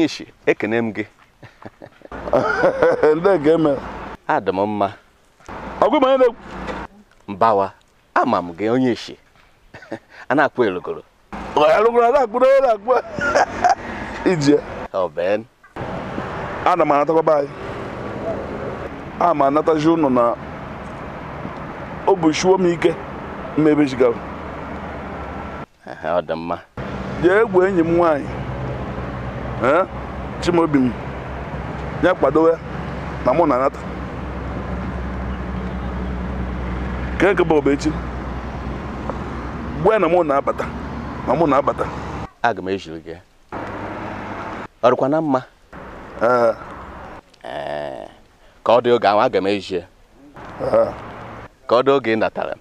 onye isi ekene m gị nke eme adị m mma ọgwụ na mbawa ama m gị onye isi a na-akpọ elogoro elogoro a na-akpụ n'onye na-akpụ ije ana m anatakwa anyị a m anatazi ụnụ na ọ bụ m ike mmebe ọ dị mma jee egwu enyi m nwaanyị chimaobi m ya kwadowe na mụ na anata nke nke bụ obechi gbe na mụ na-abata ma mụ na-abata aga m ejiri gị ọrụkwa na mma ka ọ dị oge ahụ aga m ejie ka ọ dị oge ị natara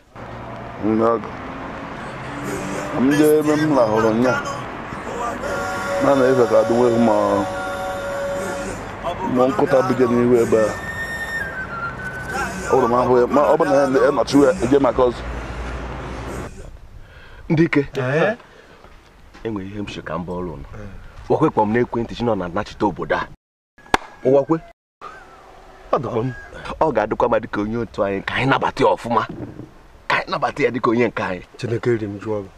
m jee ebe m lahụrụ nya na na-efe ka adịwe ma nọ nkụta bụje n'ihu ebe a hụrụ m ahụ ya ma ọ bụ na ya nọchi ya eje maka ọzọ ndị ike enwere ihe m si ka m bụ ọrụ wakwe kpọm ekwentị chi nọ na nachite obodo a ụwakwe ọ ga-adịkwa ma dịka onye otu anyị ka anyị nabata ya ọfụma ka anyị nabata ya dịka onye nke anyị chineke ri m jụọ gị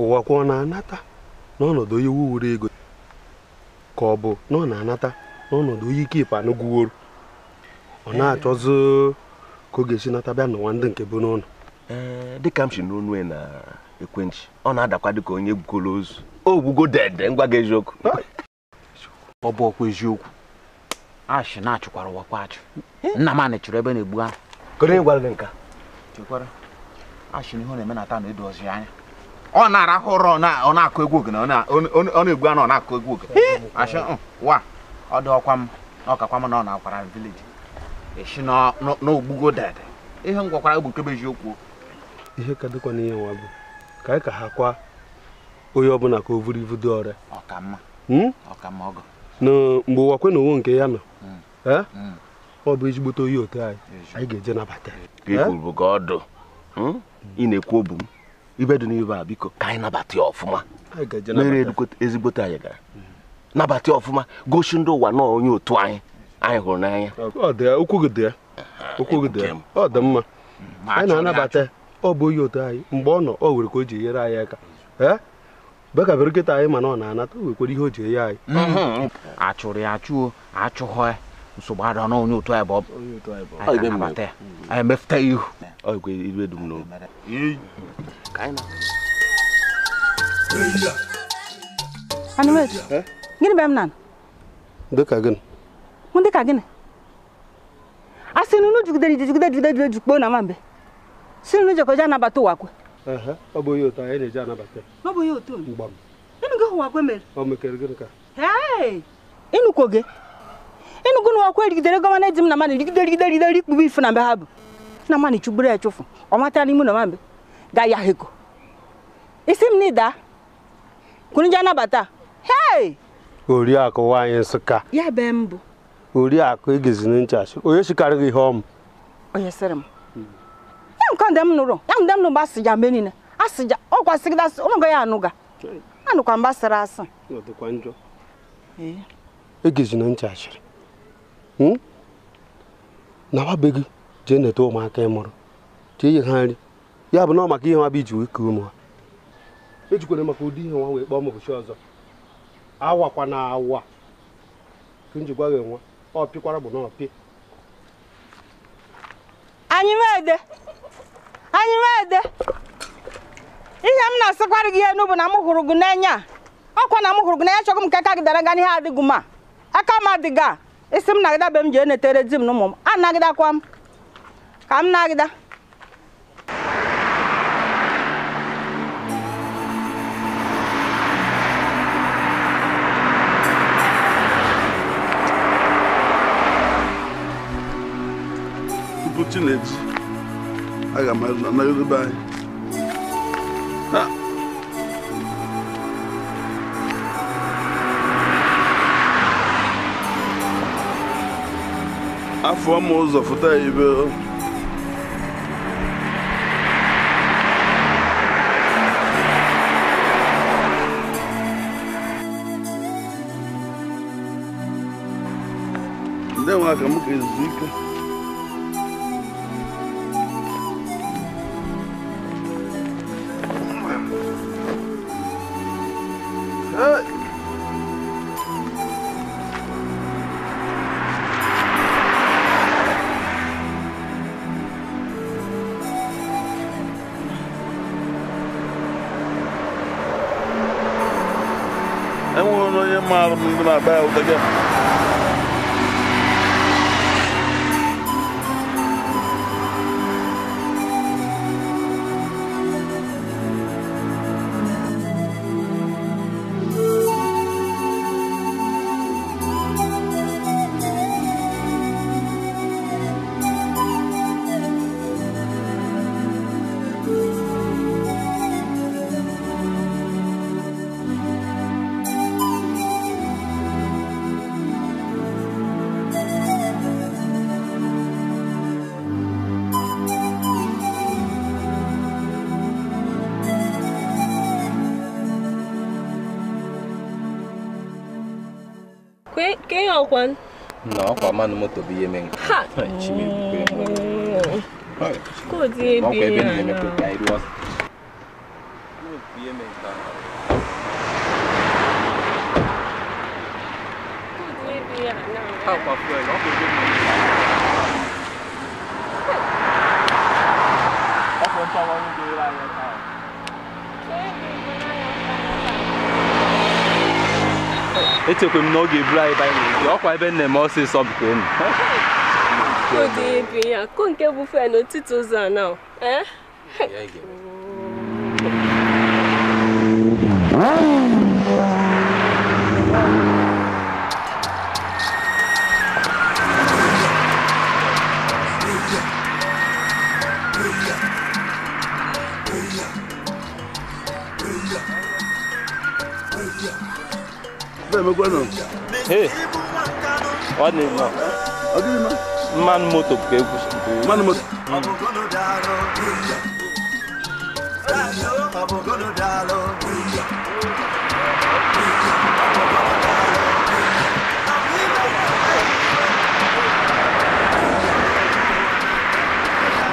ụwakwa ọ na-anata n'ọnọdụ onye wuwuru ego ka ọ bụ na ọ na-anata n'ọnọdụ oyi kipụ anụgwuoro ọ eh. na-achọzi ka ọ ga-esi nata bịa n'ụwa ndị nke bụ n'ụlọ eh, dịka m si n'onu na ekwentị ọ na-adakwa dịka onye gwugola ozu o gwugo dede ngwa gị eziokwu ọ bụ ọkwa eziokwu ashị na-achụkwara ụwakwa achụ nna m chụrụ ebe na-egbu ahụ kedu gị nka chekwara ashị n'ihe ọ na-eme na taa na edozi anya ọ na-arahụ ụra ọ na-akụ egwu ogene ọ na-egbu anụ ọ na-akụ egwu ogene ashị mm, wa ọ dị ọkwa m na ọkakwa m na ọ na-akwara m vileji esi n'ogbugo dede ihe m gwakwara bụ kebeji okwu ihe ka dịkwa n'ihe nwa bụ ka anyị ka ha kwa onye ọbụla ka o buru ibu dị ọrịa ọkamma hmm? ọkamma ọgọ na mgbe ụwakwe na owo nke ya nọ hmm. Eh? Hmm. ọ bụ ezigbote oyi otu anyị anyị ga-eje nabata kwuru eh? ka ị na-ekwu obu m ibe dị n'ibe a biko ka anyị nabata ya ọfụma mere ezigbote anyị gara nabata ọfụma gosi ndị ụwa nọọ onye otu anyị anyị hụrụ n'anya okwu gị ọ dị mma anyị na-anabata ọ bụ onye otu anyị mgbe ọ nọ ọ nwere ka o ji enyere anyị aka ee bekabere nkịta anyị mana ọ na-anata o nwekwara ihe o ji enye anyị mhm. achụrụ ya achụo achụghọ ya nsogbu adọ na onye otu anyị bụ anyị na-anabata ya anyị ihu ọ gịnị bụ m na dịka gịnị mụ dịka gịnị a sị na unu jigidere ijigide jigide jide jikpoo na nwambe si unu jekọja anabata ụwakwe ọ bụghị otu anyị na-eji anabata ọ bụghị onye otu mgba m ịnụgo ụwakwe mere ọ mekere gịnị ka ịnụkwo gị ịnụgo na ụwakwe erigidere gọvanọ eji m na mmadụ rigide rigide rigide ikpugbu ifu na mbe ha bụ na mmadụ chugburu ya chụfụ ọ matara ime na nwambe ga ya heko isi m na ịda kunu ji anabata hei oriakụ nwaanyị Nsụka ya be m bụ oriakụ egezina nchachi onye chịkarị gị ihe ọm. onye sịrị m ya nke ndị m nụrụ ya ndị m nụrụ asị mgbe niile asị ja ọ kwasịgịda asị ya anụga anụkwa mba sịrị asị egezina e nchachiri hmm? na wabe gị jee neta ụmụaka ị mụrụ jee ihe ha nri ya bụ na ọ maka ihe nwa bụ iji wee kee ụmụ ha ejikwana maka ụdị ihe nwa wee kpọọ m ụbọchị ọzọ kwa na awa ka m ji gwa gị nwa ọ bụ na ọ pị anyị mede anyị mede ihe m na-asịkwara gị enu bụ na m hụrụ gị n'enya a ọkwa na m hụrụ gị n'enya chọgụ m ka aka gị dara nga n'ihe adịghị m aka m adịga isi m nagịda be m ji enetere di m na ụmụ m anagịdakwa m ka m nagịda 14 leaves. I got my another bag. Ah. afọ ma ụzọ bij elkaar. no moto bụ ihe mere. Chimebukwe. Koodu ebe ya na. echekwe m e e na ọ ga-eburu anyị baịbụl ọkwa ebe nna m ọsịsọ bute enu ụdị ibi nke bufe n'etiti ụzọ a na eh he ọ dị mma ọ dị mma mmanụ moto ka ekwusi mmanụ moto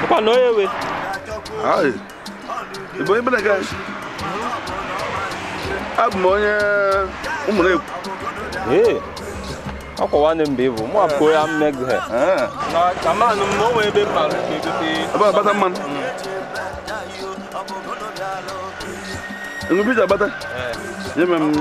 Kwa no yewe. Ai. Ibo ibe daga. Abụ m onye ụmụ na akwa ne mbe bo mo apo ya meg he eh. na kama no mo we be ma man mm. bata eh. ye mem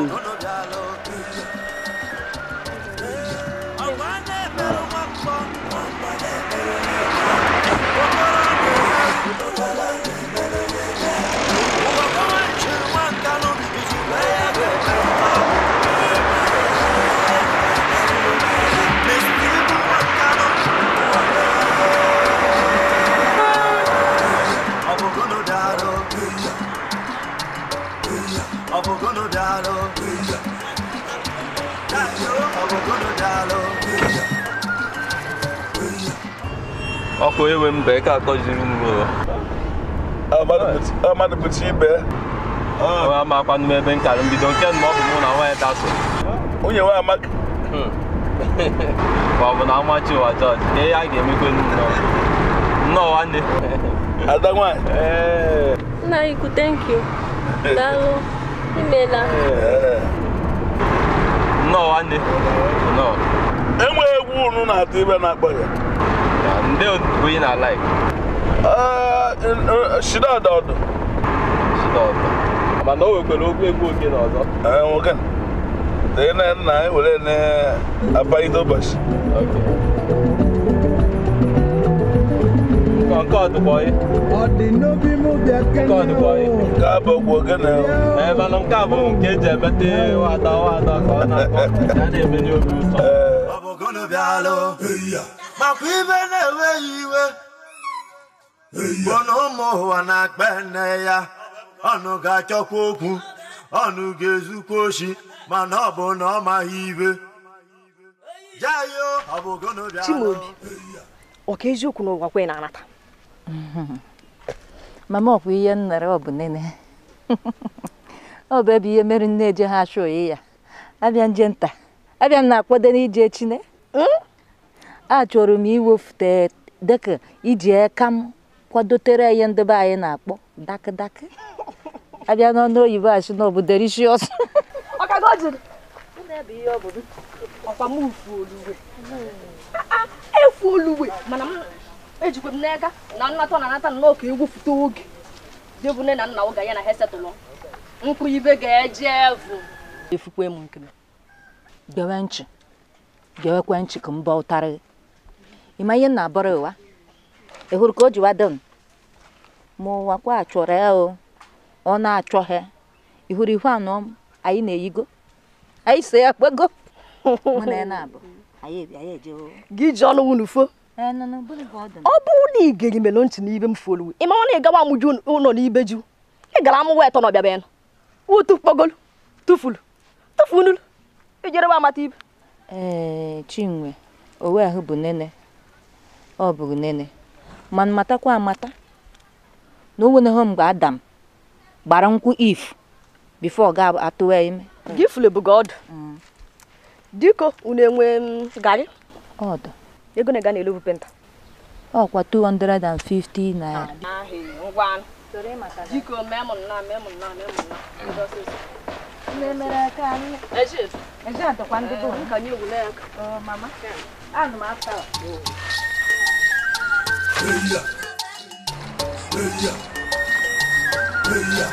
biko enwe mbe ka akọjiri m ụlọ amadụpụta ibe ama akwanụ m ebe nkara mbido nke na ọ bụ mụ na nwaanyị dasụ o nwe amaka ma ọ bụ na amachi ụwa jọji ihe ya ga-emekwe nnọọ nnọọ nwanne ada nwaanyị nna iku thank you daalụ imeela eh. nnọọ nwanne nnọọ enweghị egwu unu na-atụ ibe na-akpọ ya ndị bụ ihe na-alaik shida mana o nwekwara ogwu egwu oge na nwoke tee na nna anyị were na ụbọchị nke nke nke bụ ogwu oge na nke nke eji emete wada ka ọ na-akpọ ya na-emenye obi ụtọ ewe iwe bụ na ụmụ ụwa na-akpa nne ya ọnụ ga-achọkwa okwu ọnụ ga-ezukwa oshi mana ọ bụ na ọ maghị ibe Chimaobi ọ ka eziokwu n'ụwa kwe na-anata mama ọkwa ihe nnere ọ bụ nene ọ bụ ebe ihe mere nne eje ha achụ oyi ya abịa nje nta abịa m na-akwado n'ije chine hmm? a chọrọ m iwefute dịka iji aka e m kwadotere ihe ndị be anyị na-akpọ dakịdakị abịa n'ọnụ oyibo asị na bụ rishis efu olugbe ah, ah, mana m m n'ega na nnata na nnọọ ka egwupụta oge nne na na ha ibe ga-eje gewekwe nchị ka m ba ịma ihe na abọrọ ụwa ị hụrụ ka o jiwa dum ma ụwa kwa achọrọ ya o ọ na-achọ ha ị hụrụ ihu anọ anyị na-eyigo anyị so ya kpego gị ji ọlụ wụ n'ufo ọ bụrụ na ị ga-eri melo ntị n'ibe m foluwe ị mara na ị gawa amụju ụlọ n'ibe ju ị gara amụwa etọ n'ọbịa bịa wutu kpogolu tufulu tufulu ijerebe amata ibe ee chinwe owe ahụ bụ nene ọ bụrụ nene mana matakwa amata na o nweneghị mgbe adam gbara nkwụ if bifo ga atụwa ime gị fulebugo ọdụ mm. diko unu enwe mm, gari ọdụ ego na-ega n'elu bụ penta ọkwa 250 naira diko memụ na memụ na memụ na ndị Eia. Eia. Eia.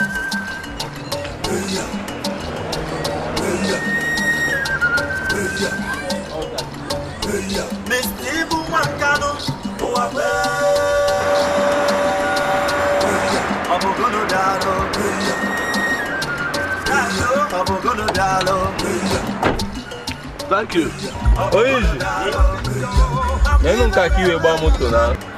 Eia. Eia. Eia. Eia. Thank you. Hoje. Nem nunca aqui eu vou muito não.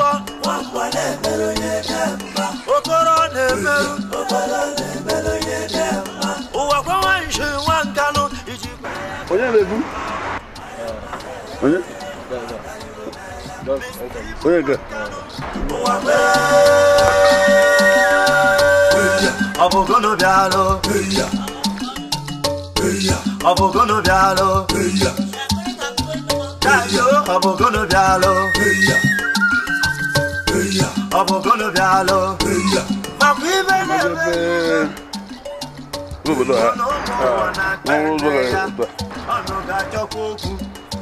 akwụkwọ okoro na-emerụ ụwa kwenwe nshi nwa nkanụ iji onye na-ebu onye onye ga ụwa ọ bụ bịalụ ọ bụ gono bịalụ ọ bụ gono bịalụ ọ̀bùnkún ló fi àlọ́. gbogbo náà wọn ń gbọ́dọ̀ rẹ̀ tó tà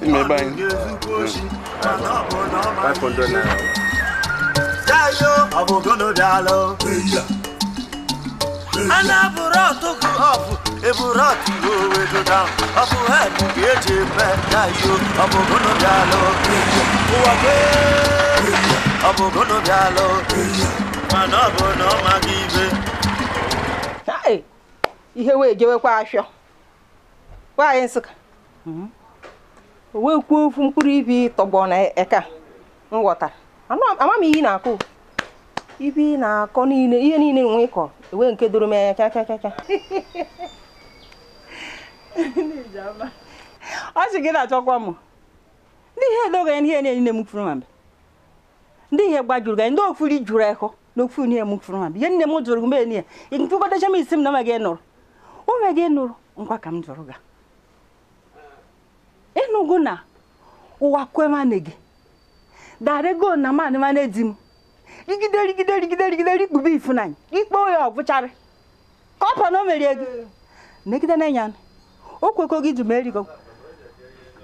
ìmọ̀ báyìí hmm. five hundred naira. Jayo ọ̀bùnkún ló fi àlọ́. Anaburo tó kú ọ̀fù, eburo tí òwe tó dá. Ọ̀fù ẹ̀mí kìí ṣe fẹ́ jayo ọ̀bùnkún ló fi àlọ́. Wọ́n gbé. ọ bụ gonobịalụ mana ọ bụ na ọ gị ibe ihe wee jewekwa afịọ nwaanyị nsụka mhm. o wee kwuo ofu mkpụrụ ibi tọgbọ na eka m ama m ihe na-akụ ibi na-akọ niile ihe niile nwe ịkọ ewe nke doro m anya chachachacha ọ sị gị na-achọkwa m ndị ihe edogo ya ihe niile m kwuru ma mbe ndị ihe gbajuru gị ndị ofu ri juru ekọ na ofu ihe m fụrụ ha ihe nne m jụrụ mgbe niile nkụkọtacha m isi m na ma gị nụrụ onwe gị nụrụ ngwa ka m jụrụ gị ịnụgo na ụwa kwemane gị darego na manị mana di m rigide rigide rigide rigide rikpube ifunanya ikpe ya ọbụcharị ka ọ pọ na o merie gị negide n'enya o kwekọ gị dum erigo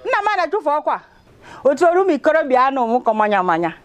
nna m na-achụfe ọkwa otu oru m ikorobịa anụ m kọ manya manya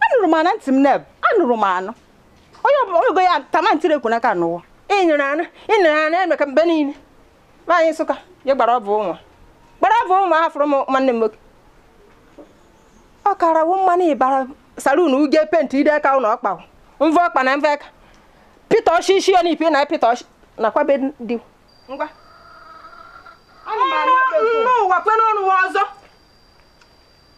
anụrụ m ana ntị m neb anụrụ m anụ onye ọbụla ego ya tama ntiri ekwu n'aka n'ụwa ịnyere anụ ịnyere anụ eme ka mgbe niile nwaanyị nsụka je gbara ọbụ ụmụ gbara ọbụ ụmụ afụrụ m nwanne m nwoke ọ kara wụ mmanụ ịbara salun uge penti ide aka ụlọ ọkpa mvọ ọkpa na mvọ aka pita ọchị isi ọ n'ipi na pita ọchị nakwa be dị ngwa n'ụwa kwe n'ọnụ ọzọ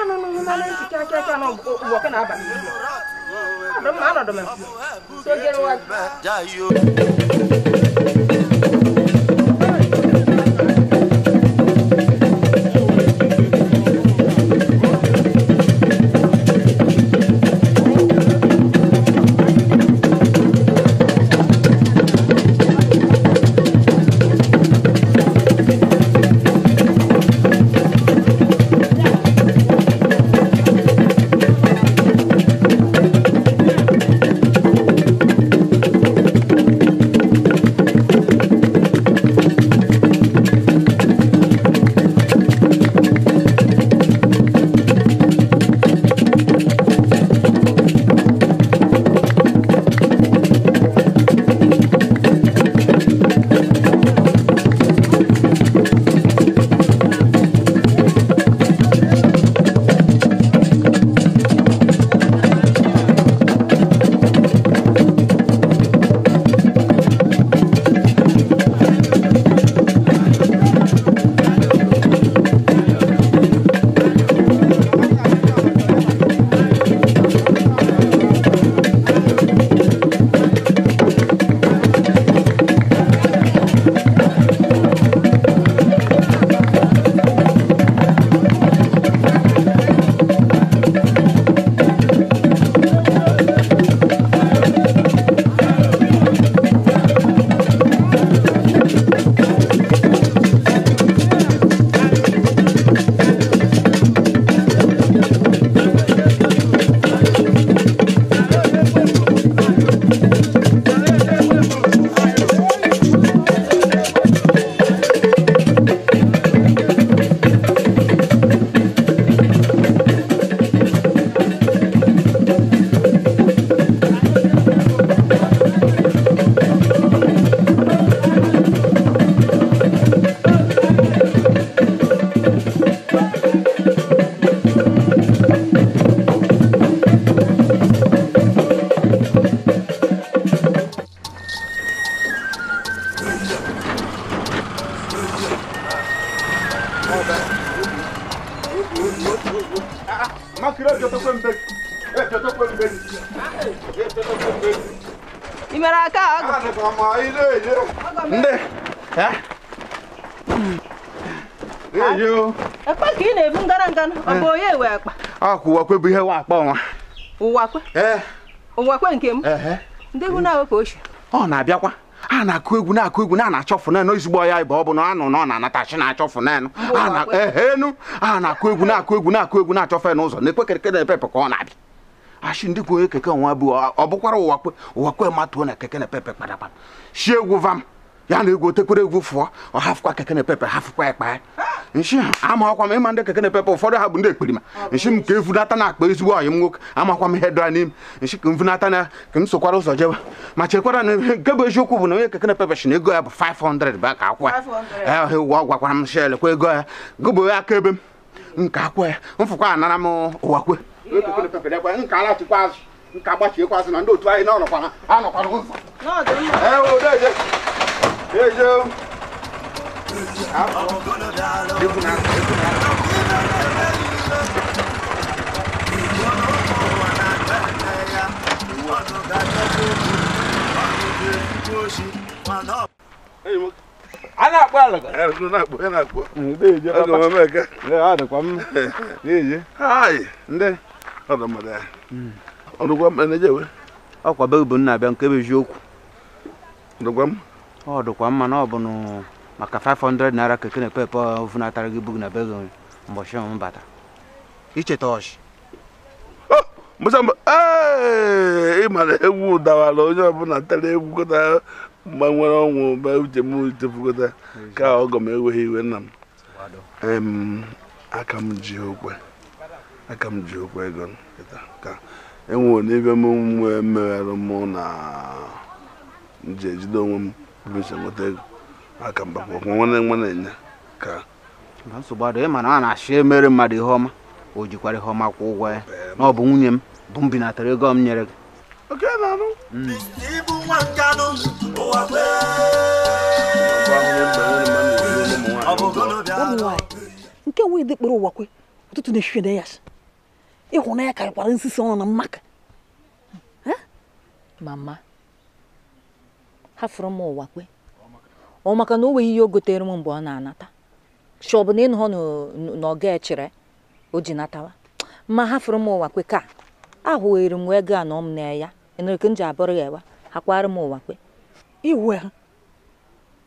anụ na mmanụ ntị aka aka na ọkụ na-aba anọdụ m anọdụ ụwakwe ụwakwe bụ ihe nwa akpa ọnwa ụwakwe ụwakwe nke m e, e. ndị egwu na awepụ ochi ọ na-abịakwa a na-akụ egwu na-akụ egwu na na-achọ fụnanụ ezigbo ọya ịba ọ bụ na anụ na ọ na-anatachi na-achọ ehenu e, a na-akụ egwu na-akụ egwu na-akụ egwu na achọfụ fe n'ụzọ na-ekwe keke na-epepe ka ọ na-abịa ashi ndị kwụ onye keke nwa bụ ọ bụkwara ụwakwe ụwakwe matuo na keke na-epepe kpadakpa shi egwu vam ya na egwu otekwere egwu fụọ ọ hafụkwa keke na-epepe hafụkwa ya kpaa. nshi amakwa m ịma ndị keke na-epepe ụfọdụ ha bụ ndị ekperima nshi m ka na akpa ezigbo ọyị m nwoke amakwa m ihe dara n'ime nshi ka m na ka m sokwara ụzọ jebe ma chekwara na nke bụ eziokwu bụ na onye keke na-epepe shi na ego ya bụ 500 bụ akwụ ya ụwa gwakwara m shel kwa ego ya gụbụ ya aka ebe m nke Out. Different out. Different out. Hey, look. a na-akpọ alaka ọkwa be bụ nna abịa nke bụ eziokwu ọ dịkwa mma na ọ bụ maka 500 naira keke na ekpe ekpe ofunatara gị bug na be gị mbọchị m bata icheta ọchị ịmara egwu dawara onye ọbụla tara egwukọta mgbe nwere ọnwụ be uche m ka ọgọ m eweghị iwe nna m aka m ji okwe aka m ji okwe ego ka e m mụ na nje onwe m nweta ego aka mgbakwa nwanne nwa na-enye ka nsogbu adịghị mana a na-achị emere mmadụ ihe ọma o jikwara ihe ọma kwụ ụgwọ ya na ọ bụ nwunye m bụ m binatara ego m nyere gị oke na-anụ hmm. ibu nwa nkanụ ụwa nke nwe dị kpọrọ ụwa kwe ụtụtụ na-ehihe na ya ịhụnanya karịkwara nsisi ọnụ na mmaka mama hafụrụ m ụwakwe. ọ maka na o nweghị ihe o gotere m mgbe ọ na-anata chi ọ bụ na ịnụhọ na ọ ga-echere o ji natawa ma ha fụrụ m ụwa kwe ka ahụwere m ego a na ọ m na ya eneke m ji abụrụ ya ewa ha kwara m ụwa kwe iwe ha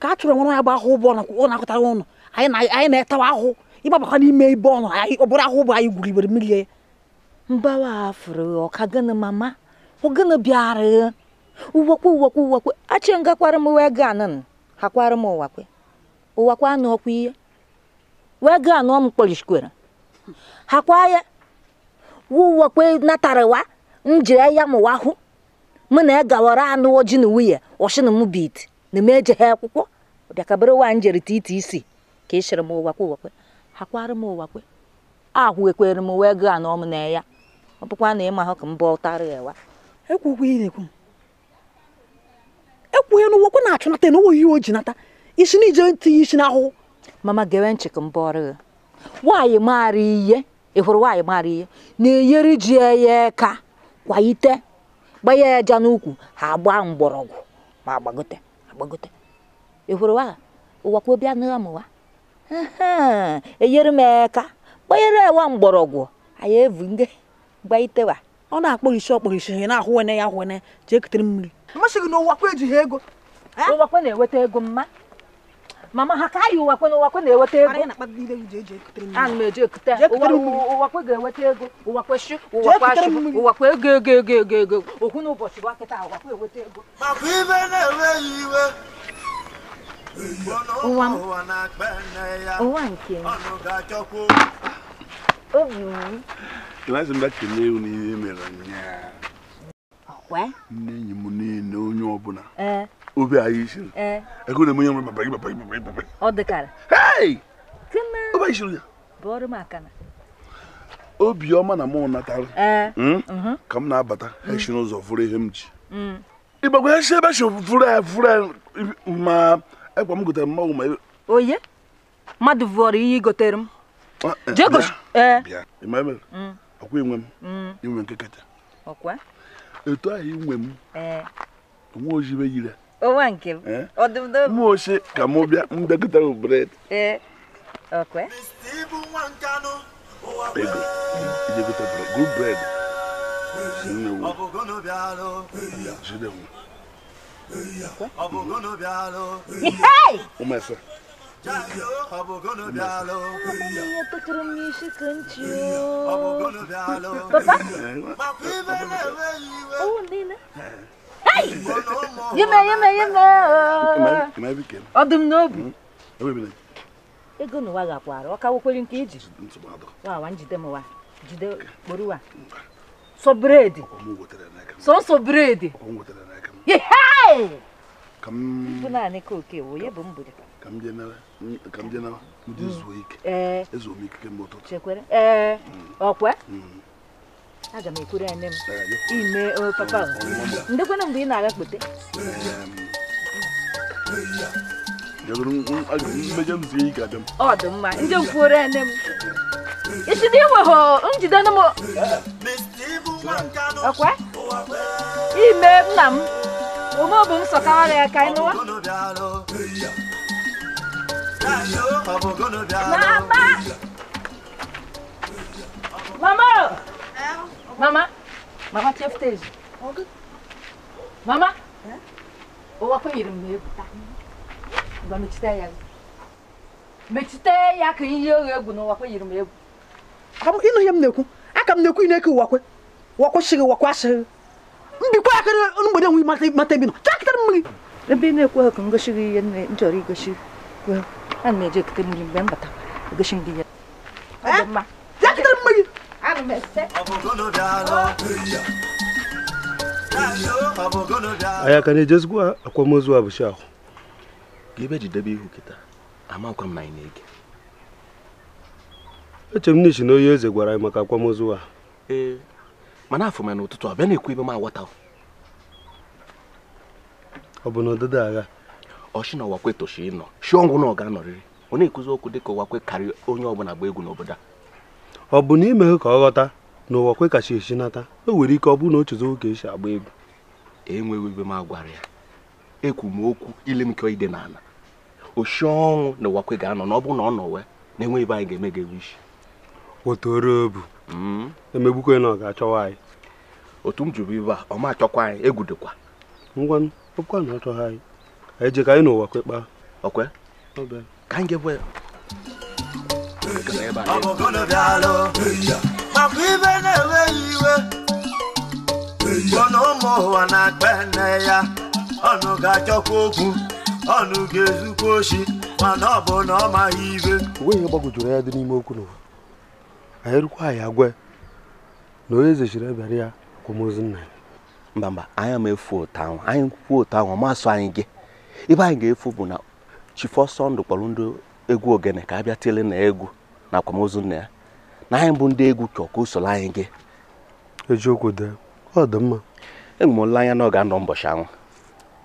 ka a chụrụ nwere ya bụ ahụ ụbọ ọ na-akụtara ụnụ anyị na-etawa ahụ ịgbabakwa n'ime ibe ọnụ ọ bụrụ ahụ ụbọ anyị gwuru igbere mmiri ya mbawa afụrụ ọka gịnị mama ọ gịnị bịara uwekwe uwekwe uwekwe achị ngakwara m wee gaa nụ ha kwara m ụwa kwe ụwa kwa anụ ọkwa ihe wee gaa anụ m kwere ha kwa ya ụwa kwe natarawa njire ya mụwa hụ mụ na gawara anụ oji na nwunye ọshịna m bit na m eje ha akwụkwọ bịakabere wa njere titi isi ka ị shịrị m ụwa kwe ụwa kwe ha kwara m ụwa kwe ahụ ekwere m wee gaa anụ m na ya ọ bụkwa na ịma ahụ ka m bọ ụtarị ya wa ekwukwa ilekwu ekwughị na ụwọkwe na-achụ nata na ohi o ji nata isi na ije tinye isi n'ahụhụ mama gewe nchi ka mbụ ọrụ gị nwaanyị maara ihe ị hụrụ nwaanyị maara ihe na-enyere ji ya ka kwaite gbanye ya aja n'ukwu ha agba mgbọrọgwụ ma agbagote agbagote ị hụrụ nwaanyị ụwakwe bịa nụọ m wa enyere m eka gbanyere ewa mgbọrọgwụ anyị evu nge gbaitewa ọ na-akpọ isi ọkpọrọ isi ha na-ahụwene ya ahụwene jee kutere mmiri masị gị na ụwakwa ejighị ego ụwakwa na-eweta ego mma mama ha ka yi ụwakwa na ụwakwe na-eweta ego ana m eji ekute ụwakwa ga-eweta ego ụwakwa shi ụwakwa ashị ụwakwa ego ego ego ego ego okwu na ụbọchị bụ akịta ụwakwa eweta ego maka ibe ụwa ụwa nke m obi m ewu n'ihe mere ụnyaahụ nne enyi m niile onye ọbụla e. obi anyị e. ego na nwere ọ ya obiọma na natara e. hmm? mhm. ka m na-abata hmm. esi n'ụzọ fụrụ ihe m ji hmm. ịgbagwa esi ebe esi fụrụ ya ma ekwa m gotere mmanwụ ma oye mmadụ vụọrọ ihe igotere m nke etu ahụ eh. inwe m nwa ojibe yire onwa nke oche ka m bịa eh. m bred ego ijekọta Maria tá cromiche cantinho. Papá? Oh, Nina. Hey! Yema, yema, yema. Mais pequeno. Ó, do novo. Eu vou ego na ụwa ga-akwara ọ kawokwere nke iji wawa njide m wa jide kporo wa sọ bred sọnsọ ka m dị na ndị zuo ike ezuo m ikike mgbe ụtụtụ ee ọkwa aga m ekwere ya nne m eh, ime oh, hmm. papa oh, ndekwana mgbe ị na-aga kpote mmejọ hmm. m zie ike abịa ọ dị mma ndị nkwuore ya nne m echide iweghọ njide m ọkwa ime nna m ome bụ m sọkawara ya ka anyị nụwa Mama! Mama! Mama! Mama tiyafteji. Mama! Owa kun yerim ne buta. Ba mi chite ya. Mi chite ya kan yi egwu no wa kun yerim egwu. Abu inu yem neku. Aka m neku ineku wakwe. Wakwe shiri wakwa shiri. Mbikwa akere mgbede nwi mata mata bi no. Chaktar mmi. Ebe na-ekwu ha ka ngoshiri ihe nne nchọrọ igoshi. Well. ana m mgbe m batara egosi m ya na-ejezikwa akwamozu abụchi ahụ ka ebe jidebe ihu kịta na-ege m na onye eze gwara anyị maka akwamozu a ee mana afọ m ụtụtụ abịa na-ekwu ibe m aghọta ọ bụ na ọdịda agha ọchị na ọwakwe tosi ịnọ shi ọnwụ na ọ ga-anọrịrị ọ na-ekuzi okwu dịka ọwakwe karịa onye ọbụla gba egwu n'obodo a ọ bụ na imeghe ka ọ ghọta na ọwakwe kacha esi nata o nwere ike ọ bụrụ na o oge esi agba egwu enweghị ebe m agwara ya ekwu m okwu ile ka ide n'ala oshi ọnwụ na ọwakwe ga-anọ na ọ bụrụ na ọ nọwe na enweghị ebe anyị ga-eme ga-ewu isi wetoro obu hmm? emegbukwe na ọ ga-achọwa anyị otu m jụrụ ibe a ọ ma achọkwa anyị egwudekwa ngwa ọkwa na achọghị anyị anyị je ka anyị n'ụwa kwekpaa okwe ka anyị ga-ekwe makwa ibe na-enweghị iwe ọnụ ụmụ ụwa na-akpa nne ya ọnụ ga-achọkwa okwu ọnụ ga-ezukwa oshi mana ọ bụ na ọ maghị ibe onwe ihe gbagwojuru ya dị n'ime okwu n'ụwa anyị rukwa anyị agwe na onye ezechiri ebere ya akwamozu nna ya mba mba anyị ama efu ụtọ ahụ anyị kwuo ụtọ ahụ ọmasụ anyị gị ibe anyị ga-efu bụ na chifọsọ ndụ kpọrọ ndị egwu ogene ka a bịa tele na egwu na akwamozu nna ya na anyị bụ ndị egwu chọọ ka o anyị gị ejiokwu dee ọ dị mma enwere m olileanya na ọ ga-anọ mbọchị anwụ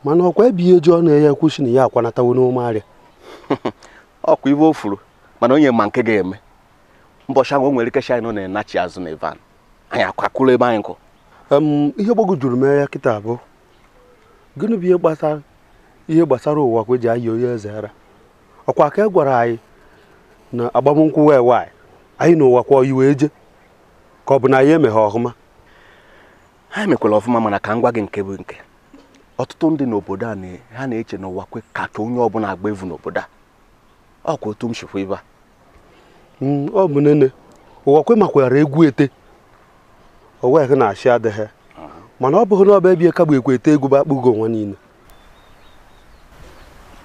mana ọkwa ebighi eji na ya ekwusi na ya akwanatawo n'ome arịa ọkwa ibe o furu mana onye ma nke ga-eme mbọchị anwụ o nwere ike anyị nọ na-enachi azụ na ivan anyị akwakụrụ ebe anyị nkụ ihe gbagojuru m ya kịta abụọ gịnị bụ ihe ihe gbasara ụwa e ji eji ayị onye eze ara ọkwa ka e gwara anyị na agbamnkwụ wee waanyị anyị na ụwa kwa oyi wee ka ọ bụ na anyị emeghe ọhụma ha emekwara ọfụma mana ka m gwa gị nke bụ nke ọtụtụ ndị n'obodo a ha na-eche na ụwa kwe ka onye ọbụla agba evu n'obodo a ọ kwa otu m shikwa ibe a mm, ọ bụ nene ụwa kwe makwara egwu ete oweghị na-achị adịghị mana ọ bụghị na ọba ebie ka ekwe ete egwu bụ akpụgo onwe niile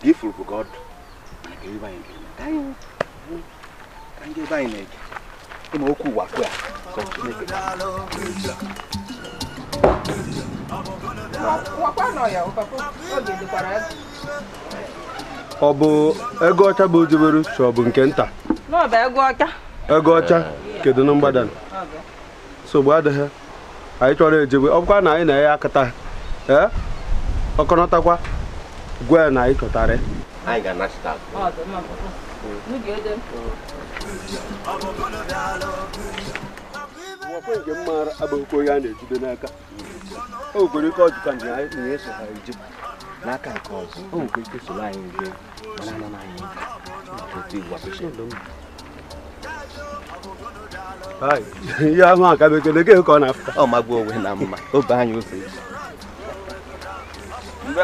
ifuru bụ ka ọdụ ka ndị ebe anyị na-eje ịma okwu ụwa kwe ka Chineke ọ bụ ego ọcha bụ ojebere ka ọ bụ nke nta ego ọcha kedu na mgbada nsogbu adịghị anyị chọrọ ejebe ọbụkwa na anyị na ya akata ee ọkọnọtakwa gwe na anyị abụghịkwa onye a na-ejide n'aka o nwekwere ike ọjụka anyị na eso ha eji n'aka nke ọzọ o nwekwa ike soro anyị mana otu igwe ihe ahụ akabekele gị ka ọ mma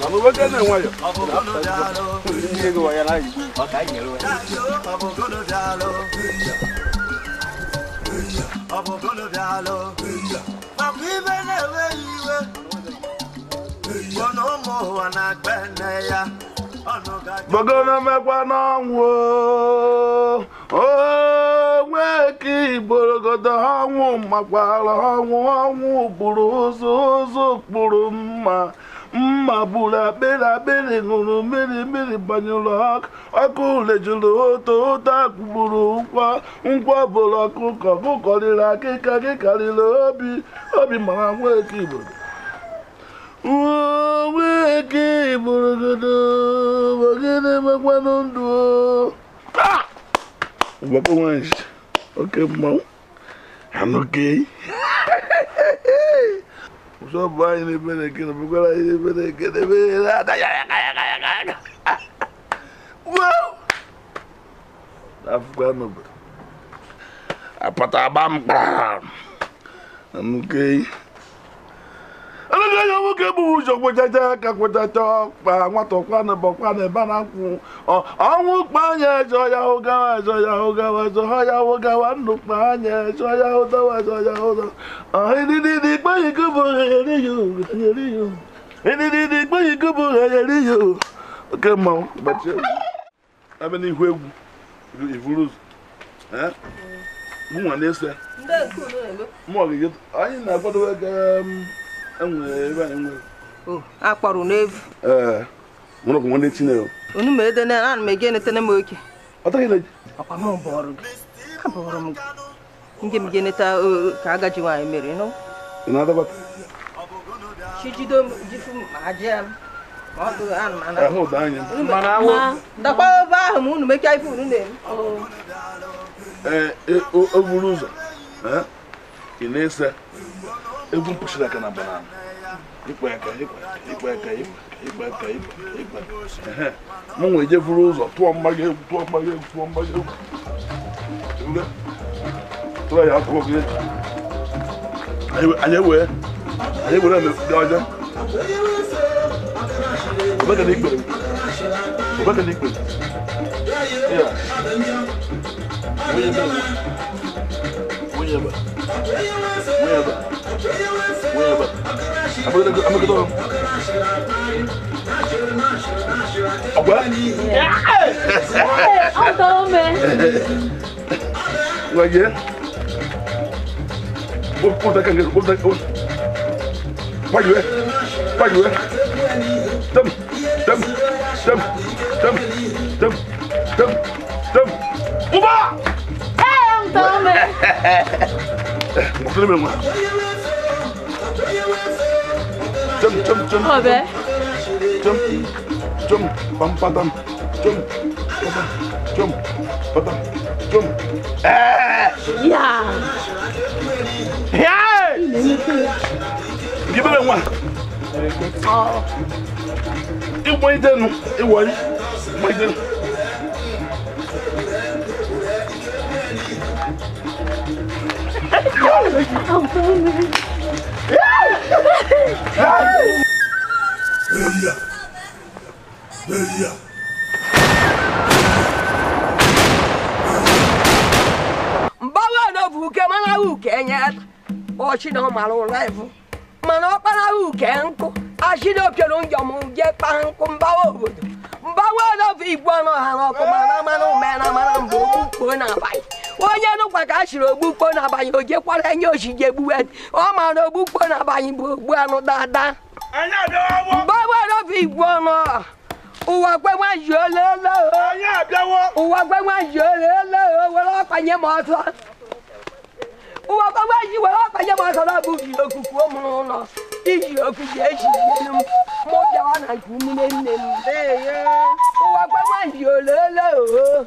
ibe na-enweghị iwe na ụmụ na igborogodo ọnwụ makwara ọnwụ ọnwụ ụzọ ụzọ kpụrụ mma mma gburu akpịrị akpịrị ṅụrụ mmiri mmiri banyụrụ ọkụ lejuru oto oto akpụgburu nkwa nkwa bụrụ ọkụkọ ọkụkọ riri akịka gị karịrị obi obi mara nwa eke igbo nwa godo igburugodo gịnị mekwanụ ndụ ah! So pa in e pene kene, mwen gwa la in e pene kene, mwen gwa la a yaka yaka yaka yaka. Wou! La fukwa nou. A pata abam kwa. An mwen keye. ndị ya nwoke bụ ụzọ kwechacha ka kwechacha ọkpa nwata ọkwana bọkwana ebe na nkwụ ọnwụ anya ejọ ya ụgawa ejọ ya ụgawa ejọ ha ụgawa ndụ kpanya ejọ ya ụdawa oke akpọrọ n'evu nwere ọgwụ nwanne Chineke onu ma ede na ana m ege netene m oke ọkwa abụrụ m ndị m geneta ka agaji nwaanyị mere chijido m jifu m m dakwa ahụ unu ife unu na-eme e, ụzọ ị na-ese egwu mpụsịrị aka na banana ikpa aka ikpa aka ikpa aka ikpa aka m nwee je buru ụzọ tụọ mmaga egwu tụọ mmaga egwu tụọ mmaga egwu tụọ ya akụ oge anyị wee anyị were dị ọjọọ obeka na ikpere obeka na ikpere ya onye Merhaba. Merhaba. Merhaba. I'm gonna go. I'm gonna go. What? Hey, I'm done, man. Like yeah. What what go, can get? What that? What? Why you? Why you? Dumb, dumb, dumb, dumb, dumb, dumb, dumb. Uba! tome. Musulmi mu. Jom jom jom. Obe. Jom jom pam patam. Jom patam. Jom patam. Jom. Eh. Ya. Ya. Gibele mu. Oh. Iwo ide nu, iwo yi. Mo ide nu. Mgbanwe Elia! Mgbawa n'obu uke mana uke nye ọchị na ọmara ụra evu mana ọkpara uke nkụ achị na opioro njọm je kpaa nkụ mgbawa obodo mgbawa n'obu igwe ọnụ ha n'ọkụ mana mmanụ mena mara mgbe okwu kpuo n'abalị onye nụkwa ka a siri ogbukpo n'abalị o jekwara enye osije egbuwe ọ ma na ogbukpo bụ ogbu anụ dada mgbe nwere ofe igwe ọnụ ụwa gbegbe ji olele ụwa gbegbe ji olele were ọkpanye m ọsọ ụwa gbegbe ji were ọkpanye m ọsọ na ji okuku m n'ụlọ iji okuku ejijielu e m mụ bịawa na nke nne nne m ụwa gbegbe ji olele oo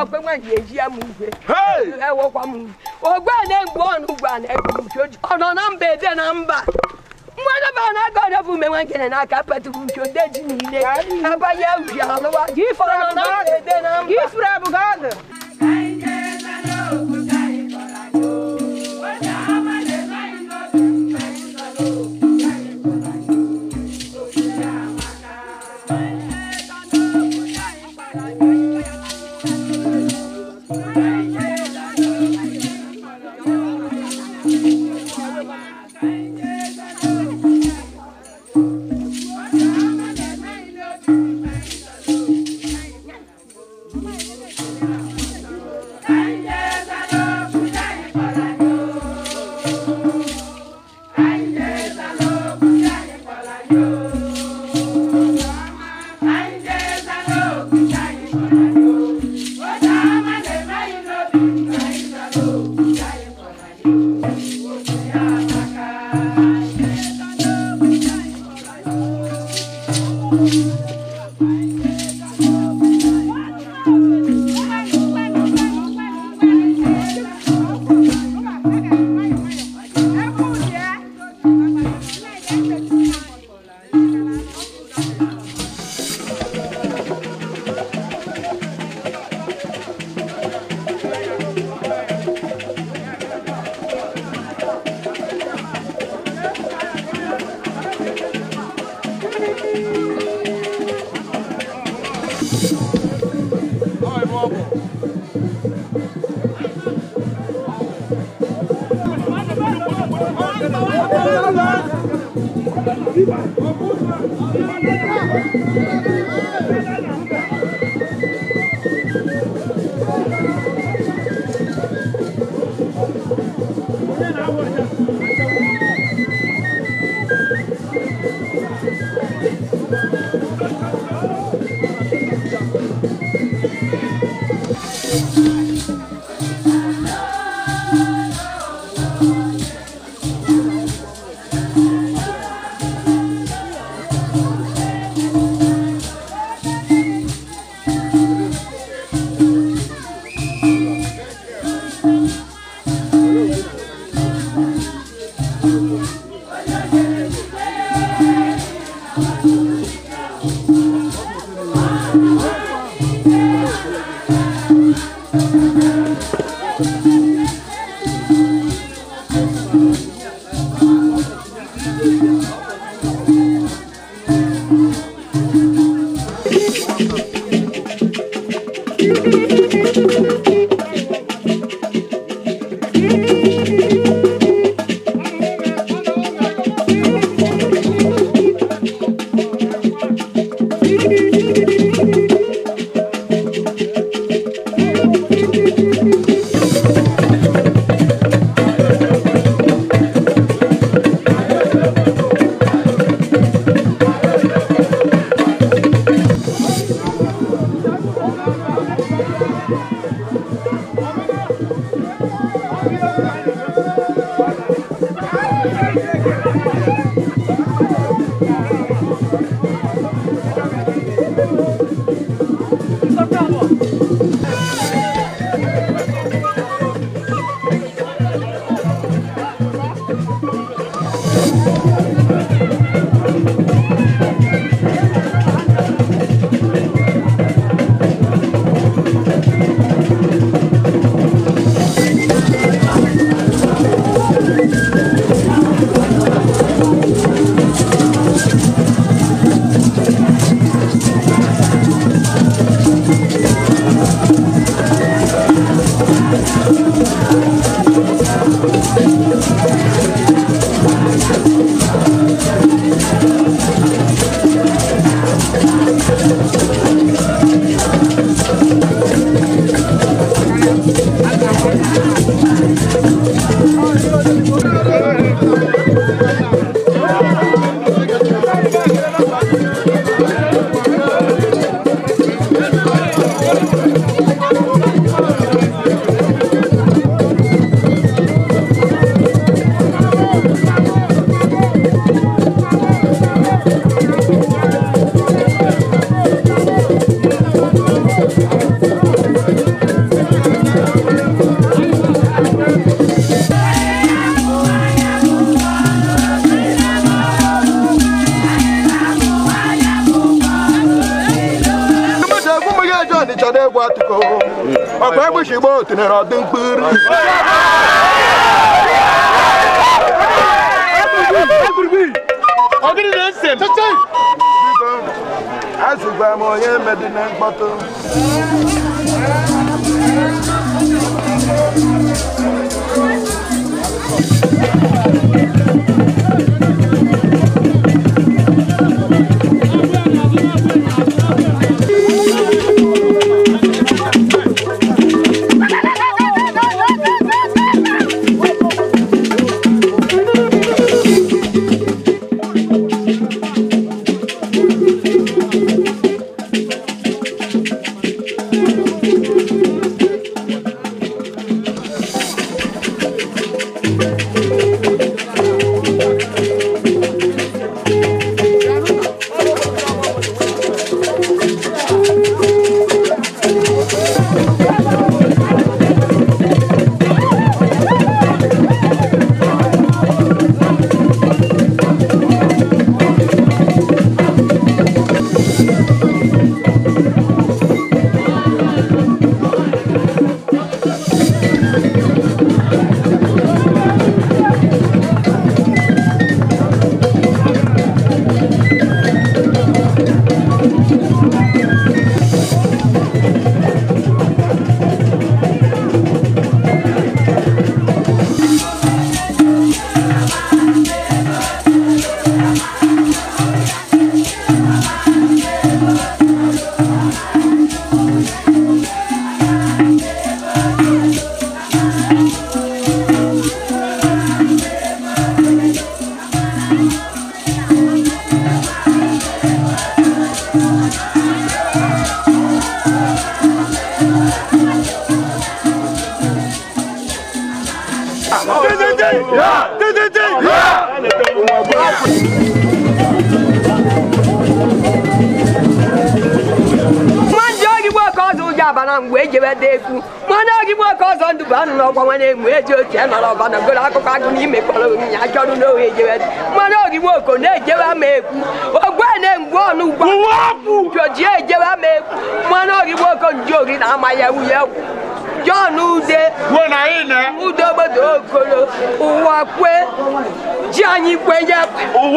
ọgbẹ́ wọn yẹ yí ẹmu ìwé ẹwọ kwamu ọgbẹ́ ẹ̀ gbọ́ ọ̀nù gbà ní ẹgbẹ́ ìjọjọ ọ̀nà náà ń bẹ ẹ̀dẹ́ náà ń bà mmadụ bụ na aka ọdọ bụ ume nwa nkene na aka patụrụ nke ode ji niile abanye ubi alụwa gị ifuru abụghị ọdụ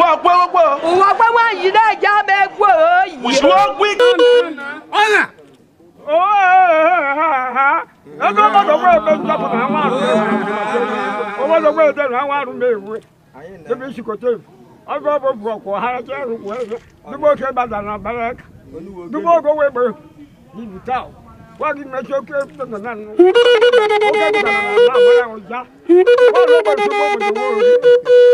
òwò ọpẹ wọpọ. òwò ọpẹ wọn yìí náà já mẹ gbọ yìí. òṣùwọ̀ pín. ọ̀nà. ẹgbẹ́ ọmọ tó gbé ẹgbẹ́ ìjọba àwọn àrùn mẹ́rin ọmọ tó gbé ẹgbẹ́ àwọn àrùn mẹ́rin ebi sikoto ọgọ bọ bọ kọ ha ẹjẹ rúkọ ẹjẹ dúpọ kẹ bàtà nà bẹrẹ dúpọ kọ wẹ bẹ bíbí tá o wọn kì í mẹsọ kẹ tẹnẹ náà nù ó kẹ bàtà nà bẹrẹ ọjà wọn lọ bọ dúpọ bọ dúpọ rẹ.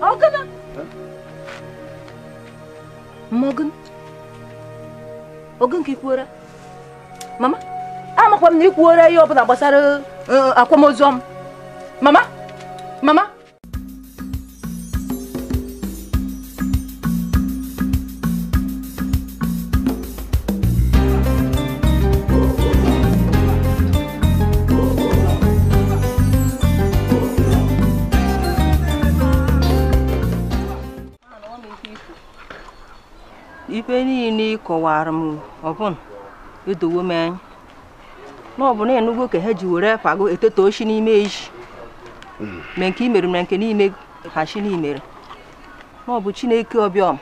Hakan'ım. Morgan. Ogun ka ikwuora. Mama, amakwa m na ikwuora ihe n'a gbasara akwamozu Mama, mama. ife niile kọwara m ọbụna edowo m anya na ọ bụ na ịnụgo ka ha ji were pago eteta oshi n'ime iji ma hmm. nke imere ma nke n'ime ha chi n'imere na ọ bụ chineke ọbịọm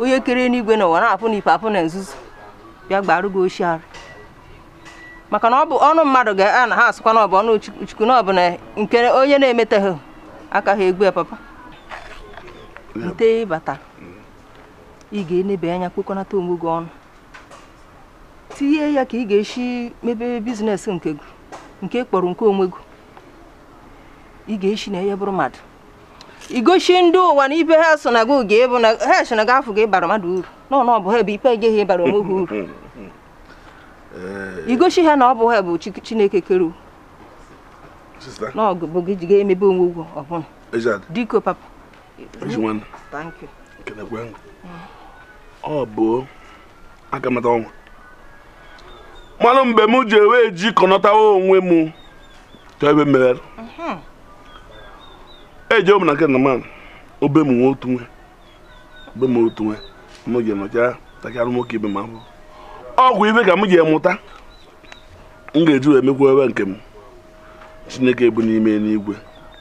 onye kere n'igwe na ụwa na-apụ na ife apụ na nzuzo bịa gbarụ gị oshi arụ maka na ọ bụ ọnụ mmadụ ga-a na ha asụkwa na ọ bụ ọnụ chukwu na ọ bụ na nke onye na-emetaghị aka ha egbu papa nte ịbata ị ga-enebe anya kpokọnata onwe gị ọnụ tinye ya ka ị ga-esi mebe biznes nke gị nke kpọrọ nke onwe gị ị ga-esi na ya bụrụ mmadụ igosi ndị ụwa na ibe ha so na gị oge bụ na ha so na gị afọ gị bara mmadụ uru nọ na ọ bụ ha ebe ipe egeghị ịbara onwe gị uru igosi ha na ọ bụ ha bụ chineke kere n'ọgụ bụ gị ji ga-emebe onwe ụgwọ ọbụla diko papa thank you ọ bụ akamata ọnwa mmanụ mgbe m ji ewe ji kọnọtawa onwe m chọọ ebe meghere mhm. eji omu na nke nna man obe m nwe otu nwe obe m otu nwe m ji nọcha takarị nwoke ibe m afọ ọgwụ ibe ka m ji emụta m ga-eji wee mekwa ebe nke m chineke bụ n'ime n'igwe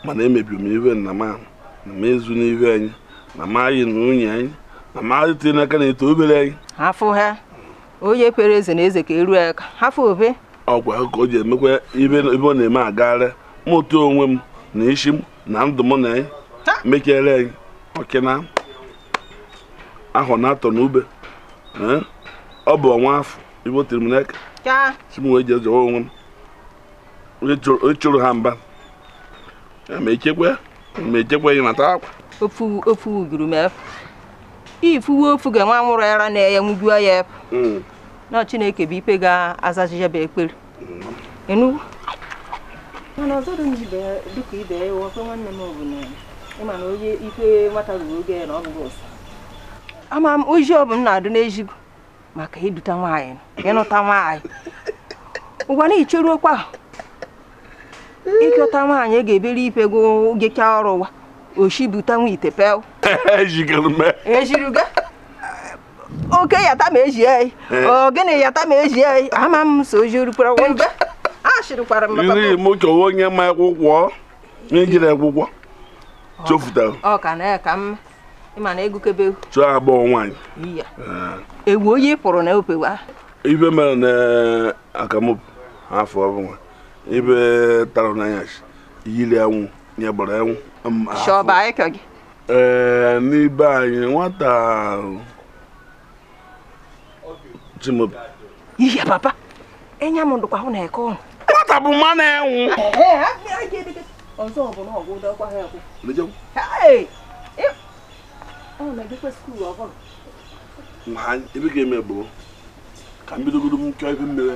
mana emebi m ibe nna m na m ezu n'ihu anyị na m anyị na nwunye anyị amadi tiri n'aka na-eto obere anyị hafụ ha onye kwere eze na eze ka eru aka hafụ obe ọkwa ka o ji emekwa ibe ọ na-eme agagharị mụta onwe m na isi m na ndụ m na mekere anyị ọkịna ahụ na atọ n'ube ọ bụ ọnwa afọ ibe o tiri m n'aka si m wee jee onwe m chụrụ ha mba ma echekwa ma echekwa ya nata akwa ofu uguru m efu ifuwe ofu ga nwa nwụrụ ara na ya nwujuo ya efu na chineke bụ ikpe ga-azachicha bụ ekpere ya hmm. bụ na ịma na onye ikpe nwata ruru oge ya na ọ ama m ozi ọ bụ m na-adụ n'ezigo maka iduta nwaanyị ịnụta nwaanyị ụwa na icheruokwa ịchọta nwaanyị e ga-ebere ipe gụ gecha ọrụ ụwa oshibutanwu ite pel ejirigo e oke yata ma eji eyi ogene yata ma eji eyi ama m so ojirukwa ngbe ashirikwara m iri m chọwa onye ma akwụkwọ ejiri akwụkwọ chofutara ọ ka na ka mma ịma na egukebe chụọ agbọghọ nwaanyị ewu onye pụrụ na opewa ibe mere na eh, akamụpụ afọ ọbụla ibe tara n'anya yiri anwụ nye gbara anwụ shọba ekeg ee n'ibe anyị nwata chimobi ihe papa enya m ndụkwa hụ na eke ọnụ nwata bụ mma na-enwu ọzọ bụ na ọgwụ dọkwa ha ekwu ebe ga-eme bụ ka mbidogodo m kọọ ebe mmiri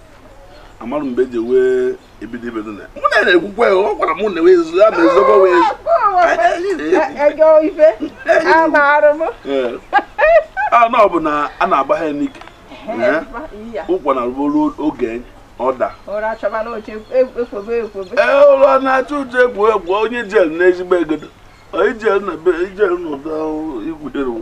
amarụ mgbe eji wee ebido ibe na mụ na na-ekwukwe ọ gwara mụ na wezu ya ma ezogbo wee a eh. ah, na ọ bụ na a na-agba ha n'ike ụkwa na ruo oge ọda ụra e, eh, na-acha uche egwu egwu onye jel na ezigbo na ijel na ụda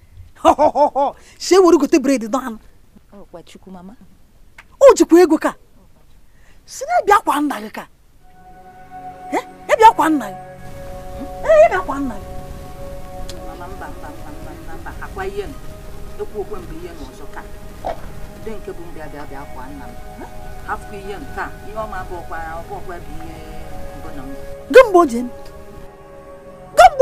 shee were gote bred dọanụ o jikwa ego ka si na ebia kwa nna gị ka ebia kwa nna gị ee ebia kwa nna gị ekwu okwe mgbe ihe n'ọzọ ka ndị nke bụ mbịa bịa bịa kwa nna m hafụkwa ihe nke a ihe ọma bụ ọkwa ọkwa bụ ihe mbụ na m gị mgbe o ji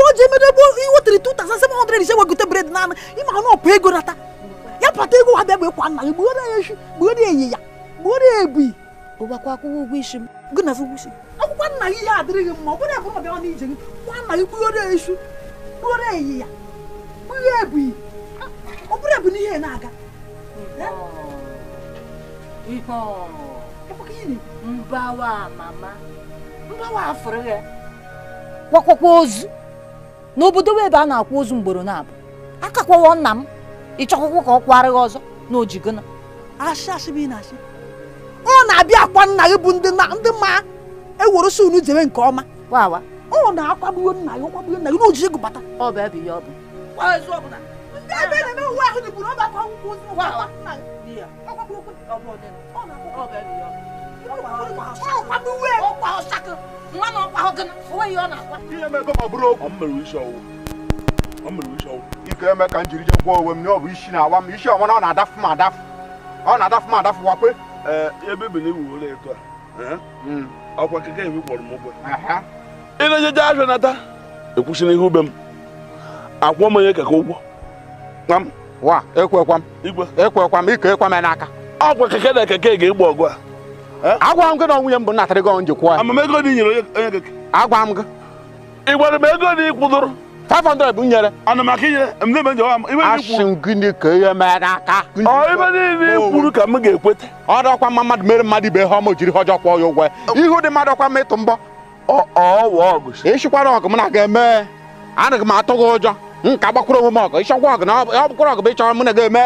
ebe o ji emedebe iwetara 2700 ise wegote bred naanị ịma na ọpụ ego nata ya pata ego ha bịa bụ nna gị ya eyi ya ebi ụgbakwa akwụkwọ ụgwọ isi m na ụgwọ isi akwụkwọ nna gị ya adịrị gị mma ọ bụrụ abụrụ ọbịa n'ije gị kwa nna gị eyi ya ebi ọ bụrụ ebi n'ihe na-aga ya n'obodo ebe a na akwụ ozu mgboro na-abụ akakwawo nna m ịchọkwụkwọ ka ọ kwarịghị ọzọ na ojigona asị asị na-asị ọ na-abịa akwa nna bụ ndị ma ewere unu jebe nke ọma ọ na-akwagbuo nna gị ọkwagbuo nna gị na ojiji gị bata ọ bụ ebe ọ bụ ọsakụ nwa na ọkwa ọ gịnị onwe ya ọ na-akwa ihe mebe ma bụrụ ọ mmere isi ọwụ ike eme ka m jiri je gwa onwe m na bụ isi na-awa m isi ọnwa ọ na-adafụ m adafụ ọ na-adafụ m adafụ wakwe ee ebe bi na ewu ụlọ eto a hmm. ọkwa keke ebe kpọrọ m ụgwọ ịna-ejeje ahịa nata ekwusi ihe ube m akwụọ m onye keke ụgwọ wa ekwekwa m ikwe ekwekwa m ike ekwe m n'aka ọkwa keke na keke ga-egbu ọgụ a Eh? agwara m gị na ọnwụ ya mbụ natara gị onye kwụọ ya agwara m gị ị gwara m ego na ịkwụdoro 500 bụ nyere asị m gịnị ka ihe mee n'aka ibe niile ị kwuru ka m ga-ekweta ọ dọkwa mma mmadụ mere mmadụ ibe ihe ọma jiri ọjọọ kwụọ ya ụgwọ ya ihu dị mmadụ ọkwa m ịtụ mbọ Ọ ịchịkwara ọgụ m na aga eme anaghị m atụ gị ụjọ m ka gbakwuru onwe m ọgụ ịchọkwa ọgụ na ọ bụkwara ọgụ bụ ịchọrọ m na ga-eme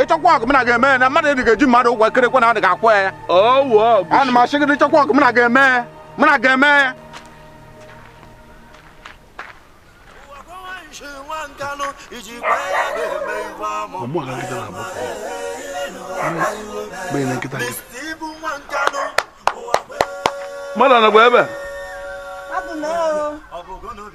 ịchọkwa ọgụ m na ga-eme na mmadụ edị ga-eji mmadụ ụgwọ ekerekwe na adị ga-akwụ ya ana m achị gị ịchọkwa ọgụ m na ga-eme m na ga-eme mmadụ anagwa ebe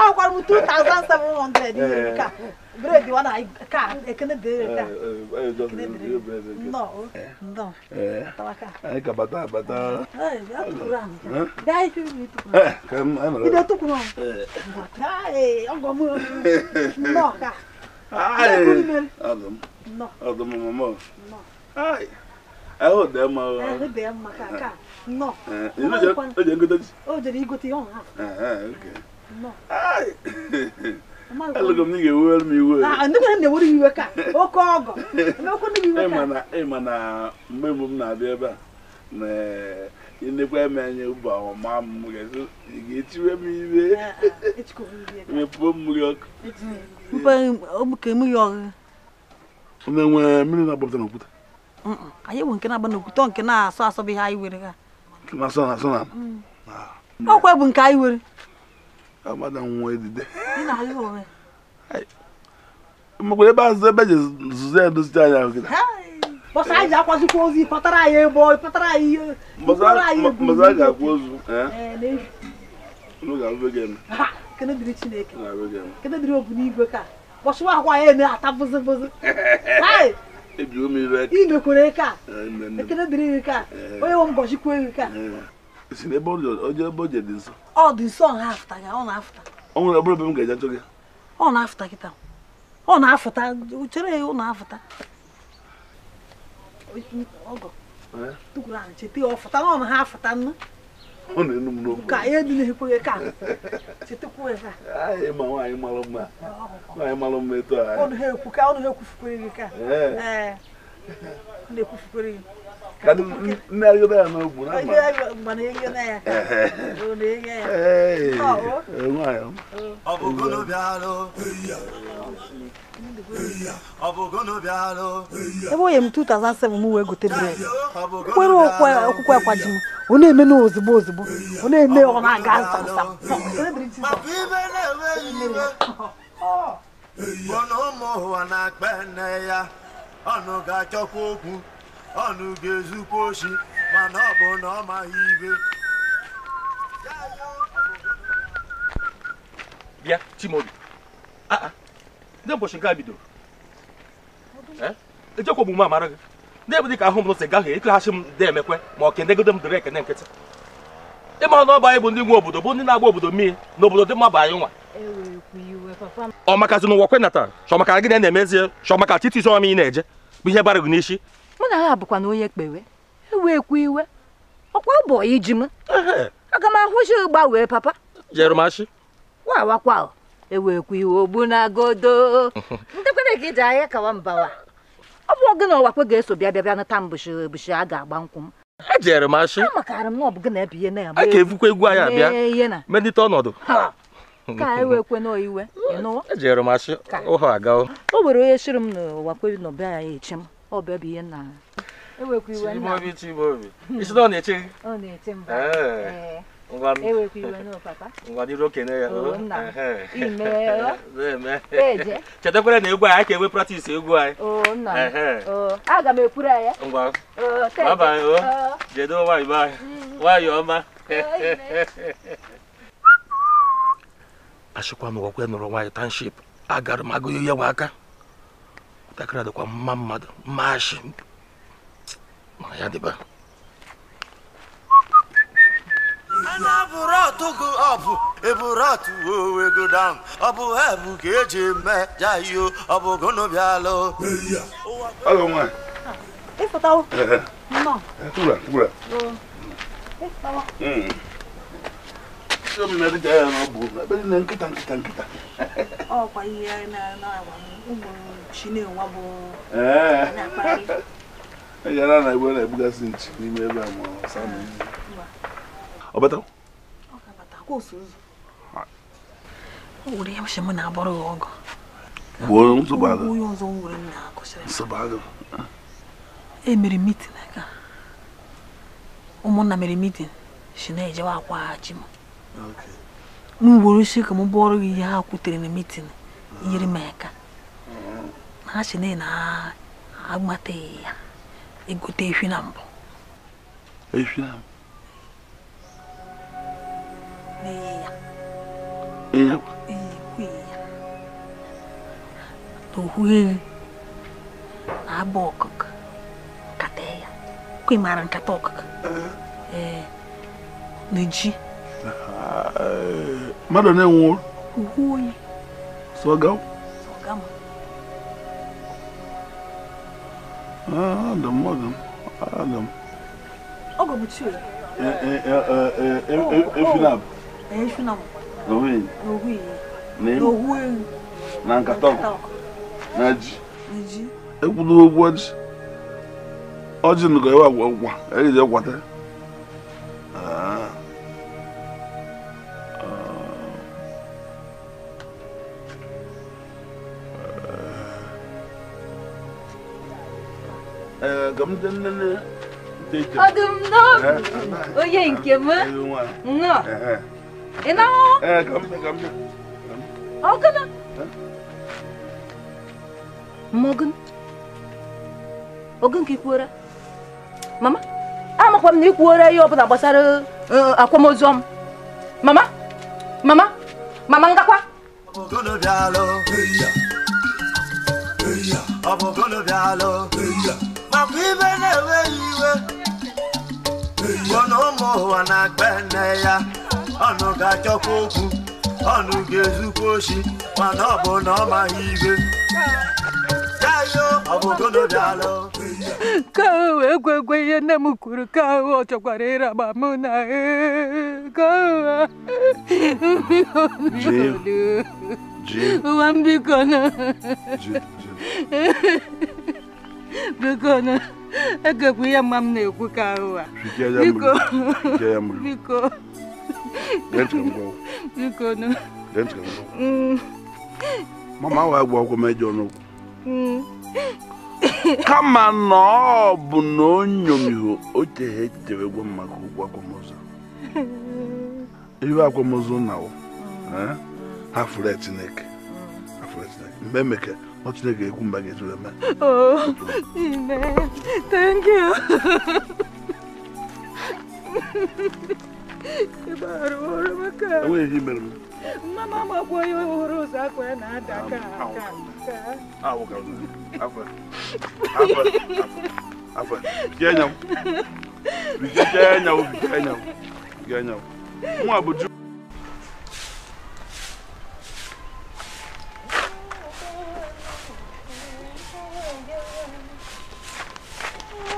ahụkwara m 2700 bredi ka ekene dere ka anyị ka bata bata ide tukwuru ọgọ m nnọọ ka ọdụm mama ahụ dị mma ahụ dị mma ka ka nnọọ o jere igote ya ọha alụgọ m n'ihi ewere m iwe ah, ah, ịma na mgbe mbụ m na-abịa ebe a na ịnekwa eme anya ụba ọma m ga-etiwe m iwe ah, mepụo mmiri ọkụ na-enwe mmiri na-agbapụta n'okwute anyị bụ nke na-agba n'okwute nke na-asọ asọ bụ ihe anyị were ha ọkwa mm. bụ nke anyị were Ah, madam, where did they? Mgbe ebe azụ ebe ji zụzo edozi anya gị. Bọsa anyị akwazikwa ozi pụtara anyị ebo pụtara anyị ihe. Bọsa a ga eh? ha ozu. Unu ga gị eme. Kene dịrị Chineke. Kene dịrị ka. Bọsa ụwa akwa ya na-ata bụzị bụzị. Ebiwo m ire. ka. Ekene dịrị ka. Eh. Onye nwe ka. si n'ebe ọ dị ebe o ji dị nso ọ dị nso ọ na-afụta gị ọ na-afụta ọ nwere ọbụrụ ebe m ga-eje achọ gị não na-afụta gị taa ọ tu afụta chere ya ọ na-afụta ọgọ tukwuru ahụ cheta ya é fụta na ọ na ha afụta nnu ọ na-enu m n'okwu ka ihe dị n'ekwe gị ka chetakwu ya ka anyị ma nwaanyị mara mma nwaanyị É. mma etu a ọnụ ha kadu mmeri obere na ogbu na ebe onye m 2007 m wee gote bred kwere er okwukwe akwaji m ọ na-eme na ozugbo ozugbo ọ na-eme ọ na-aga na-akpa nne ya ọnụ ga-achọkwa okwu ọnụ ga-ezukwa oshi mana ọ bụ na ọ maghị ibe bịa Chimaobi ah, ah. ndị ụbọchị nke a bidoro eh? ejekwa ogbugbu amara gị na-ebu dịka ahụ m si gaghị ekeghachi m ndị emekwe ma ọ kenegodo m dịrị ekene nkịtị ịma na ọba anyị bụ ndị nwe obodo bụ ndị na-agba obodo mmiri na obodo dị mma bụ anyị nwa ọ makazi n'ụwa kwenata chọmaka gị na-emezie chọmaka chiti ọma ị na-eje bụ ihe bara gị n'isi mụ na ha bụkwa na onye kpewe ewe ekwu iwe ọkwa ụbọ iji m aga m ahụzi gbanwee papa jerumashi wawakwa ewe ekwu iwe ogbu na godo ndekwana gị ji ahịa kawa mbawa ọ bụ gị na ọwakwe ga-eso bịa bịa bịa nata mbụshi ebushi a ga-agba nkwụ m ejere m ashị amakarị m na ọ bụ gị na ebe ihe na a ga-ebukwa egwu anyị abịa medite ọnọdụ ka e wee kwe n'iwe ejere m ashị ụhọ agawo o were onye shiri m n'ụwa kwe nọbe anyị echi m ọ bụ ebe ihe nna ewekwa iwe nna obi chibu obi isi na hmm. ọ na-eche gị ọ na-eche mba ewekwa iwe na papa ngwa dịrị okenye ya chetekwara na egwu anyị ka enwe pratis egwu anyị nna aga m ekwuru ya ngwa abalị jedo nwaanyị be anyị nwaanyị hmm. ọma achịkwa m gwakwa nụrụ nwaanyị tanship agara m agụghị ya nwa aka ntakịrị dịkwa mma mmadụ mmashi na ya dịba anabụrọtụgụ ọbụ eburọtụ owego dam ọ bụ ha bụ ka eji eme ọ bụ gonobialụ Alô, mãe. Ei, Fatal. ọkwa ihe na-agwa ụmụ Chinenwa bụ ejara e na igwe na-ebugasị nchi n'ime ebe a ma ọ bata. o were ya mụ na-abọrọ ya ọgụ gbuo onye ọzọ nwere m na-akụsịrị nsogbu e mere mitin aka ụmụnna mere mitin si na-ejewa akwaghachi m m ugboro ka m bụọrọ gị ihe ha kwutere na mitin yiri m aka ha si na na agbataghị ya egote efi na mbụ efi na mbụ n'okwughị ehi na abụ ọkụkọ nkata ya kwe mara nkata ọkụkọ ee na ji Ah, Mada ne wo? Uhoi. Sogam? Sogam. Ah, Adam, Adam, Adam. Ogo butu. Eh eh eh eh eh Efinab. Eh, oh, eh, eh Ne. Oh. Eh, Owi. Na nkatọ. Naji. Naji. Ekwudo ogwu ọjị. Ọjị nụgọ ewe agwa agwa. Eyi je gwata. Ah. ọdụm n'obi onye nke m nnọọ ị na-ahụ ọgụnụ mọgụn ogun ka ikwuora mama amakwa m na ikwuora ihe gbasara akwamozu m mama mama mama ngakwa makwa ibe na-enweghị iwe ụmụ ụwa na ya ọnụ ga okwu ọnụ ga-ezukwa oshi mana ọ bụ na ọ maghị ibe ka ahụ wee egwe ihe nne m kwuru ka ọ chọkwara ịraba mụ na e, ụwa mbiko biko nụ egekwa ihe mma m na-ekwu ka ụwa biko biko biko mm. mama wa gba ọgwụ mejọ n'okwu kama na ọ bụ na o nyomiho echiche tehe echitere gwa maka ụgwọ akwamozu ihe akwamozu na eh? ha fụrụ Chineke mgbe emeke 어찌되게 군방에 들어가면 어, 네, 땡큐 바로 오르마카 왜 이면 마마 마고요 오로사 고야 나다 가가 아우 가우 아파 아파 아파 비아냐고 비아냐고 비아냐고 비아냐고 뭐 아버지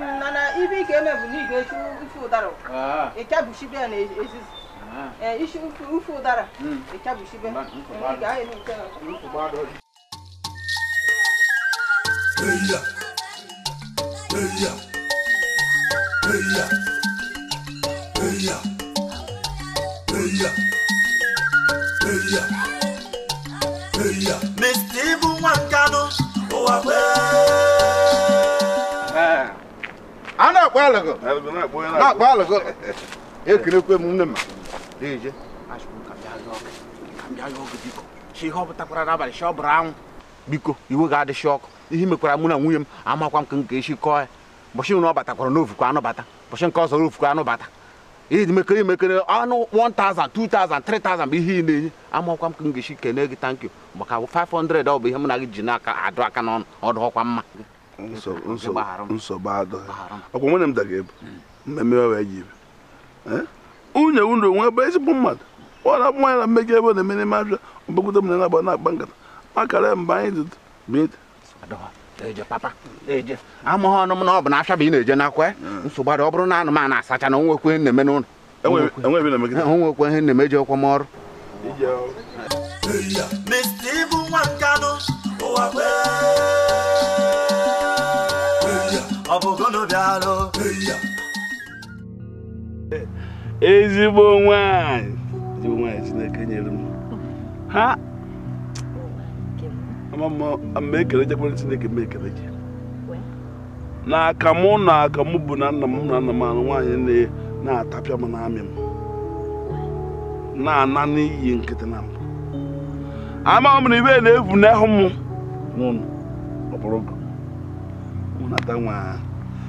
nana ibi ke me buni ke shu ufu daro e kya ah. bushi be na esis e ah. eh, ishu ufu ufu dara e hmm. kya bushi be ni ga e ni ke Eya Eya Eya Eya Eya Eya Eya Mr. Ibu Wankano Owa Bẹ́ẹ̀. na-akpọ alụgụ na-akpọ alụgụ ekerekwe m nne m biko iwe ga adịchi ọkụ ihe mekwara mụ na nwunye m amakwa m ka nke esi kọọ ya mbọchị na ọ batakwara n'ofukwa anụbata mbọchị nke ọzọ ofukwa anụbata imekere imekere anụ 1000 2000 3000 bụ ihe ị na-enye amakwa m ka m ga-esi kene gị tankyo maka 500 ọ bụ ihe mụ na gị ji na-aka adụ aka n'ọnụ ọdụ ọkwa mma nsogbu adọghị ọkwa nwunye m daga ebu hmm. mmemme wee ji ibe eh? nwunye nwunye onwe ebe ezigbo mmadụ ọ na-abụ nwaanyị na mmega ebe na-eme n'ime abịa ọbagodo m na na-agba na-akpa nkata makara mgbe anyị dị amụghị ọnụ m na ọ bụ na afịa bụ ị na-eje nakwa eh? hmm. nsogbu adọ ọ bụrụ na anụmanụ asacha na onwekwe ihe nneme n'ụlọ. n'ụlọ onwekwe ihe na-eme ji ọkwa m ọrụ Mr. Ibu Nwankanu, ụwa kwee ọbụgonobialụ eh, ezigbo nwanyị nwanyị Chineke nyere m ha mgbe ekele jekwere Chineke m ekele gị na akamụ na akamụ bụ na nna m na nna m anụ nwaanyị na-atapịa m n'amị m na-ana n'iyi nkịtị na mbụ amaghị m na ibe na ebu n'ahụ m n'ụlọ ọ bụrụ gụ nata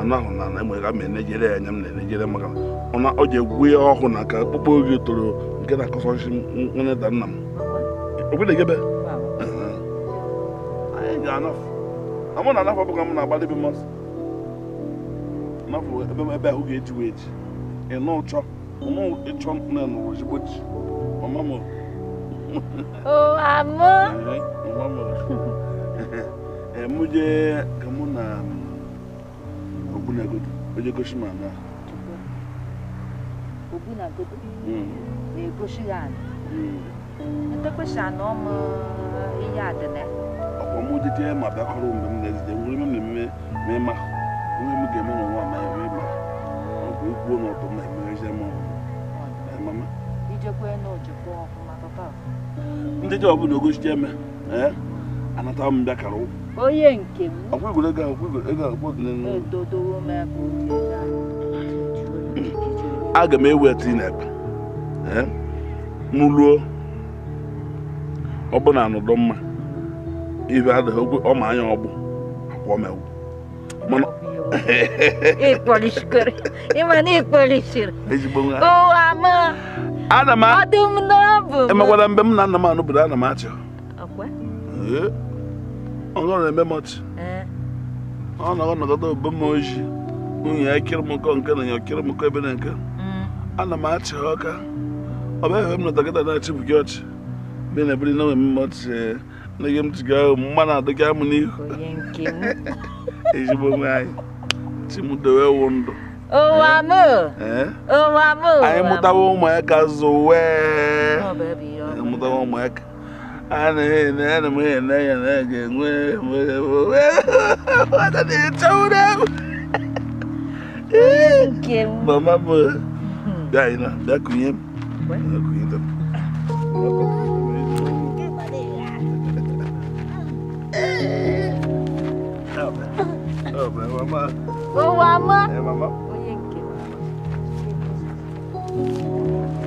anahụ na na egbe ga ma enejere ya anya m na-enejere maka na ọ ji egwu ya ọhụụ na ka akpụkpọ oge toro nke na-akọsọsi nne da nna m ogwedegebe anyị ga-anafụ na mụ na anafụ ọbụka m na-agbalị ebe mmasị anafụ ebe m ebe ahụ ga-eji wee ji ịnụ ụchọ ụmụ ịchọ nne nụrụ ozigbo ji mama m mama m mụ jee ka mụ na Obunagodo onye gosi m ana Obunagodo na ya ọmụ ihe ma bịakọrọ mgbe m na-ezide nwere m mmemme ma ịma onye m ga-eme na nwa ma ya wee ma ikwuo na ọtọ m ndị ọbụla ogosi eme anata m bịakara ụkwụ onye nke m aga m eweta inep m ruo na anọdụ mma ibe adịghị okwu ọma anya ọgbụ akwa ọmewu ana m emegwara mgbe m na nna m anụbụrụ ana m achọ ọgọ na-eme mọchị ọ na ọnọkọta obomoji nwunye ya kirịmụkọ nke na ya kirịmụkọ ebe na nke ana m achị ha ọka ọ bụ efe m nọtakịta na-achị bụ ọchị mgbe na ebiri na nwere mọchị na gị m tiga ahụ mma na-adị amụ n'ihu ezigbo nwe anyị chimudowe wụ ndụ anyị mụtawa ụmụaka zuwee mụtawa ụmụaka Anh à, Đây na-ene ana m ene ya na a ga-enwe nwata na-echawụrụ m mama bụ bịa na bịa kụnye m kụnye m Oh, mama. Hey, mama. Oh, yeah, mama.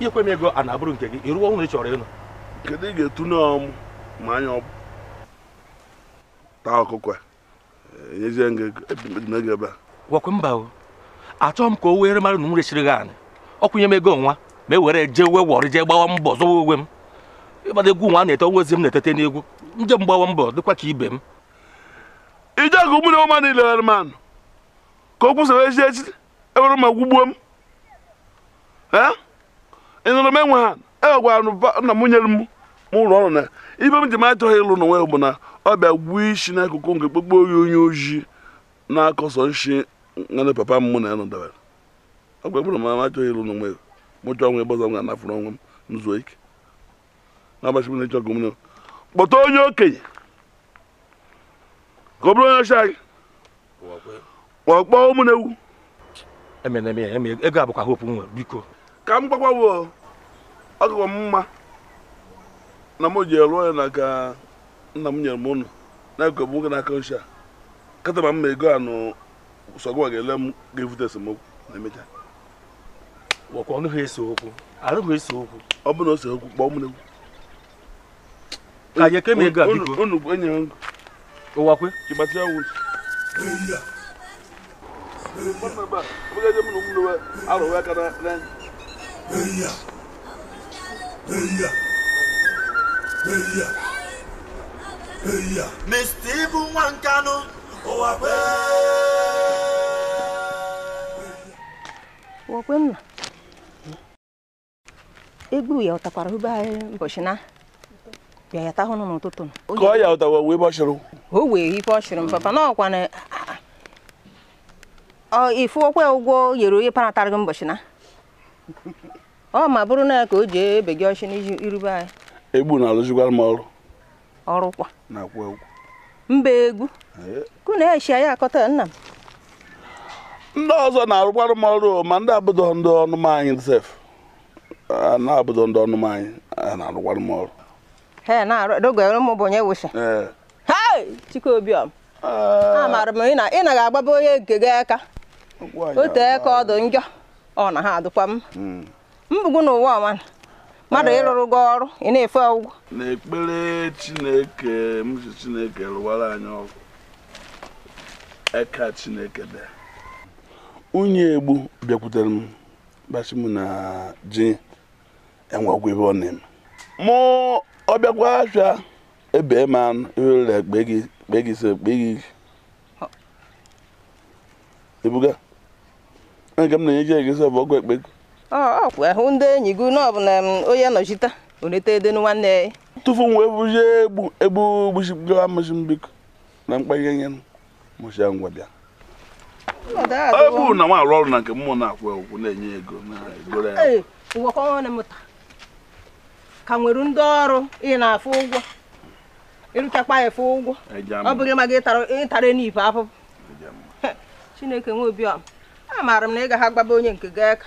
ikwe m ego a na-abụrụ nke gị ịrụwa ụlọ ị chọrọ ịnụ kedu ị ga-etune ọmụ ma anya taa ọkụkọ enyezie gị ebe a gwakwe mba o achọghị m ka o were mara na m resiri gị anị ọkwụnye m ego nwa ma e were jee we wọrị jee gbawa mbọ zọwa uwe m ịgbada egwu nwa na-ete onwe m na-etete n'egwu nje m gbawa mbọ dịkwa ka ibe m ije agụ mmiri ọma niile were m anụ ka o kwụsara ezi echi ewere m agwụgbuo m ịnụrụ m enwe ha egwara nna m nyere m ụlọ ọrụ na ibe m ji m achọghị ịlụ n'onwe ya bụ na ọ bịa gbuo isi n'akụkụ nke kpokpo oyi onye ojii na-akọsọ nshi papa m mụ na ya ọ m achọghị ịlụ n'onwe ya ebe ọzọ m ga-anafụrụ onwe m zuo ike na-agbachi m na kpọta onye okenye ka ọ bụrụ onye ọcha anyị ka m gbakwawo ọgụgọ m mma na m ji rụọ ya na ka nna m nyere m ụnụ na-ekwe m nwoke na nchi a kata mma ego anụ sọgwa ga-ele m ga-evute esemokwu na emecha gwakwa ọnụghị ese okwu arụghị ese okwu ọ bụrụ na o se okwu kpọọ m ka anyị ekeme ego a biko unu enye m ụwakwe ịgbatịa wụ Mwen mwen ba, mwen gen jen mwen mwen we, alo we kana nen. Beya. Mr. Egbu ya ụtakwara hụba mbọchị na bịa ya tahụ n'ụtụtụ ka ya ụtawa wee bọchịrụ o wee ife m papa na ọkwa na ah, ah. oh, ifu ụgwọ yere onye paratarị gị mbọchị na ọ ma bụrụ na ka o ji ebe gị ọchị irube anyị egbu na-alụzikwara m ọrụ ọrụkwa na mba egwu kụ na-echi anyị akọta nna m ndị ọzọ na-arụkwara m ọrụ ma ndị abụdọ ndị ọnụm anyị sef na abụdọ ndị ọnụm anyị na-arụkwara m ọrụ he na-adọgara m bụ onye wụsa hei chikobiọm amaara m ị na agbaba onye nke gị aka o tee ka ọdụ njọ ọ na ha adụkwa m hmm. mkpugbu n'ụwa ọma mmadụ eh. ịrụrụ gị ọrụ ị na-efe ụgwọ n'ekpere chineke m ji chineke rụwara anyị ọgwụ eka chineke dị unyi egbu bịakwutere m gbasi m na ji enwe ọgwụ ebe ọ na-eme mụ ọbịakwa afịa ebe ma anụ ewere ekpe gị kpe gị so kpe gị ebuga nke m na-enye gị ego so bụ ọgwụ ekpe gị ọkwa ahụ eh, ndị enyi gị na ọbụla onye nọchite onete ede nwanne ya tụfu nwa ebuzie egbu egbu gbusiga mụsi mbiko na mkpanye nye mụsi ngwa bịa ebu na nwa arụ ọrụ na nke mmụọ na-akwụ ụgwọ na-enye ego na-egoro ya ngwakọ ọnụ mụta ka nwere ndị ọrụ ị na-afụ ụgwọ ịrụchakwa ya fụ ụgwọ ọ bụghị maka ịtara n'ife afọ chineke nwe obi ọma maara m na ị ga ha gbaba onye nke gị aka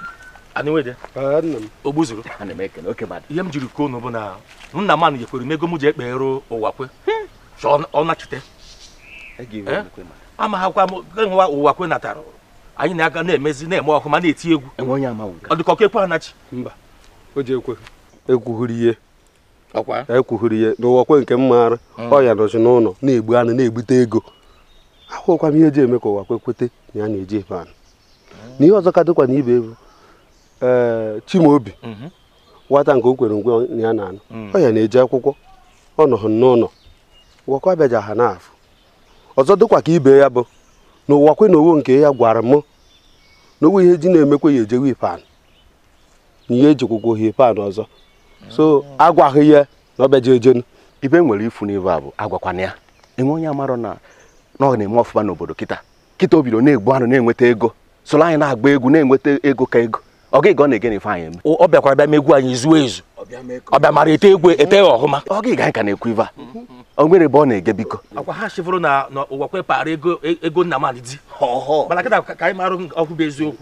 ogbuzuru ihe m jiri kwuo unu bụ na nna m nyekwere m ego m ji ekpere ụwa kwe ọ nachite e eh? amaghakwa m nwa ụwa kwe natara anyị na-aga na-emezi na-eme ọkụ na-eti egwu e ọ dịka ekwe anachi mba o ji ekwe ekwughiri ihe ekwughiri ihe n'ụwa kwe nke m maara hmm. ọya nọzi n'ụlọ na-egbu anụ na-egbute ego ahụkwa m ihe eji eme ka ụwa kwe kwete na ya na-eji ebe anụ hmm. na ihe ọzọ ka dịkwa na ibe ebu Eh, Chimaobi nwata mhm. nke o kwere ngwe ya na anụ mm. ọ ya na-eji akwụkwọ ọ nọ n'ụlọ gwakwa bịaja ha n'afọ ọzọ dịkwa ka ibe ya bụ na ụwa kwe na owo nke ya gwara mụ na owo ihe ji na-emekwa ya ejewe ipan na ihe ejikwụkwọ ha ipan ọzọ so mm. agwaghị ya na ọ bịaja ejenu ibe nwere ifu n'ibe a bụ agwakwana ya enwe onye amarọ na ọ na-eme ọfụma n'obodo kịta kịta o bido na-egbu anụ na-enweta ego soro anyị na-agba egwu na-enweta ego ka ego ọ gị ga ọ na-ege n'ife anyị eme ọ bịakwara bịa megwu anyị zuo ezu ọ bịa mara ete egwe ete ya ọhụma ọ gị ga anyị ka na-ekwu ife a ọ na-ege biko akwa ha chifụrụ na ụwa kwepara ego nna m di mana kịta ka anyị marụ ọkụ bụ eziokwu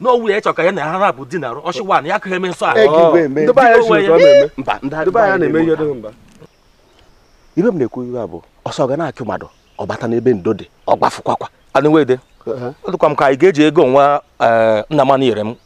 n'owu ya chọrọ ya na ha na-abụ di na ya eme nsọ ibe bụ ọsọ ga na mmadụ ọ bata n'ebe ndo dị ọ gbafụkwakwa anụ wede uh-huh. ọdụkwa m ka anyị ga-eji ego nwa eh, nna m nyere m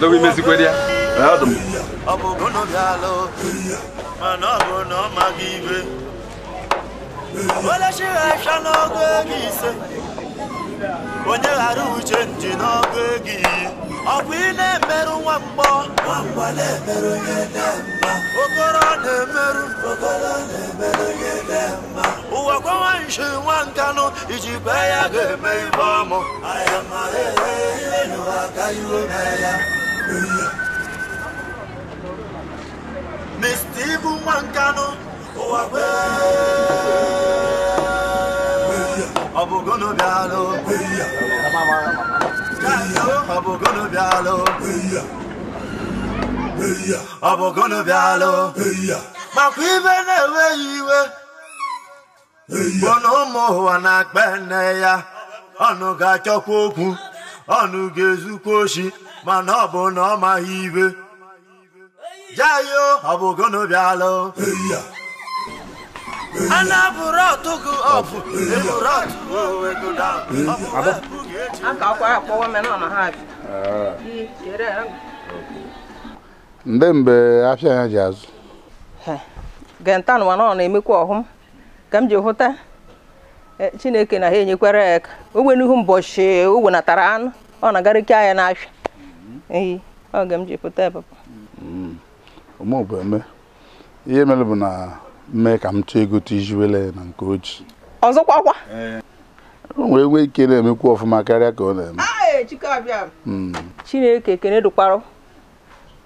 Dọwa imezikwere ya eme m mana ọ bụ na ọ maghị ibe. Ole ha ịcha n'ọgụ ego ise onye ghara uche nji n'ọgụ gị ọ bụ ị na-emerụ nwa mgbọ okoro na-emerụ ụwa gwawa nshi nwa nkanụ iji bee ya ga-eme ibe ọmụ e, e, e, Mr. Ibu nwa nkanụ ụwa Ọ bụ ọbụgụnụ bịalụ ọbụgụnụ bịalụ ọbụgụnụ bịalụ makwa ibe na eweghị iwe bụ ụmụ ụwa na-akpa nne ya ọnụ ga-achọkwa okwu ọnụ ga-ezukwa oshi mana ọ bụ na ọ maghị ibe jayo ọbụgụnụ bịalụ ndị mbe afịa ya ji azụ gentan nọ na-emekwa ọhụm ka m ji hụta e, chineke na ha enyekwara ya aka ogbe n'ihu mbọchị o wenatara anụ ọ na-agarịke anya n'afịa mm-hmm. ehi oge m ji hụta papa mm-hmm. ihe mere bụ na mee ka m chọọ egote iji wele na nke oji ọzọkwa kwa o nwere nwe ike na-emekwa ọfụma karịa ka ọ na-eme hmm. chineke kene dụkwarụ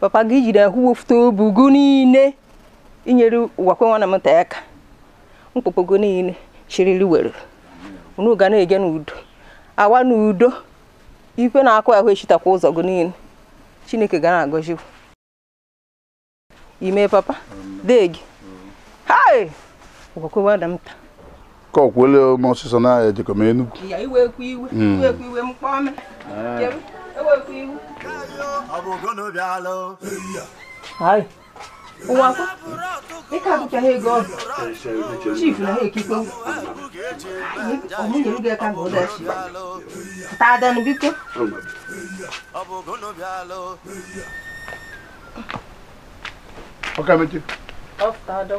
papa gị jiri ahụ wefute obugo niile inyere ụwakwe nwana m nta aka mkpụkpọgo niile chiriri were unu ga na-eje n'udo awa n'udo ikwe na-akụ ahụ echitakwa ụzọ gị niile chineke ga na-agọzikwu ime papa dee gị Hai! Ugoku wa damta. Ko kwele mo sisan na e jiko me enugu. Iya iwe ku iwe, hmm. iwe ku iwe mpo me. Eh. Ah. Iwe ku iwe. Abogo no bialo. Hai. Uwa ko. E ka bu ka he go. Chief na he kiko. Omo ni ruga ka go da shi. Ta da ni biko. Abogo no bialo. Okay, Matthew. Off, Tado.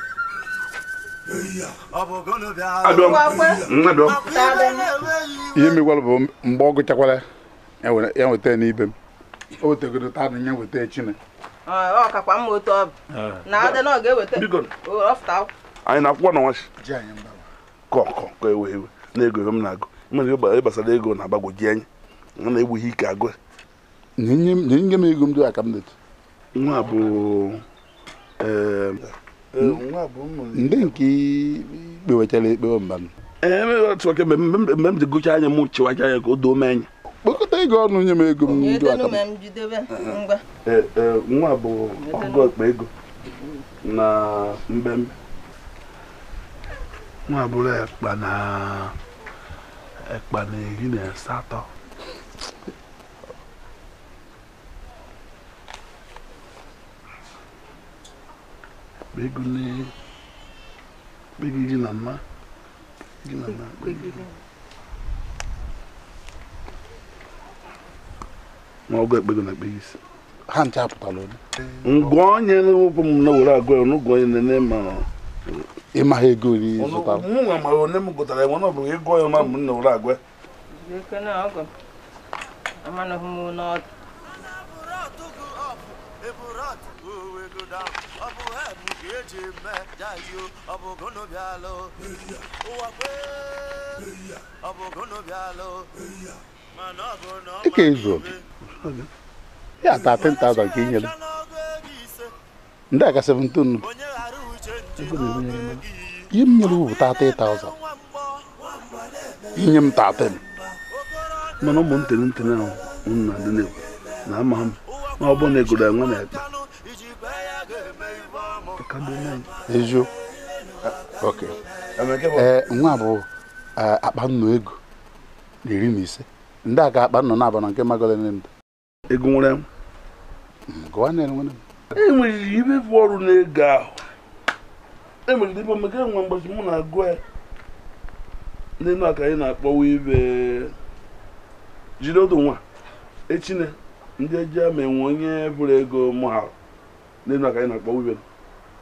Mm, ihe mekwara bụ mgbe ọ gụchakwara ya nweta ya n'ibe m o wetegoro taa na ya nweta echi ah. na anyị na-akwụkwọ na nwachi kọkọ ka ewe ewe na-ego ego m na-agụ mere ihe gbasara ego na-agbagwoji anya a na-egbughị ike agụ nye m ego m dị aka m detu nwa bụ ee eh, Hmm. ndị nke ikpe wetara ekpe mba m mgbe m ji gụcha anya m chịwacha anya ka o doo m anya kpokọta ego ọnụ nye m ego m e, nwa bụ ọgụ ọkpa ego na mbembe nwa bụrụ ekpa na ekpa na iri na asatọ begune begi gị na mma gị na mma na ọgụ na ha eh, ngwa onye n'ụkwụ m na were agụ ọnụ ụgwọ onye nene ma ịmaghị ego ori zụtara m nwa mara onye m gụtara enwe ọ bụrụ ego ọma m na agwa chime jayu abogono byalo uwakwe abogono byalo manogono que que é isso já tá tentado aqui ele ndaka 17 yim nyelu ta 3000 inyem ta 10 mana mo ntene ntene na unna dene na amam na obo na egoda na eziokwu ee eh, nwa bụ eh, akpa nnụ ego na iri na ise ndị a ka akpa nnụ na-aba na nke magole ndụ ego nwere m hmm, gụwa na enwere m enweriri ibe bụ ọrụ na-ego ahụ emeriri ibe omega enwe mgbochi mụ na-agụ ya n'elu aka anyị na-akpọwa ibe eh, jide odo nwa echine ndị eji ama enwe onye bụrụ ego mụ ha n'elu aka anyị na-akpọwa ibe m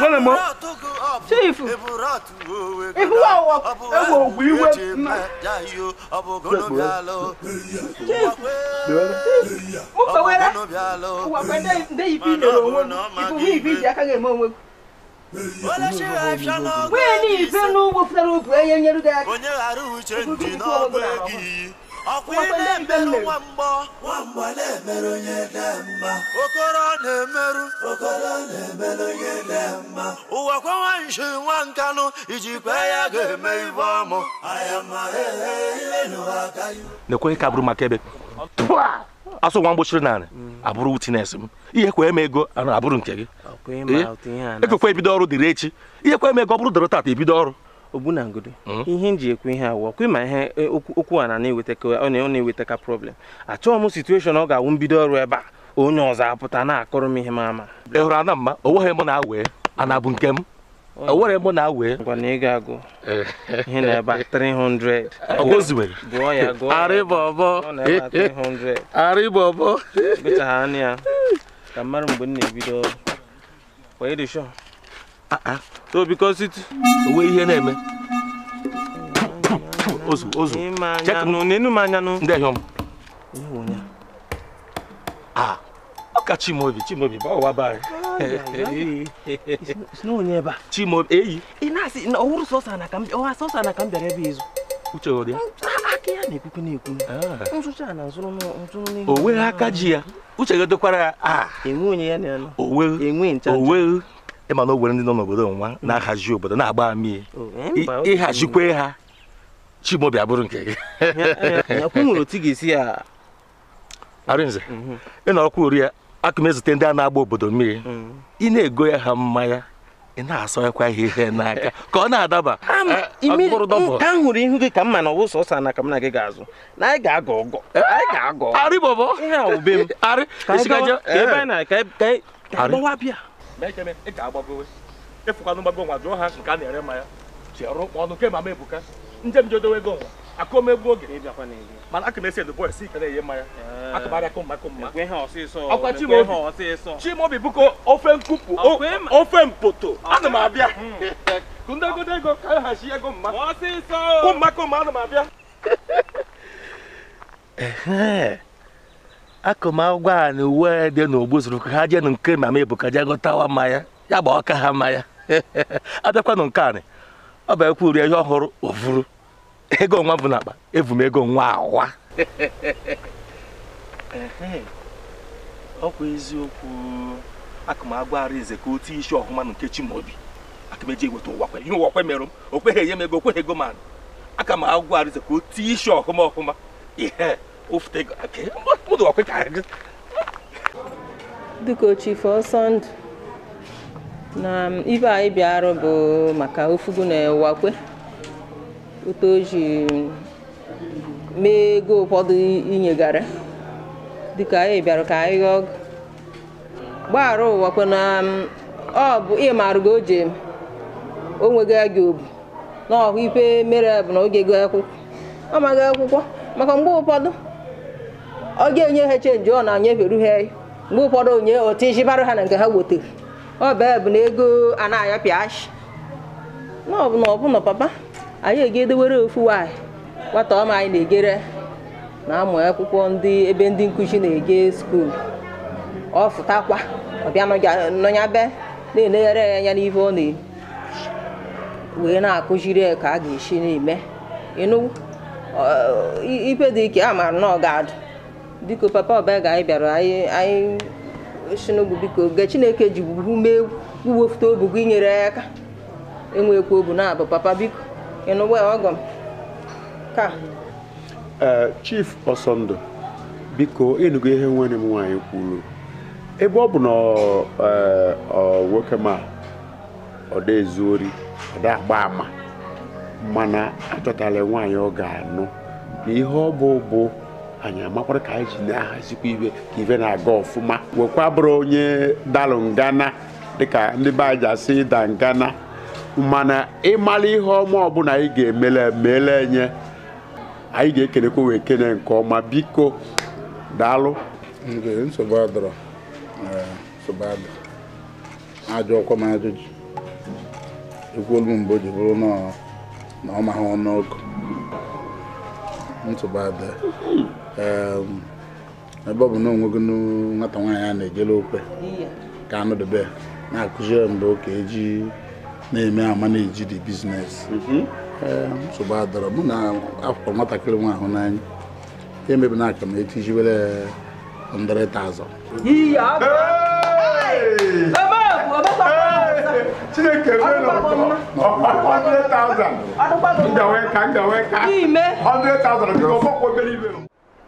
wọ́n mọ̀ chief ìfúwà wọ ewu ògbù iwe mma chief mú kpewere ụwa kwe nde ibi lere onwe m ifuwe ibi ji aka ga-eme onwe nwunye na ibe n'ugbo pụtara obu enye nyere gị aka ọkwa na-emerụ nwamgbọ nwamgbọ na-emerụ onye dị mma okoro na-emerụ okoro na-emerụ onye dị mma ụwa kwenwe nshi nwa nkanụ iji kwe ya ga-eme ibe ọmụ e, e, e, na-ekweghị ka bụrụ maka ebe asụ nwa mgbochiri narị abụrụ witines m ihe kwa eme ego abụrụ nke gị ekwekwa ebido ọrụ dịrị echi ihe kwa eme ego ọ bụrụ dịrị tata ebido ọrụ ogbu na ogbunangodo hmm? ihe nji ji ekwu ihe awụ ọkụ ma ihe e, okwu a na na-eweta ka problem achọghị m situeshọn ọ ga-awụ mbido ọrụ ebe a onye ọzọ apụta na-akọrọ m ihe m ama ị hụrụ ana mma onweghị m na-awee ana bụ nke m onwere m na-awee ngwa na ị agụ ihe na-ebe 300 gụọ ya gụọ arịbọbọ arịbọbọ gụchaghara ya ka mmadụ mgbe m na-ebido ọrụ kwa ịdị shọọ Ah, ah. so because it onwe ihe na-eme ozu ozu ah, ọka Chimobi Chimobi bawa bari n'onye ebe a Chimobi eyi ị na-asị na ọhụrụ sọsa na ka m ọha sọsa na ka m bịara ebe izu uche ọ dị ya aka ya na-ekwukwu na-ekwu nsụcha na nsụrụ nsụrụ n'ihu o nweghị aka ji ya uche gị dokwara ya a enwe onye ya na ya nọ o nweghị enwe ncha ịma na o ndị nọ n'obodo nwa mm. na-ahazi obodo na-agba amie ịhazikwe ha chimobi abụrụ nke gị arịnze ị mhm. nọrọkwa ori ya aka m ezute ndị a na-agba obodo mmiri mm. ị na-ego ya ha mmanya ị na-asọnyekwa ha ihe n'aka ka ọ na-adaba ahụrụ eh, ihu gị ka m ma na ọwụ sọsọ na ka m na gị ga-azụ na anyị ga-agọ ọgọ eh, anyị ga-agọ arị bọbọ ihe a wube m arị ka ị anyị na-aga gbawa e- e- bịa ma ekeme ị ga-agbagowe ịfụkwanụ gbago nwa jụọ ha nke a na-ere mmanya ji ọrụ ọnụ ke mama ebuka nje m jodowe ego nwa akụ m egbu oge mana aka m esi edo bọyị si ike na-enye mmanya akụbarịakụ ah. mma akụ mma ọkwa chimobi bụko ofe nkụpụ ofe mpoto hmm. ana m abịa ndị egodo ego ka anyị hachi ego mma kụmma kụmma ana m abịa akụmagwọ a na uwe dị n'ogbu zụrụ ka ha jee nụ nke mama Ebuka jee gụtawa mmanya ya gba ọka ha mmanya abịakwanụ nke anị ọ bụ ekwu uri ihe ọhụrụ ofuru ego nwa bụ n'akpa evu m ego nwa awa ọkwa eziokwu akụmagwọ Arinze ka otu isi ọhụma na nke Chimaobi akameji eweta ụwa kwe ihe ụwa kwe merụ m o kweghị enye m ego okweghị ego ma aka m agwọ Arinze ka otu isi ọhụma ọhụma ihe oftego mmadụ ọkwa ka gị biko chief ọsọ ndụ na ibe anyị bịarụ bụ maka ofugu na-ewakwe otu o ji mee ego ụfọdụ inyegara dịka anyị bịara ka anyị ghọọ gbaghara ụwakwe na ọ bụ ịmarụgo o ji o nweghị gị obu na ọhụ ife mere bụ na oge ego akwụkwọ ọ maghị akwụkwọ maka mgbe ụfọdụ ọ ga-enye ha chenji ọ na-anyeferu ha mgbe ụfọdụ onye otu iji barụ ha na nke ha wetara ọ bee bụ na ego a na-aya ọbụna ọbụna papa anyị egedewere ofu nwaanyị nwata ọma anyị na-egere na-amụ akwụkwọ ndị ebe ndị nkụzi na-ege skuul ọ fụtakwa ọbịa nọnya be na-elegharị ya anya n'ife ọ na-eri wee na-akụziri ka a ga-esi na-eme ịnụ ife dị ike a maara na ọ ga-adụ biko papa ọbaa anyị bịara anyị shinugbu biko ge chineke ji mee uwefuta obu gị nyere ya aka enwekwa obu na abụ papa biko ịnụwa ọgọ ka chief ọsọndụ biko ịnụgo ihe nwere m nwaanyị kwuru ebe ọ bụ na nwoke ma ọ dị agba ama mana achọtala nwaanyị ọ ga-anụ na ihe ọ bụ bụ anyị amakwara ka anyị ji na-ahazikwa ibe ka ife na-aga ọfụma wekwa bụrụ onye dalụ ngana dịka ndị be anyị ji asị ịda ngana mana ịmara ihe ọma ọbụla anyị ga-emele mele enye anyị ga-ekenekwa wee kene nke ọma biko daalụ nsogbu adọrọ eh, nsogbu ọkwa m ajụjụ ekwuolu mgbe o ji bụrụ na ọ maghị ọnụ ebe ọ bụ na gị nwata nwaanyị a na-ejele okwe ka anọdobe na-akụziri mgbe ka eji na-eme ama na-eji di biznes mhm. nsogbu adọrọ mụ na akwụkwọ nwatakịrị nwa ahụ n'anya emebi na aka m ka ka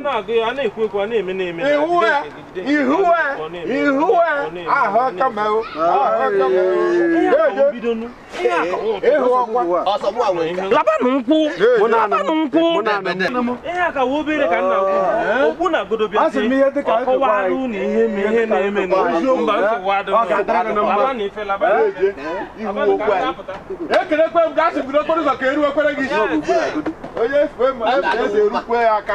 ihuwe ihuwe ọkwa ihe ka na godobia ọkọwarụ na ihe ma ihe na-eme na ekelekwe m gasị bido okporo ụzọ ka eruwekwere gị onye fue ma eze erukwe aka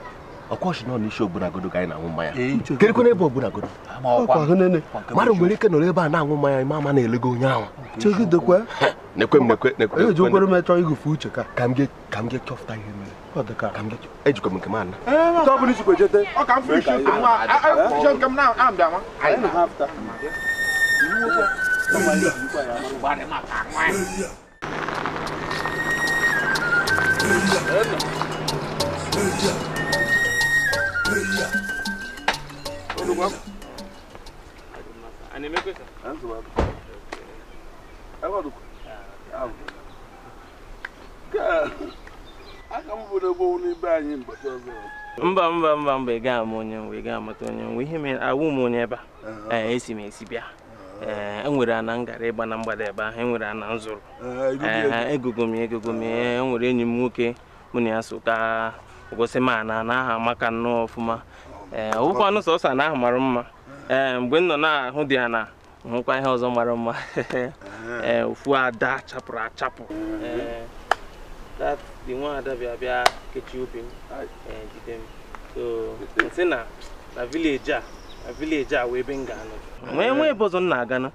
ọkwaọchị nọ n'isi ogbunagoo ka anyị na-aṅụ mmanya kedịkwa n'ebe ogbunagoo mmadụ nwere ike nọrọ ebe a na-aṅụ mmanya ma ama na-elego onye ahụ eji ụkwere m chọọ ịgụfe uche ka ka m ga-echọpụta ihe mere ejikwa m nke m ana eh, Yeah. Zuba? A Mba mba mba mba ị gaa m onye nwe ị gaa mata onye nwe ihe mere awụ m onye ebe a eh, esi m esi bịa e eh, nwere ana ngara ịgba na mgbada ebe ahụ enwere ana nzụrụ egogo m egogo m enyi m nwoke mụ na ya so ka na aha amaka nnọọ ọfụma ee eh, ọbụkwanụ sọsọ na ahụ mara mma ee eh, mgbe m na-ahụ dị ya na hụkwa ihe ọzọ mara mma ee eh, ofu ada chapụrụ achapụ dị nwa ada bịa bịa kechie obi m jide m so nsị na na vileji a vileji a wee ebe m ga-anọ nwee nwe ebe ọzọ m na-aga na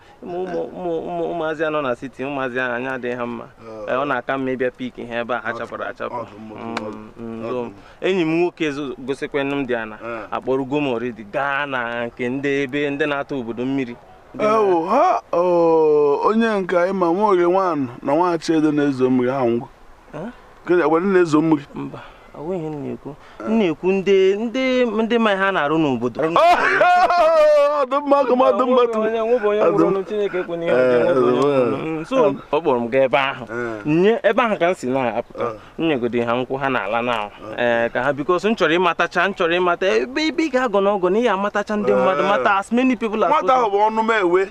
ụmụazị anọ na siti ụmụazị ahụ anya adịghị ha mma ọ na-aka mma ịbịa pik ha ebe a ha chapụrụ achapụ mm, mm, enyi m nwoke gosikwenụ m dị ana akpọrọgo m oridi gaa na nke ndị ebe ndị na-ata obodo mmiri ewu ha onye nke ịma nwa oge nwaanyị na nwa achedo na-ezo mmiri ha ngwụ na-ezo mmiri mba onweghị na-ekwu na-ekwu ndị ndị ndị ma ha na-arụ n'obodo ọ kpọrọ m gaa ebe ahụ eh. nye ebe ahụ ka m si na-apụta eh. nyegodo ha nkwụ ha na-ala na eh. ka ha bikos m chọrọ ịmatacha m chọrọ ịmata ebe ibe ị ga-agọ n'ọgọ na ị ya amatacha ndị mmadụ mata as many people as ahụ bụ ọnụ mewe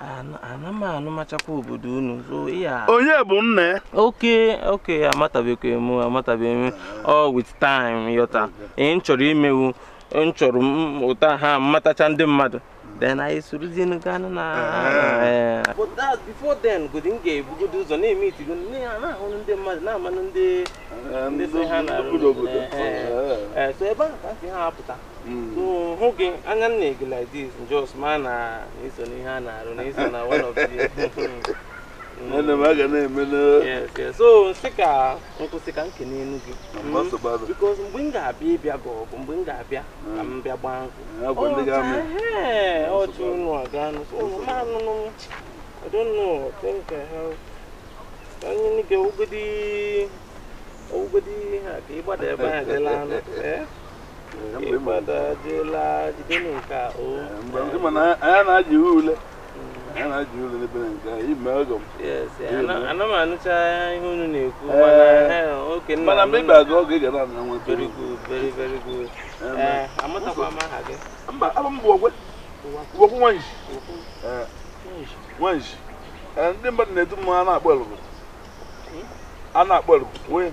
Anam machakwa obodo unu so ya onye bụ nne oke oke amatabekwe m amatabeghị m 'All with time yọta ị chọrọ imewu m chọrọ ụta ha matacha ndị mmadụ then anyị sorozie gaa na but that before then godi m ga-ebugodo ụzọ na-eme itigo na-ahụrụ ndị mmadụ na-amanụ ndị ndị so ha na um, so ebe ahụ ka si ha apụta so hụ gị anya m like this dis ma na uh, iso n'ihe a na-arụ na na one of the hmm. ana m aga na-eme so nsị ka nkwụsị ka nke n'elu gị bikos mgbe m ga-abịa ịbịa gị ọgụ mgbe m ga-abịa ka m bịa gbaa nkwụ ọchụ unu aganụ manụnụ I don't know. I think I have. Anyị ni ga ogodi ogodi ha ka ịgbada ebe a jela anụ. Eh? Ịgbada jela jide n'nke a o. Oh. Mgbe ndị mana anya na-aji ule. ana m na-ekwu eh. mana eh, ga na eh, m bụ ndị mmadụ na-edu mmanwụ a na-akpọ elugu hmm?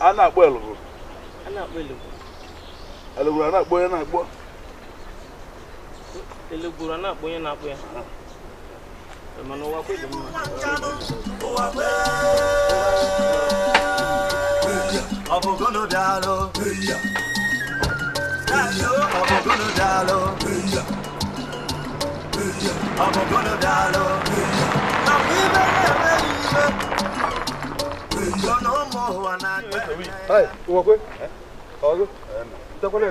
a na-akpọ elugu nwee a na-akpọ a na-akpọ onye Telegbura na akpụ onye na-akpụ ya mana ụwa kwe dị mma ọ bụ gụnụ daalụ ọ bụ gụnụ daalụ ọ bụ gụnụ daalụ na mgbe ibe na-emeghị ibe ụmụ ụwa na-akpụ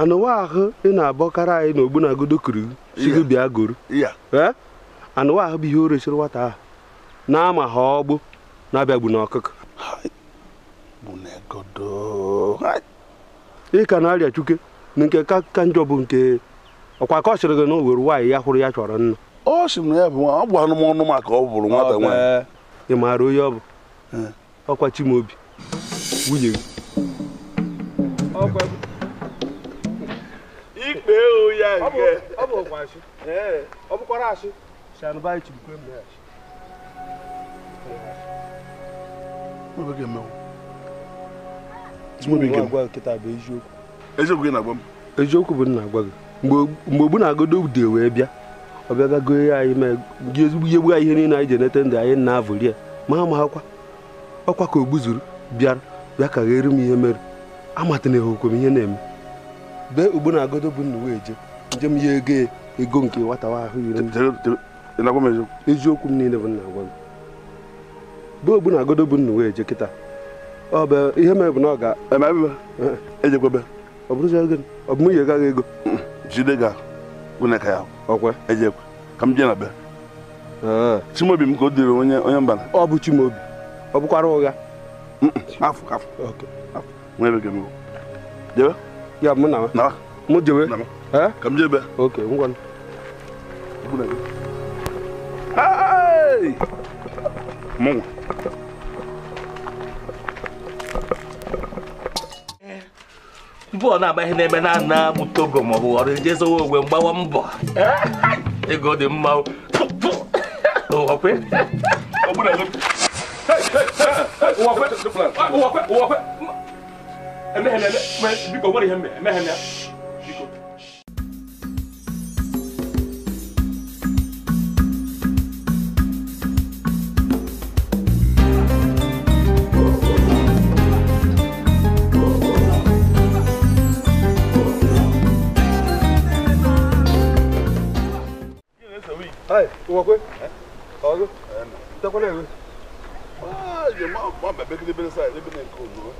anụwa ahụ ị na-abọkarị anyị na ogbunagodo kuru sigo bịa goro anụwa ahụ bụ ihe o resiri nwata ahụ na-ama ha ọgbụ na-abịagbu n'ọkụkọ ị ka na-arịa chuke na nke ka njọ bụ nke ọkwa ka ọ sịrị gị na o were nwaanyị ya hụrụ ya chọrọ nna ọ sị na ya bụ nwa ọ bụ anụmanụ maka ọ bụrụ nwata nwaanyị ị maara onye ọ bụ ọkwa chimobi nwunye gị ikpe ya nke ọ bụ ụkwa ọ bụkwara asị bụ nna agwa gị mgbe ogbu na-agodo ude wee bịa ọ bịa bịa ya anyị ma gị ezigbo ihe gbugha ihe niile anyị ji na-avụri ya ma ma akwa ọkwa ka o zuru bịara bịa ka ghere m ihe mere amatana na m ihe na-eme bee ugbo na agodo bụ nnuwe eje njem ya ego ego nke nwata ahụ iri eziokwu m niile bụ nna gwa m ogbu na agodo bụ nnuwe eje kịta ọ bụ ihe mere bụ na ọ ga ejekwebe ọ bụ m yi gaghị ego jide ga ka ya ọkwe ejekwe ka m na be chimobi m ka o dịrị onye onye mbana ọ bụ chimobi ọ bụkwara ụgha Ya mun nào, Na. Mu jebe. Na. cầm Kam jebe. Okay, ngwan. Buna. Hey! nãy bên bên này Mu. mbọ mua agba ihe na-eme na ana mụta ogo maọbụ ọrụ eji ezowe ogwe mgbawa mbọ ego dị mma ụwakwe ụwakwe ụwakwe ụwakwe eme Ah, irmão, bom, bebê que ele bebe sai, ele bebe nem com, não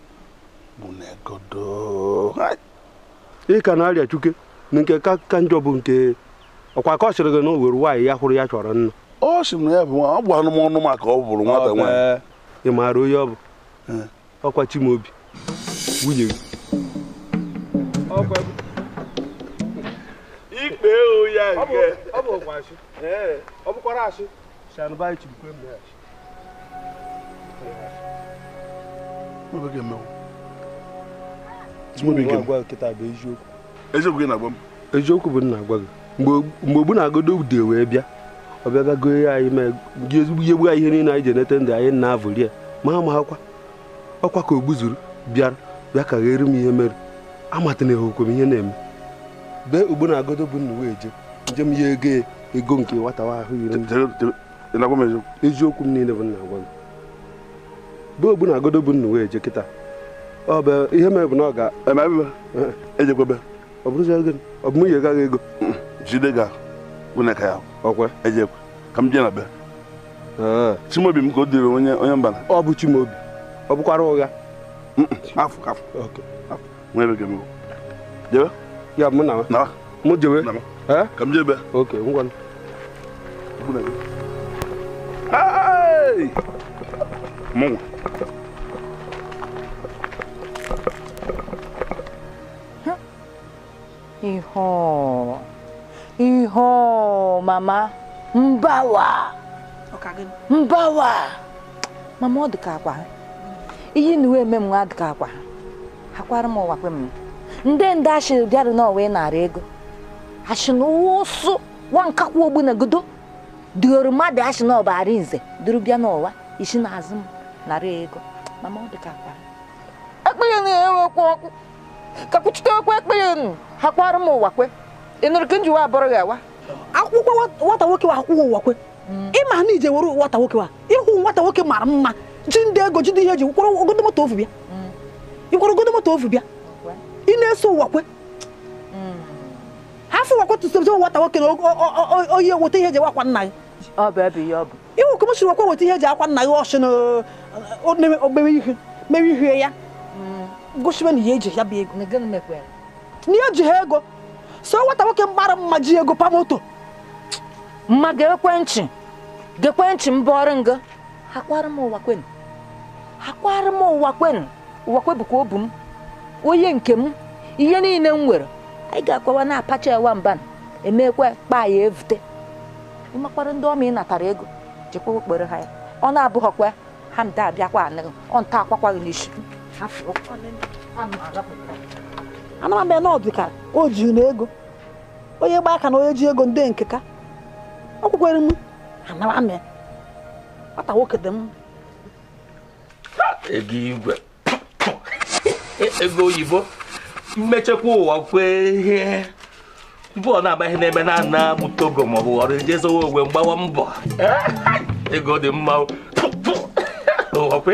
ị ka na-arịa chuke na nke ka njọ bụ nke ọkwa ka ọ sịrị gị na o nwaanyị ya hụrụ ya chọrọ nna ọ sị na ya bụ nwa ọ bụ anụmanụ maka ọ bụrụ nwata nwaanyị ị maara onye ọ bụ ọkwa Chimaobi nwunye gị ikpe ya ọ bụkwara asị eziokwu gị na-agwa m eziokwu bụ nna agwa gị mgbe ogbu na-agodo ude wee bịa ọ bịa bịa ya anyị ma ezigbo ihe gbu ihe niile anyị ji enete ndụ anyị na-avụli ya ma ha ma akwa ọkwa ka ogbu zuru bịara bịa ka ghere m ihe mere na ehokwe m ihe na-eme bee ogbu na-agodo bụ nna wee je njem m ihe ego ya ego nke nwata ahụ yiri eziokwu m niile bụ nna agwa m bee ogbu na-agodo bụ nna wee je kịta ọ bụ ihe mere bụ na ọ ga ejekwebe ọ bụrụzi ego ọ bụ gaghị ego jide ga nwunye ya ọkwa ejekwe ka m na be chimobi m ka o dịrị onye onye mbana ọ bụ chimobi ọ bụkwara ụgha afọ afọ jebe ya mụ na mụ jebe ka m oke mụnwa Iho. Iho, mama. Mbawa. Mbawa. Mama ọ dịka akwa. Iyi na uwe eme m nwa dịka akwa. Akwara m ụwa kwe m. Ndị ndị ashị bịara na ọwa narị ego. Ashị na ụwa ụsụ nwa nkakwa ogbu na godo. Dịoro mmadụ ashị na ọbara nze duru bịa n'ụwa isi na azụ m n'ara ego. Mama ọ dịka akwa. ekpere eh, eh, na-enwekwa ọkụ kakwuchitewekwa ekpere m ụwa ị nụrụ ka njiwa abụrụ ewa. akwụkwọ akwụkwọ were nwata nwoke wa nwata nwoke mara mma ji ndị ego ji dị ihe eji kwụrụ ogodo moto ofu bịa ịkwụrụ moto bịa na-eso na ihe eji akwa nna gị ihe ya gosiwe na ihe eji ya bụ ego na ihe eji ha ego so nwata nwoke mgbara mma ji ego pamoto mma ga-ekwentị ga-ekwentị m bụọrị nga akwara m ụwa kwen akwara m ụwa kwen ụwa kwebụkwa obu m onye nke m ihe niile m nwere anyị ga-akwawa na-apacha ewa mban emekwa kpaa ya evute ịmakwara ndị ọma ị natara ego jekwa okpere ha ya ọ na-abụghọkwa ha mda abịakwa anịghị ọ nta akwakwaghị n'isi amara m na ọdịka o jiri na ego onye gba aka na onye ji ego ndị nke ka ọ kwukwere m anara m nwata nwoke dị m ego igwe e, ego oyibo mmechekwa ụwa kwee ihe bọọlụ na-agbaghị n'ebe na ana bụ togo ma ọ bụ ọrụ jezowe ogwe mgbawa mbọ ego dị mma ụwa kwe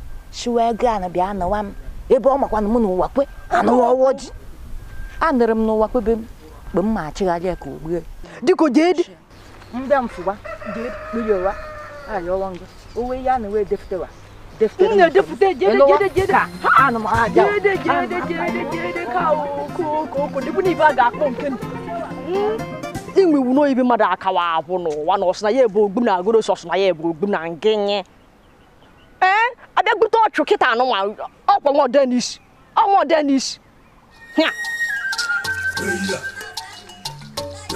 siwe ego a na bịa anọwa m ebe ọ makwa na m n'ụwa kwe anụwa ọwọ ji anụrụ m n'ụwa kwebe m mgbe m ma achịgharị ya ka o gbue dịka mfụwa jeekpiriowa ayọwa ngụ owe ya na wee a inwe iwu n'oyibi mmadụ akawa abụ n'ụwa na na ya ebe ogbu na agụrụ ya ebe ogbu na ɛn eh? abɛgbutɔ ɔtwe kita ano wa ɔkpɔ ŋɔ dɛ n'isi Denis. hia. eya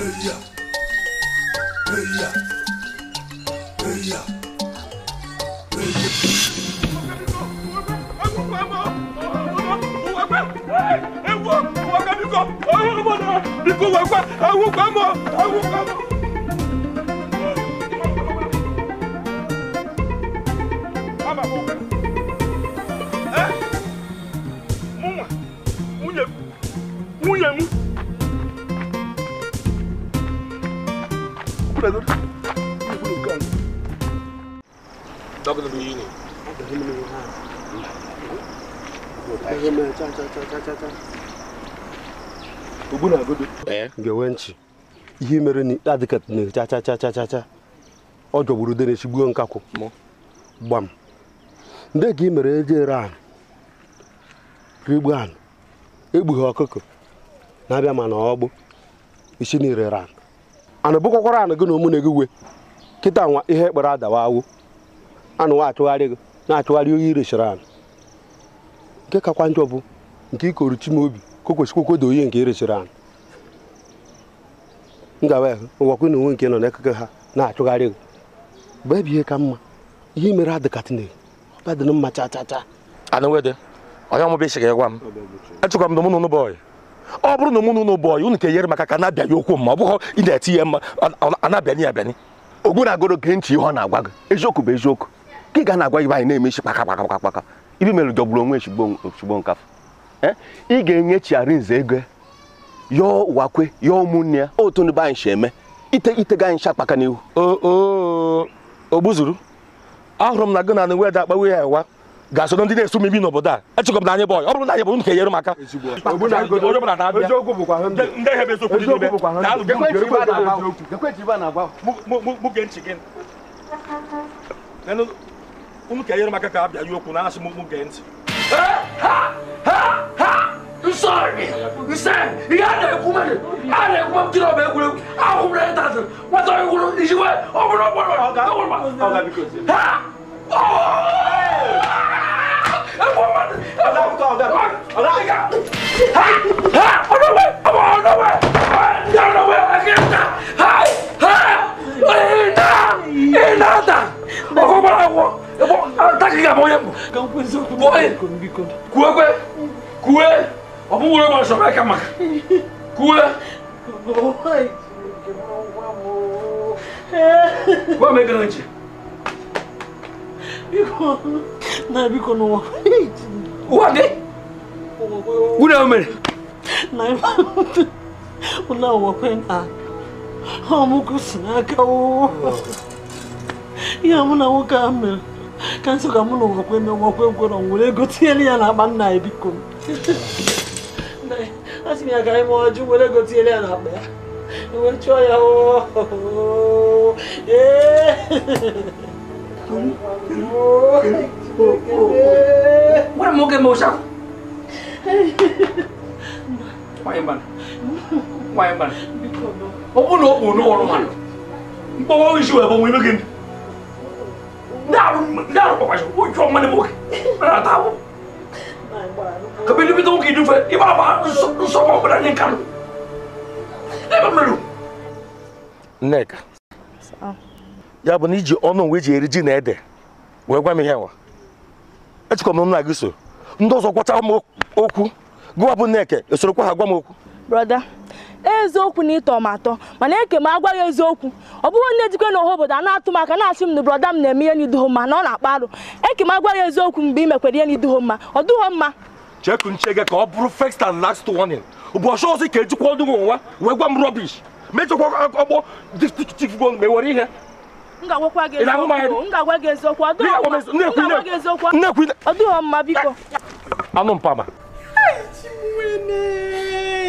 eya eya eya eya. ewu ọkọ mi kọ ọwọ ọmọ náà ikú wẹgbẹ ewu gbẹmọ ewu gbẹmọ. ga-enwe nchi ihe mere na adịkat na-echachachachacha ọ jọgburu ude na-echigbuo nkakwụ gbam ndị ka ị mere eji iran anụ egbughị ọkụkọ na-abịa mana ọgbụ isi na ire ran anụ bụkwakwara anụ gị na na gị we kịta nwa ihe kpara adawa awụ anụ achụgharị gị na-achụgharị oyi irechiri anụ nke kakwa njọ bụ nke ikoru chimobi ka o kwesịkwa okwedo oyi nke irechiri anụ ngawa ụwakwu na onwe nke nọ n'ekeke ha na-achụgharị gị bụ ebe ihe ka mma ihe mere na Chineke na mma chachacha anụwede onye ọmụ isi ga-egwa m achụkwa m na ụmụnụ ọ bụrụ na ụmụnụ ụnụ bọyị unu ka enyere maka ka na okwu m ọ bụghị ị na-eti ya mma a na-abịanye abịanye ogbu na-agoro ntị ihe ọ na-agwa gị eziokwu bụ eziokwu ka ị ga na-agwa anyị na-emechi kpaka kpaka kpaka ibi mere jọgburu onwe ozugbo nkafọ ị ga-enyechiarị nze ego yọọ ụwakwe ụmụnne ya otu ndị be eme ite anyị n'ihu ogbuzuru ahụrụ m na gị na da weda akpawe ya ewa ga-asoro ndị na-eso mebi n'obodo a echekọ m na anyị bọyị ọ bụrụ na anyị bụrụ nke nyere m aka ka m ka a bịa ya okwu na asị m gee ntị sorry nsɛn i y'a nɛgɛ kuma de a nɛgɛ kuma kiri o bɛ wolo a kun bila e ta se wasa i wolo i si wɛ o bolo bɔ dɔ la o wolo ma ha ɔɔ e ko ma de e ko ma de ɔlɔ i ka ha ha ɔlɔ wɛ ɔlɔ ɔlɔ wɛ ɔlɔ wɛ a kɛ ta ha ha ee na ee na ta o ko bala wɔ e ko a ta k'i ka bɔ ye bɔ ye kuwe kuwe kuwe ọmụ nwere ma ọsọ aka maka kuwe gwa m egara nche na biko n'ụwa ụwa dị ụna mere na ife ụna ụwakwe na ọmụkụ si n'aka ihe mụ na nwoke ahụ mere ka nsọ ka mụ na ụwakwe na ụwakwe gwọrọ nwere ego tinyere ya n'akpa nna ya biko m a sị m ya ka anyị mụọ jụ were gotiele ya n'akpa ya wee chụọ ya gwara m oge mụcha ọ bụrụ na o kpuru n'ọrụ mmadụ mkpọwa isi wee bụ nwe ime gị ndụ ndị arụ kpọkwasị ụjọ mmadụ m oge na-ata ahụ kabini bi tɔgɔ k'i dun fɛ i b'a fɔ nsɔgɔ bɛna nin kanu ne bɛ mɛlu. nneka ya bụ na iji ọnụ nwe ji eri ji na ede wee gwa m ihe nwa echekwa m nna gị so ndị ọzọ gwacha m okwu gụwa bụ nneka esorokwa ha gwa m okwu brother eziokwu na ịtọ m atọ mana eke m agwaghị eziokwu ọ bụghị onye dịkwa n'ọha obodo a na-atụ m aka na-asị m na broda m na-eme ihe n'iduho mma na ọ na-akpa arụ eke m agwaghị eziokwu mgbe ị mekwara ihe n'iduho mma ọ dụghọ mma cheku nche gị ka ọ bụrụ first and last warning bụ ọsọ ọzọ ka ejikwa ọdụ nwa wee gwa m rọbish mejọkwa ọgbọ dịgo mgbe were ihe nnekwu anụ mpama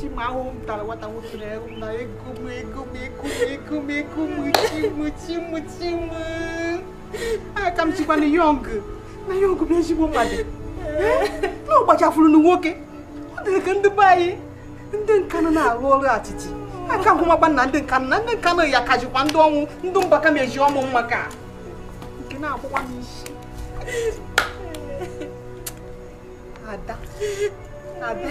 chimahụ m tara nwata nwoke na na ego m ego ego na eh? na ah, na nwoke ọ ndị be anyị ndị nkanụ na na ndị na ndị nkanụ ya kajikwa ndị ọnwụ ndị mbaka ka nke na-akwụkwa n'isi ada ada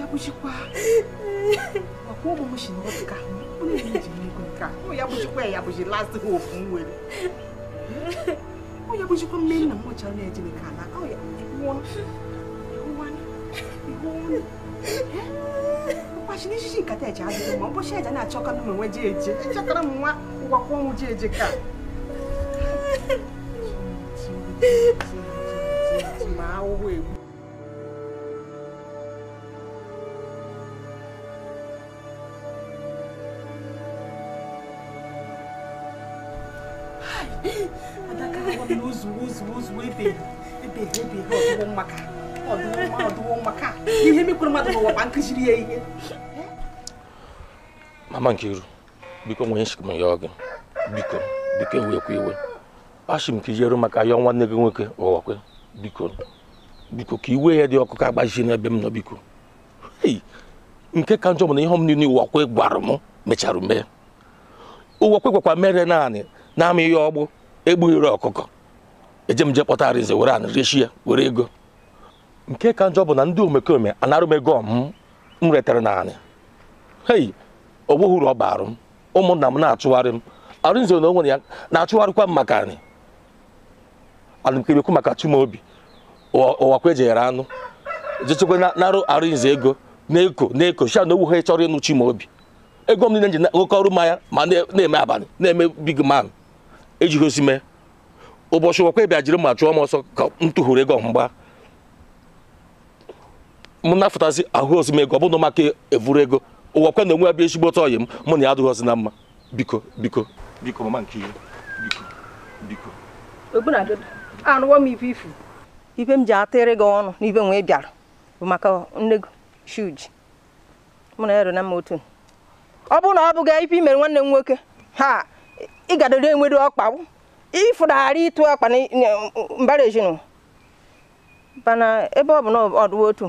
ya kuchikwa makuo bụ mụshi n'ọka onye ya bụchikwa ya bụchi last hope m nwere onye bụchikwa mme nna m ọchara na-eji nke ala ụbọchị na nkata eji adịghị mma ụbọchị eji na-achọkara m onwe ji eje echekara m nwa ụgwakwa ọnwụ ji eje ka ma ahụhụ egbu adaka awa ihe mmadụ ihe mama Nkiru biko nwee nshikm ya gị biko biko ewekwa iwe m ka ijeru maka ya nwanne gị nwoke ụghọkwe biko biko ka iwe ya dị ọkụ ka n'ebe m nọ biko nke ka njọ bụ na ihe m niile ụwakwe gwara m mechara mee ụwakwe gwakwa mere naanị na-ama ihe ọgbụ egbughịrị ọkụkọ eje m je kpọta arịnze were anrịchi ya were ego nke ka njọ bụ na ndị omekome anarụ ego m retara naanị hei ogbughị uru ọ baara m ụmụnna m na-achụgharị m arụnze na onwere ya na-achụgharịkwa m maka anyị alụmkemekwu maka chumobi ụwakwa ejeghere anụ jechekwa narụ arụnze ego na-eko na-eko sha na ogwu ha chọrọ ịnụ chimobi ego m niile ji na ọrụ mmanya ma na-eme abalị na-eme big man ejigosi mee ụbọchị wakwa bịa jiri ma chụọ m ọsọ ka m tụhụrụ ego mgba m nafụtazi ahụ ozi m ego ọ bụrụ maka evuru ego ụwa kwa na onwe abịa ezigbo ọtọ ọyị m mụ na ya adịghị ọzi na mma biko biko biko mama nke ihe biko biko anụwo m ife ifu ibe m ji atịrị gị ọnụ na n'ibe nwee bịara bụ maka nne shuji mụ na ya ero na mma otu ọ bụrụ na ọ bụghị ife imere nwanne m nwoke ha ịgadoro enwere ọkpa ịfụdagharị ịtụ ọkpa na mbara ezinụ mana ebe ọ bụ na ọdụ otu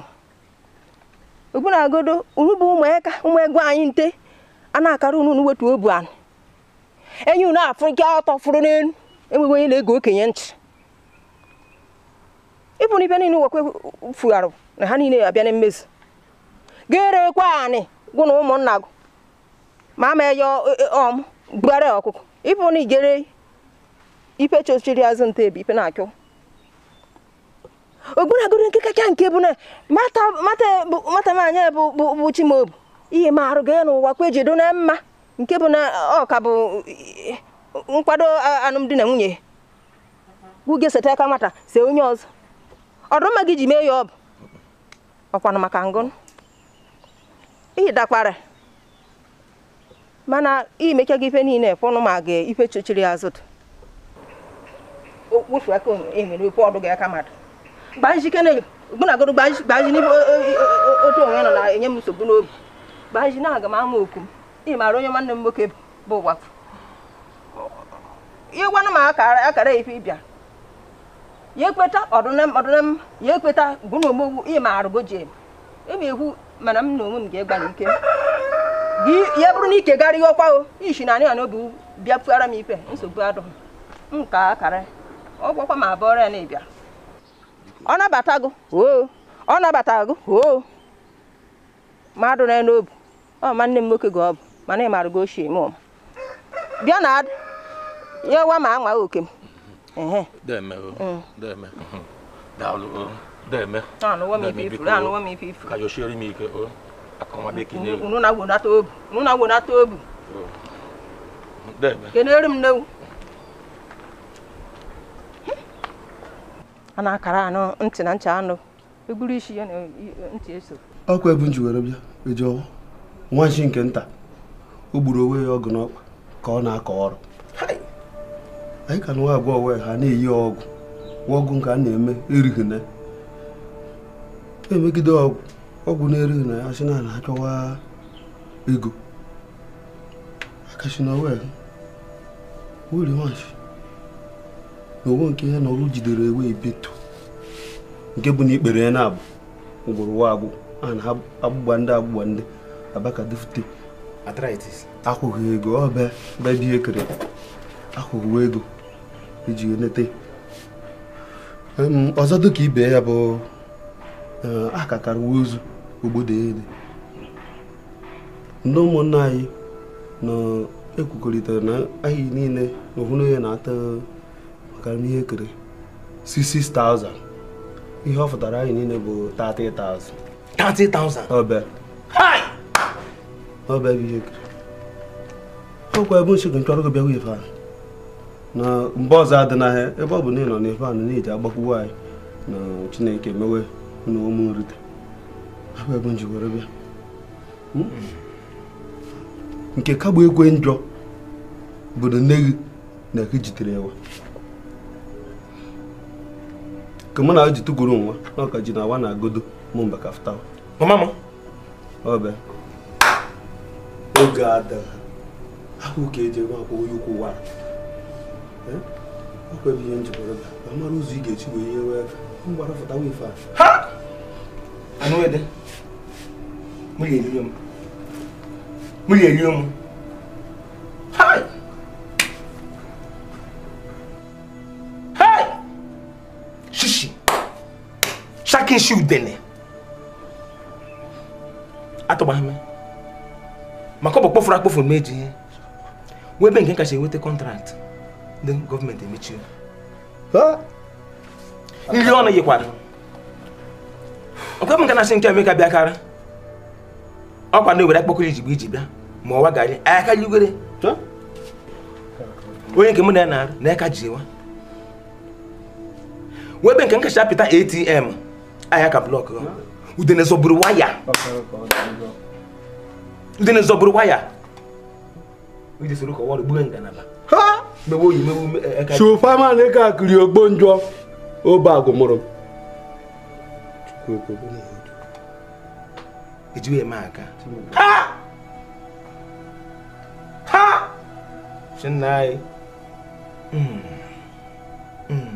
ugbu na agodo urubu ụmụaka ụmụegwu anyị nte a na-akara unu wetu obu anụ enyi unu afụ nke ọtọ fụrụ n'elu enweghị onye na-ege okenye ntị ịbụ na ibe niile nwekwe fugharụ na ha niile abịa na mmezu ga-erekwa anị gụ na ụmụnna gụ ma ama eya e, e, ọmụ bugharịa ọkụkọ ipo ni ipe chochiri azụ nta ebe ipe na-akụ ogbunagoro nke kacha nke bụ na mata maanya bụ chimobu ihe ma arụ ga n'ụwa kwa ejido na mma nke bụ na ọ ka bụ nkwado alụmdi na nwunye gwuge seta aka nwata onye ọzọ ọdụmma gị ji mee ya ọ bụ ọkwanụ maka ngụnụ ihe dakwara mana gị ife niile fụnụ ma ga ife chochiri azụtụ okpofu e, aka otu onwe nọ na-enye m nsogbu n'obi gbaji na aga m ama oku m ị maara onye nwanne m nwoke bụ ụwafụ ịgwanụ m akara ife ịbịa ya ekweta ya ekweta ị maara ebe ekwu mana m na onwe m ga ike gị ya bụrụ na ike gara garịghị ọkwa o ishi na na n'obi bịa pụara m ife nsogbu adụghị m ka akara ọgwọkwa ma abụọrọ ọrịa na-ebịa ọ nabata gụ oo ọ nabata gụ oo mmadụ na n'obu ọ ma nne m nwoke gị ọ bụ mana ị maara gị ochie m bịa na adị ya wa ma anwa oke m mm. anụwa ife ife unu na na m n'ewu a na-akara anọ ntị na ncha i buru isi ya na ntị eso ọkụ nji were bịa ejeọwa nwanchi nke nta o gburu onwe ya ọgụ n'ọkpa ka ọ na-akọ ọrụ anyị ka nwa abụọ ha na-eyi ọgwụ ọgwụ nke a na-eme erighi emegide ọgwụ ọgwụ na eri na ya na na-achọwa ego akashi na wel wuri nwachi na owo nke ya na ọrụ jidere ewe ebeto nke bụ na ikpere ya na-abụ ngwụrụ wa agbụ a na agbụgba ndị agbụgba ndị abaka dufute akwụghị ego ọbịa bebi ekere akwụghị ego iji n'ete ọzọ dịka ibe ya bụ eh, akakara ozu ogbodo ele ndị ụmụnne anyị na-ekwukọrịtara na anyị niile na ya na-ata maka ihe ekere 60,000 ihe ọ fụtara anyị niile bụ 30,000 30,000 ọbịa ihe ekere ọkwa ebe nchekwa nchọrọ gị bịawa ife ahụ na mgbe ọzọ adị n'ahịa ebe ọ bụ na ị nọ n'ife ahụ na-eji agbakwuo anyị na chineke mewe na ụmụ nrite ebe m ji were nke kagbu ekwe njọ bụ na nne gị na ka jitere eh? ya ka mụ na ji nwa na ji na awa na agodo mụ mba ka oge ahụ ka eji ukwu ihe njikọrọ ụzọ ị ga-esi wee ihe wee fụtawa ife a mo lè rí ọmọ mo lè rí ọmọ. ṣíṣì ṣákínṣì ìdẹ̀nẹ̀ atọ́ba mi màkọ́bọ̀ kpọ́fura kpọ́fura méjì yẹn wọ́n bẹ́ẹ̀ nǹkan kàṣẹ́ wọ́n tẹ contract then government emechi o. nri ọnụ yikwara nke m nke na-asị nke emeka bịakara ọ ọkwa na obere akpọkọrọ ijigbe iji bịa ma ọwa gari aka nyigwere onye nke m na ya na-arụ na aka ji ewa nke nkacha pịta atm ahịa ka blọk udene zọburu waya udene zọburu waya iji soro kọwa ọrụ gbuwe ngalaba ma na ị ka agụmụrụ ejighị eme aka ha ha chinna anyị hmm. Hmm.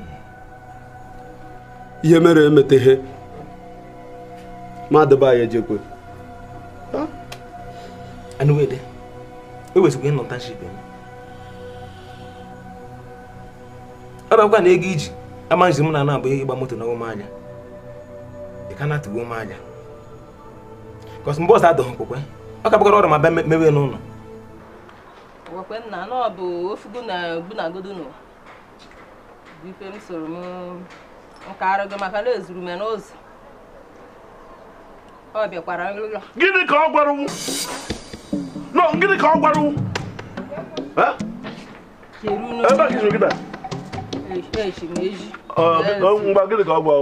ihe mere emeteghe ma adịba anyị ejekwe anụwede ewezụga ịnọta nship m ọ na ego iji ama m na na abụghị ịgba moto na ụmụ anya ị ka na-atụgo ụmụ anya kọsi eu ọzọ adọghị nkwekwe ọ ka bụgara ọrụ ma bịa mewe n'ụlọ gwakwe m na ọ bụ ofugo na gbunagodo n'ụwa bipe m soro m nka arụgo maka na ezuru m n'ụzọ ọ bịakwara nrụlọ gịnị ka ọ gwara no gịnị ka ọ gwara ebe a kịzụrụ gịda ngwa gịnị ka ọ gwara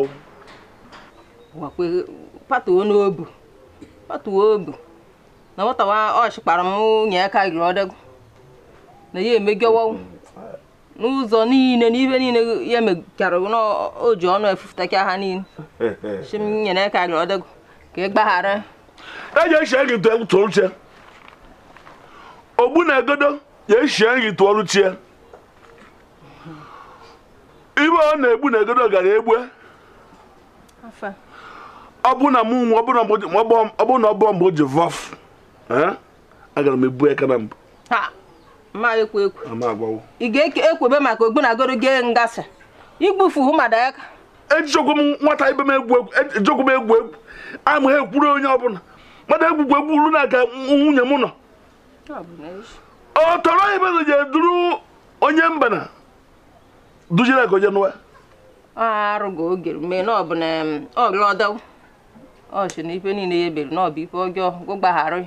gwakwe patuo isso. patuobu na nwatawa wa ọchịkpara m nye aka giri ọdegwu na ya emegiowo n'ụzọ niile n'ibe niile ya emekara na o ji ọnụ efufutakia ha niile chim nyere aka giri ọdegwu ka ị e gbaghara eji echie gị tụrụ chie ogbu na egodo ya echie gị tụọrụ chie ibe ọ na-egbu na egodo gara egbue ọ bụrụ na mụ nwa ọ bụrụ na ọ bụọ mgbe o ji vọf agara m ebu aka na mbụ ị ga-ekwebe maka ogbunagoro gee ngasị igbufu hụ madaka ejikwa m nwata ibe m egwu egwu ejikwa m egwu egwu ama ha ekwuru onye ọbụla mmadụ egwugwu egwu uru na-aga nwunye m nọ ọ tọrọ ibe na je duru onye mbana na ka agoje n'ụwa arụgo oge mee na ọ bụ na ọlọdọ ọ si na ife niile ya ebere n'ọbụ ife ọjọọ gụgbagharị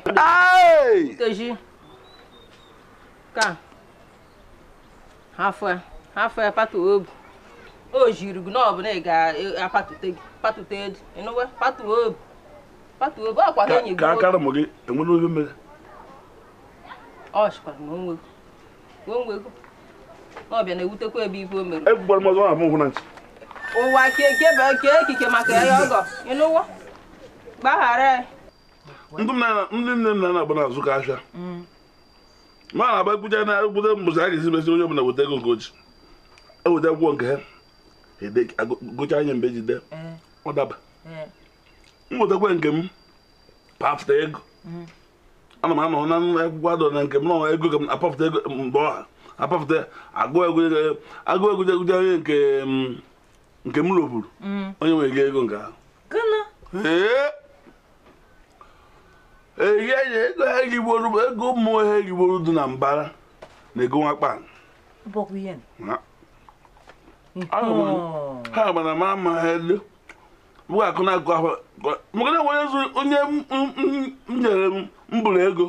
nkeji ka hafụ hafụ patu obu o jiri gị n'ọbụ na ị ga-apatute gị patute edu ịnụwe patu obu patu obu ọkwa ka enyi gị ka akara mụ gị enwere oge mere ọ sikwara ma onwe onwe n'ọbịa na-ewutekwa ebe ife o mere egbugwara m ọzọ na ahụ hụ na ntị ụwa keke bụ ekike maka ya ọgọ ịnụwa E. ndị nne m na-agba n'azụ ka ahịa mm. ma na-agba ekwuja na ekwute mbụzi a ga-esi mesi onye ọbụla weta ego nke oji eweta akwụkwọ nke ha e gocha anya mgbe e jide mm. ọ daba mm. m wetakwa nke m pafụta ego ana m anọ na akwụkwọ adọ na nke m na ego ka m apafụta ego mgbe ọha apafụta agụ egwuje egwuje onye nke m rụburu onye nwere ego nke ahụ ego ha erigboro ego mmụọ ha erigboro dị na mbara na ego nwakpa ha gbara ma ama ha elu bụ akụ na akụ ahụ maka nwere onye m nyere mbụrụ ego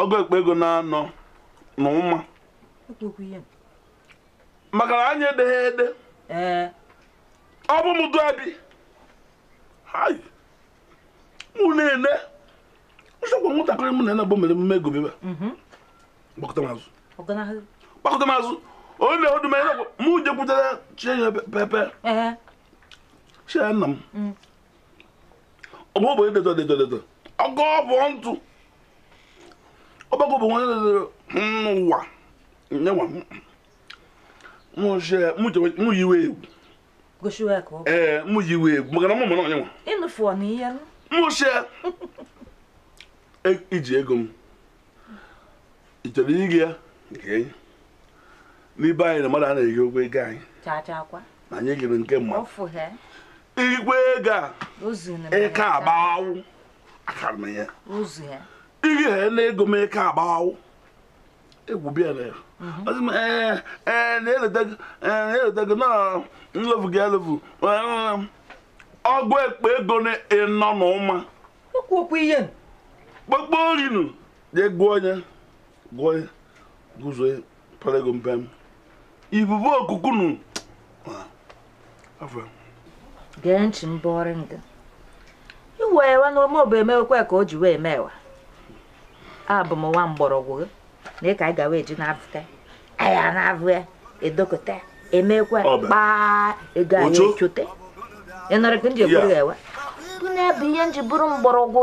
ọgụ ekpe ego na-anọ na ụma maka na anyị edeghị ede ọ bụ m abi ha mụ na-ene nsogbu nwatakịrị m na nabụ mere mmemme egobe gbakọta m azụ gbakọta m azụ onye odu m enegwu mụ jekwutere chinye pepe chie nna m mm. ọgụ bụ edeto deto deto ọgụ bụ ntụ ọgbakọ bụ nwanne dedo n'ụwa nyewa e, mụ yiwe egwu ee mụ yiwe egwu maka na mụ mụ onye nwa mụ chie iji ego m ị chọrọ iri ya nke n'ibe anyị na mmadụ a na-eri ụgwọ ego anyị na anyị gịrị nke mma Igwe ego a ike agbawụ akara m ya iri ha na ego m ike agbawụ egwu bịa na ya mhm. e, na-eletago na nlefu gị e, elefu ọgwụ ekpe ego na ịnọ n'ụma okwu okwu ihe kpọkpọ rinu jee gụọ ya gụọ onye guzo palego mpem ibubu okukunu gee ntị mbọrị ndị iwe ewe n'ome ọbụ emewekwa ka o ji wee mewa abụ m nwa mgbọrọgwụ gị na ịka anyị gawa eji na-abụta aya na-abụ ya edokọta emekwa kpaa ego anyị ị nọrọ ka m ji egburu ya ewe bụ na-ebu ihe m ji bụrụ mgbọrọgwụ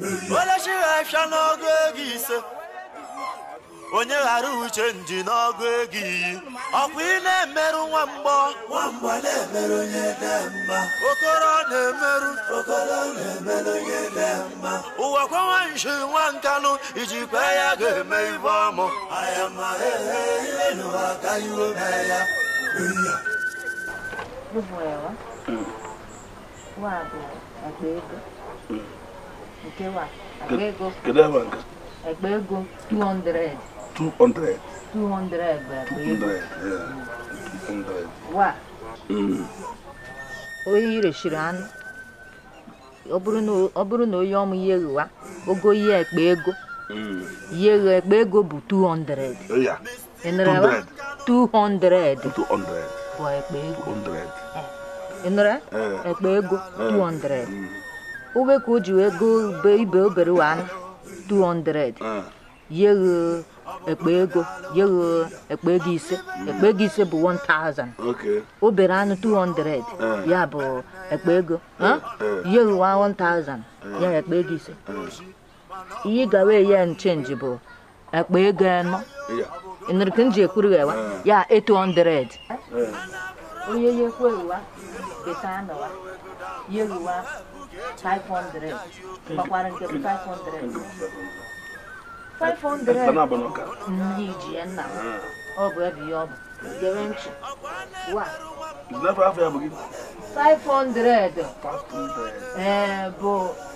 onye chịrị afịa n'ọgụ ego ise onye ghara uche nji n'ọgụ ego iyi ọkwa ị na-emerụ nwa mgbọ na-emerụ onye mma okoro na-emerụ okoro na-emerụ nshi nwa nkanụ ijikwa ya ga-eme ibe ọmụ ihe n'ụwa iwe Mm. kewa ego agba ego 200 200 200 bụ 200 ego wa onye irechiri mm. anu, ọ bụrụ na onye ọmụ ya ogo ihe ekpe ego mm. ihe ekpe ego bụ 200 ịnụrụwa 200 bụ ekpe ego ịnụrụ ekpe eh. ego 200 obeka o ji wee go ibe obere wa 200 ah. Yego ekpe ego yeghe ekpe ego ise hmm. ekpe ego ise bụ 1000 obere anụ 200 ah. ya bụ ekpe ego eh, eh. yeghe wa 1000 eh. ya ekpe ego ise ihe ị gawa ya nchenji bụ ekpe ego anọ nrike nji ekwurughị wa ya 800 onye yekweghị wa beta wa yeghe wa 500 gbakwara nke 500 500 ji nna ọ bụ ebe bụ 500 500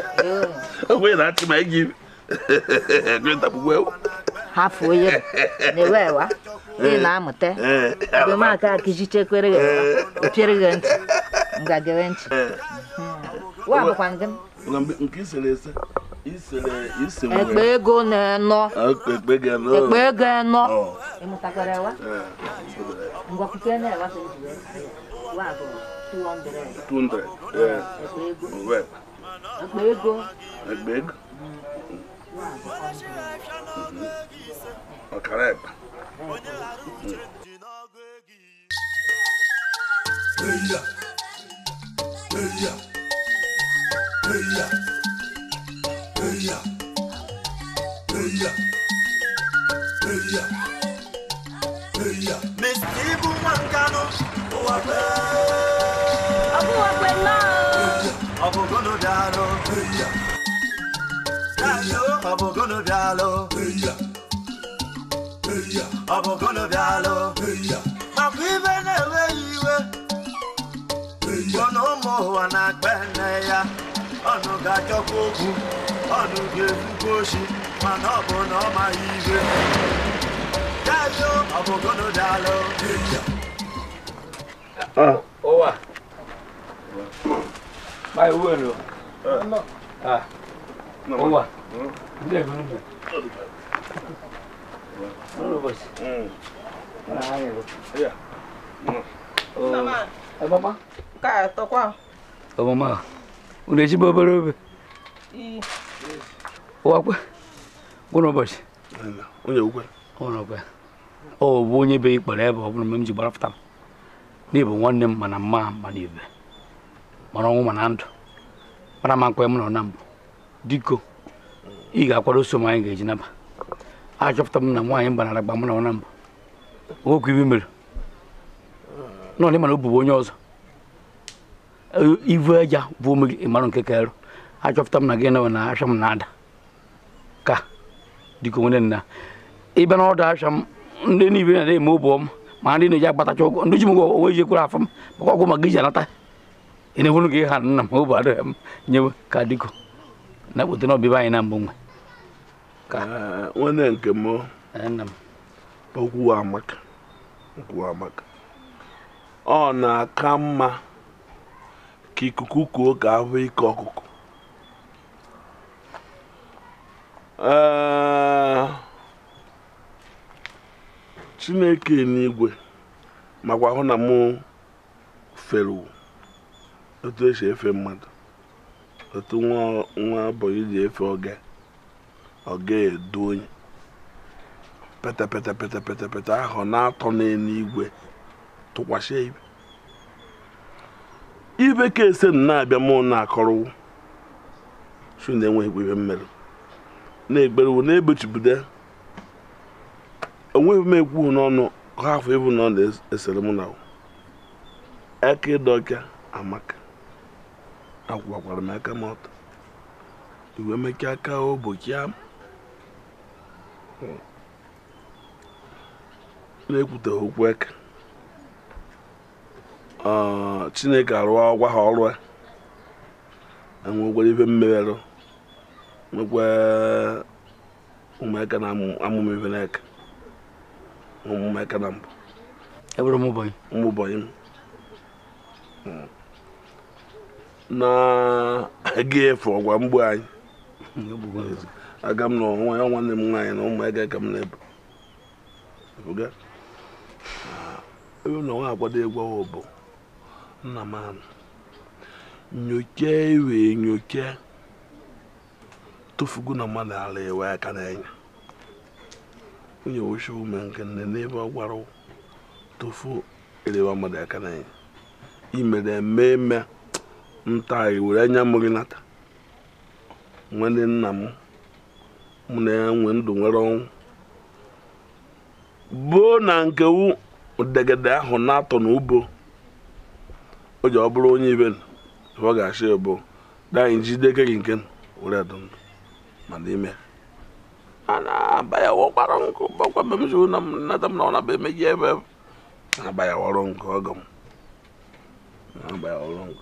onwe na-achị ma gị hapụ onye na-ewewa ị na-amụta ebemaka akijichekwere opiere gị ntị ngagere ntị wa bụkwa ndị ekpe ego na-enọ ekpe ego enọ ịmụtakwara na-ewa 200 200 ekpe ego Egbe ego. Eya. Eya. Eya. Eya. Eya. Eya. Eya. Mr. Mankano, Uwagwe. Abu Uwagwe, ọbụgụnụ bịalụ ọbụgụnụ maka iwe na-enweghị iwe ọnụ ụwa na-akpa ya ga-achọkwa okwu ọnụ ga-ekwukwa mana ọ bụ ọ Vai, Uero. Ah. Não. Boa. Leva, não. Não, você. Hum. Ah, é. Mamã. É mamã? Cara, tô com a. Ô, mamã. O um leite bobo. E. O água. Boa noite. Onde é o água? Onde é o água? Ọ bụ onye be ikpere ebe ọ bụrụ mgbe m ji gbarapụta m n'ebe nwanne m mana mma mana mara ọnwụ mana ndụ mara ma nkwe m nọ na mbụ diko ị ga-akwado oso m anyị ga-eji naba achọpụta m na nwaanyị gbanara gba m nọ na mbụ nwoke ibe mere nọ na o bụbu onye ọzọ ivu aja bụ ome gị ịmarụ nke ka arụ achọpụta m na gị nọ na asha m na-ada ka diko nwere nna ịbịa na ọdụ asha m ndị niile na-eme ụbọ m ma ndị na-eji agbatacha ụgwọ ndị ji m ụgwọ onwe ji ekwere afọ m maka ọgwụ maka iji anata na hụrụ gị ha nna m ụbụ arụ ah, eh, m nyewe ka dịko na kpote na anyị na mbụ nwe nwanne nke m nna m okwu amaka okwu amaka ọ na-aka mma ka ikuku kuo ka ahụ ike ọkụkụ eh, chineke n'igwe makwa hụ na mụ feru otu esi efe mmadụ otu nwa abụọ ji efe oge oge edu onye petepetepetepetepete ahụ na-atọ n'eluigwe tụkwasị ibe ibe ka ese na-abịa mụ na-akọrọwu su na-enweghịkwa ibe mmerụ na-egberewu na-ebechibudo onweghị m ekwu n'ọnụ ha afọ ịbụ na esere na aka amaka akwara m aka m ọtọ iwe meke aka ụbọchị a na-ekwute okwu eke chineke arụọ gwa ha ọrụ enwekwara e ife mmerụ nwekwa ụmụaka na amụme ife n'eke ụmụaka na mbụ ụmụbọnyị m na-aga efe ọgwa mgbu anyị aga m ya nwanne m nwaanyị na ụmụ ege ka m na-ebu ebe na akwado egwu bụ nna m anụ nyocha iwe nyocha tụfugo na mmadụ ala ewe aka n'anya onye wuchi ume nke nne n'ebe ọ gwara tụfu elewa mmadụ aka imere eme nta were anya m gị nata nwanne nna m mụ na ya nwee ndụ nwere ọnwụ boo na nke wu degede ahụ na-atọ n'ubo o ji ọ bụrụ onye ibe ọ ga-achị bụ daanyị jide ike gị nke were adụ ndụ ma n'ime a na-aba ya wọkwara nkụ gbakwa mbe m ji na m nata m na ọ na-aba emeghị ebe na-aba ya ọrụ nkụ ọgọ m na-aba ya ọrụ nkụ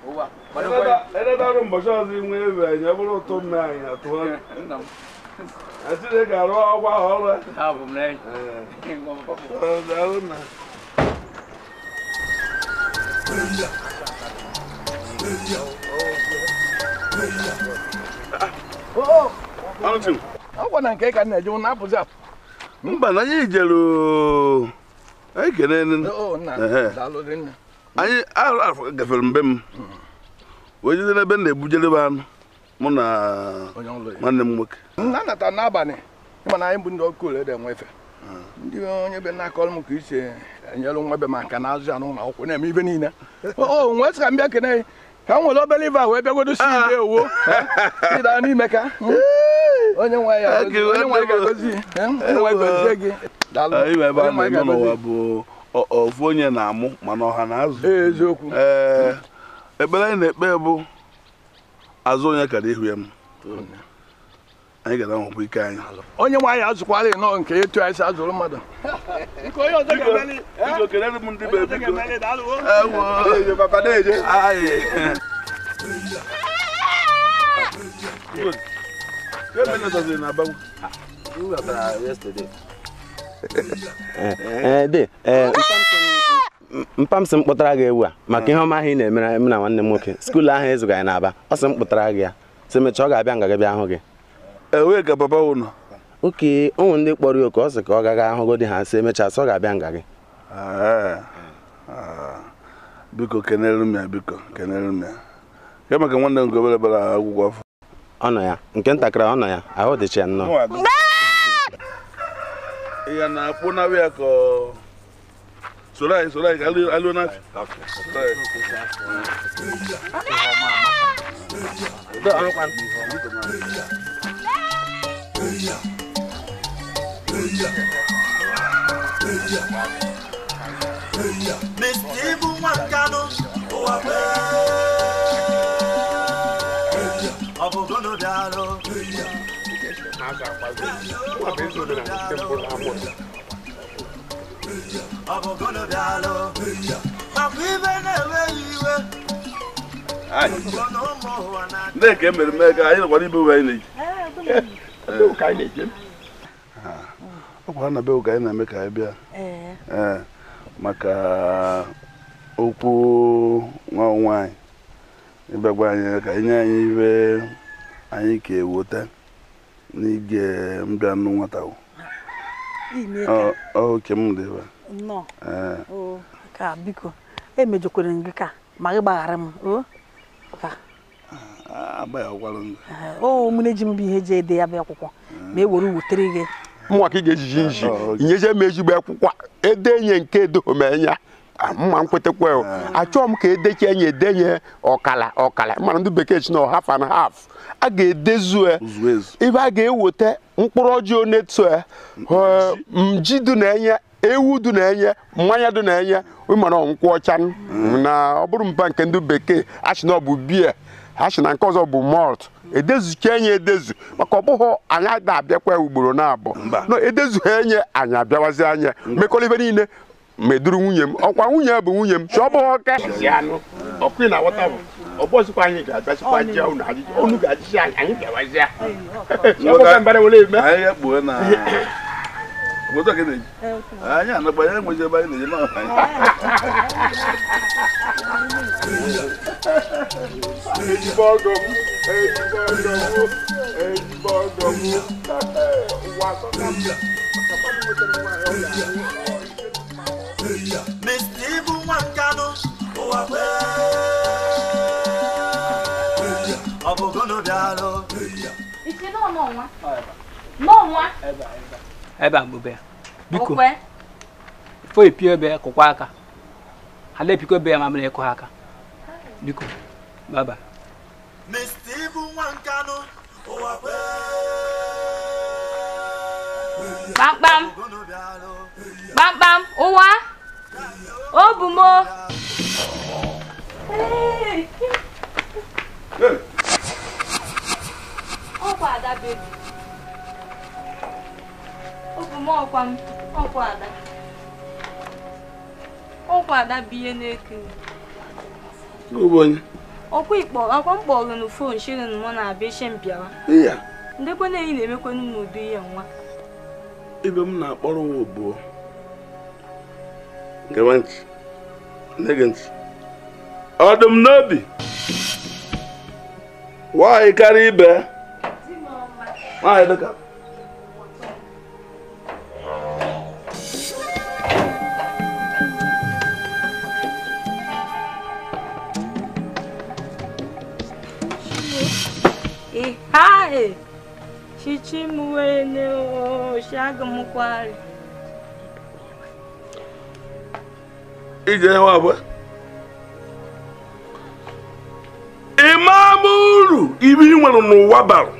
edebe mbọchị ọzọ inwe ebe anyị bụrụ ụtụ mme anyị atụọ Chineke arụ ọgwa ọrụ ọgwa na nke ka na-eje na apụzi apụ mba na anyị jere ekene anyị afọ gafere mbe m wee jide n'ebe m na-ebujedebe anụ mụ na nwanne m nwoke mana anyị bụ ndị ọkụ ole dị ndị onye be na m ka isi enyere nwa be m aka na-azụ ya n'ụlọ akwụkwọ na-eme ibe niile o nwee m bịa kene ka m nwere obere ibe a wee bịagodo si ah. ibe owo n'ime ka hmm. onye nwe ya onye nwe ga-egozi hmm. gị daalụ ofu onye na-amụ mana ọha na azụ eziokwu ee ekpere anyị na-ekpe bụ azụ onye kara ihu ya m anyị gara nwekwa ike anyị onye nwe anyị nọ nke etu anyị si azụrụ mmadụ Good. mpa eh, eh, eh, m sị m kpụtara gị ewu a maka ihe ọma ahụ ị na-emere m na nwanne m nwoke skuulu ahụ ezuga anyị n'Aba ọ sị m kpụtara gị ya si mechaa ọ ga-abịa nga gị bịa hụ gị ewee ga baba ụnụ oke ụmụ ndị kpọrọ ya oke ọ sị ka ọ gaghị ahụgo di ha sị emechaa sị ọ ga-abịa nga gị ah, biko kenere m ya biko kenere m ya ya maka nwanne m gobere bara akwụkwọ afọ ọ nọ ya nke ntakịrị ọ nọ ya ahụ dịcha nnọọ ya na kpona wia ko solai solai alu alu na solai da alu kan Mestibu Makano, o Abel. abụ ezi omenala na amụs Nneka ego anyị nọkwa n'ime ụwa anyị na-eji ọ kwa na be ụka anyị na-eme ka anyị bịa maka okwu nwa nwaanyị ịbịagwa anyị ka anyị nye anyị ibe anyị ka eweta n'ige mbịa nnụ nwata oke m dị ebe ka biko emejokwere gị ka ma gị gbaghara m mụna eji m bụ ihe eji ede ya bụ akwụkwọ ma e were wutere gị mụnwa ka ị ga-ejiji nji inyeje m ezigbo akwụkwọ edenye nke edohomenya mma nkwetakwa achọọ m ka edechi enye edenye ọkala ọkala mana ndị bekee chi na half and haf. a ga-edezu e, ebe a ga-eweta mkpụrụ ọjị onetu e, e, mji dị na-enye ewu dị na-enye mmanya dị na-enye ịmara nkwụ ọcha hmm. na ọ bụrụ mpa nke ndị bekee achị na ọ bụ achị na nke ọzọ bụ malt edezucha enye edezu maka ọ bụghị anyị abịakwa ugboro na-abụ edezugha enye anyị abịawazi anya ibe niile ma eduru nwunye m ọkwa nwunye bụ nwunye m chọọ ọ bụghị ọka ọbọsikwa anyị ga-abịasikwa jia unu ajụjụ unu ga-ajụsi anyị anyị ga-abazia ọbọka mbara wele eme anyị ya kpuo na moto kene anyị anagba ya enwezi ebe anyị na-eje n'ọha anyị Mr. Ibu Nwankanu, ụwa kwere daalụ nwa a mgbe biko fo epie ebe kụkwa aka ha na-epikọ ebe ya ma mere ịkụ ha biko baba Mr. Ibu Nwankanụ ụwa kpamkpam kpamkpam ụwa obumo Hey! ọkwa ada bebi obu m ọkwa m ọkwa ada ọkwa ada bụ ihe na-eke ọkwa ikpọ akwa m kpọrọ n' fon shirin mụ na abịa ishe mbịawa ndekwa na eyi na-emekwanụ m ụdị ihe nwa ibe m na-akpọrọ nwa obuo gewe ntị nne gị ntị ọdụm n'obi nwanyị karịa ibe All right, look up. Hai, chichimwene oshaga mukwari. Ije wabwe. Imamuru ibi nwere n'ụwa bara.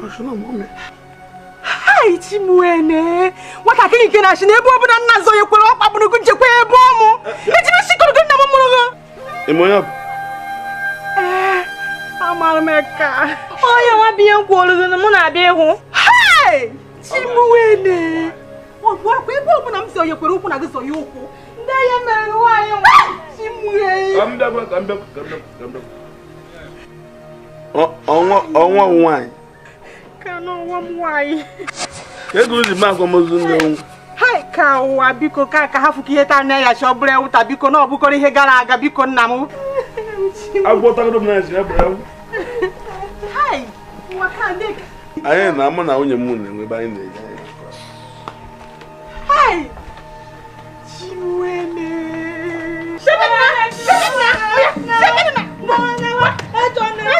Ashuna mume. Hai ti muene. Wata kini kina shine ebo bu na nazo ye kwere okpa bunu kunje kwe ebo mu. Eti mi sikoro gina mu muru go. Imoya. Eh, amar meka. Oya wa bi en kwolu go mu na bi hu. Hai ti muene. Wo gwa kwe ebo bu na mse ye kwere okwu na gizo ye okwu. Nde ye mere ni wa ye oh oh oh oh ba kamda kamda kamda. Ọnwa ọnwa nwanyị aka n'ọnwa m nwanyị ego ozi m akwamozu nnewu hai ka ụwa biko ka ka ha fụka ihe taa anya ya chi ewuta biko na ọbụkọrọ ihe gara aga biko nna m agwọtagodo m na anyị na amụ na nwunye m na-enwe ebe anyị na-eje Shut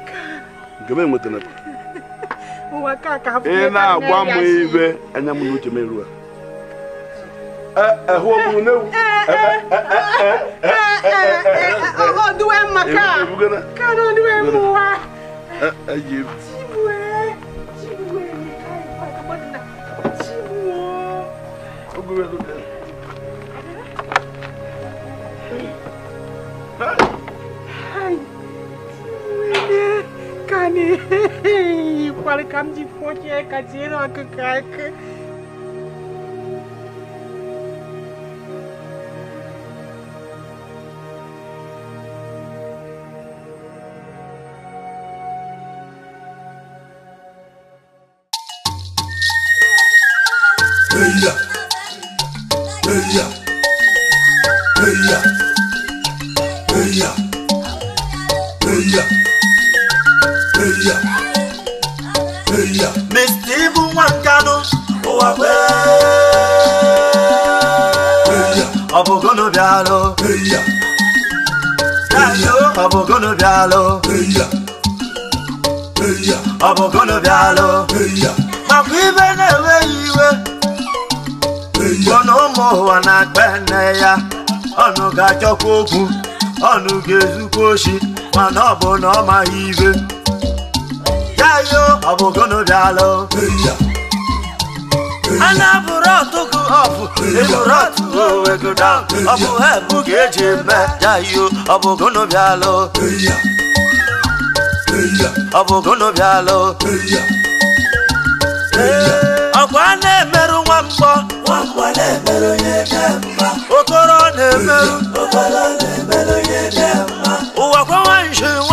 na, nke m enwetara ị na-agwa m iwe anya eh eh eh eh eh eh eh eh eh eh eh káà ọdúnwẹ̀ mú wa. Hi. kane. Pal kam du fond, qui est ọ bụ golobialụ ọ bụ golobialụ makwa ibe na-enweghị iwe ọ na ụmụ ụwa na-akpa nne ya ọnụ ga-achọkwa okwu ọnụ ga-ezukwa oshi mana ọ bụ na ọ maghị ibe ya yo ọ bụ ana bụrụ ọtụkụ ọbụ ebụrụ ọtụkụ onwe go down ọ bụ hebụ ka eji eme yayo ọ bụ gonobialụ ọ bụ gonobialụ ọkwa na-emerụ nwa mgbọ okoro na-emerụ ụwa kwa nwaanyị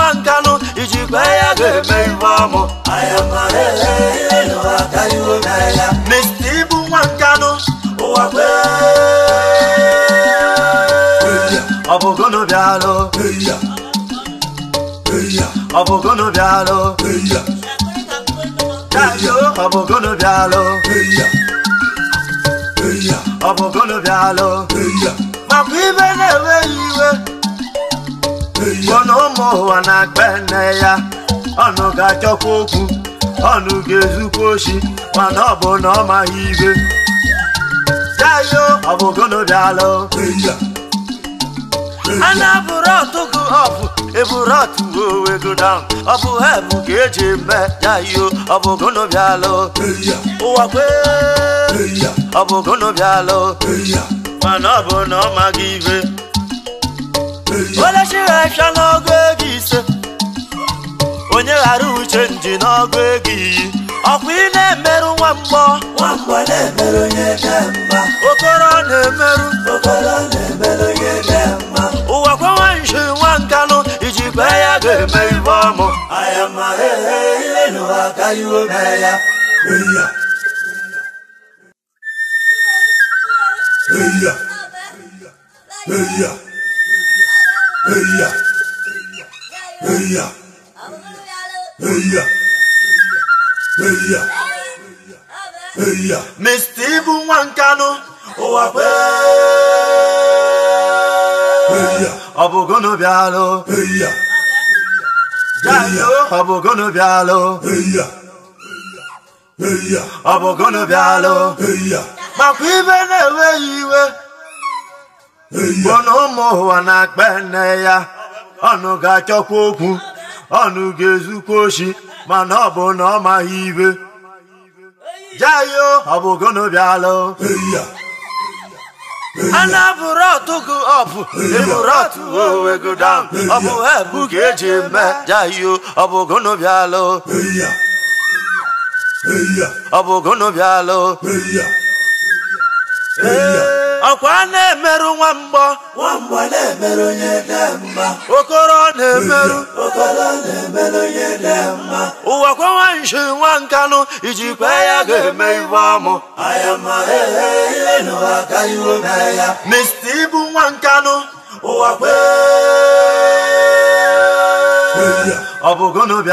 Meiwamo, Ayamarele, no Akayo Naya, Mistibu Wankano, Oape, Abogono Bialo, Abogono Bialo, Kayo, Abogono Bialo, Abogono Bialo, Mapibe Newe Iwe. ọnụ ụmụ ụwa na-akpa nne ya ọnụ ga-achọkwa okwu ọnụ ga-ezukwa oshi mana ọ bụ na ọ maghị ibe yayo ọ bụ gonobialụ a na-abụrụ ọtụgụ ọbụ eburu ọtụgụ owegodam ọ bụ hebụ ka eji eme yayo ọ bụ gonobialụ ụwa kwee ọ bụ gonobialụ mana ọ bụ na ọ maghị ibe onye chirefịa n'ọgụ ego ise onye ghara uche nji n'ọgụ ego iyi ọkwa ị na-emerụ nwa mgbọ okoro na-emerụ ụwa kwewa nji nwa nkanụ iji kwee ya ga-eme ibe ọmụ Yeah. Hey hey hey hey ya, ya, ya, ya, hey ya, hey ya. Mr. Ibu Nwankanu, ụwa kwe. Eya. Ọ bụ gụnụ bịalụ. Eya. Eya. Ọ bụ gụnụ bịalụ. Eya. Eya. Ọ bụ gụnụ bịalụ. Eya. Makwa ibe na-enweghị iwe. mana ụmụ ụwa na-akpa nne ya ọnụ ga-achọkwa okwu ọnụ ga-ezukwa oshi mana ọ bụ na ọ maghị ibe jayo ọ bụ gonobialụ ana bụrụ ọtụgụ ọbụ eburu ọtụ owe go down ọ bụ hebu ka eji eme jayo ọ bụ gonobialụ ọ bụ gonobialụ ọkwa na-emerụ nwa mgbọ okoro na-emerụ mma. ụwa kwa nwanshi nwa nkanụ ijikwa ya ga-eme ibe ọmụ mista e, e, e, ibu nwa nkanụ ụwa kwe ọ bụ n'obi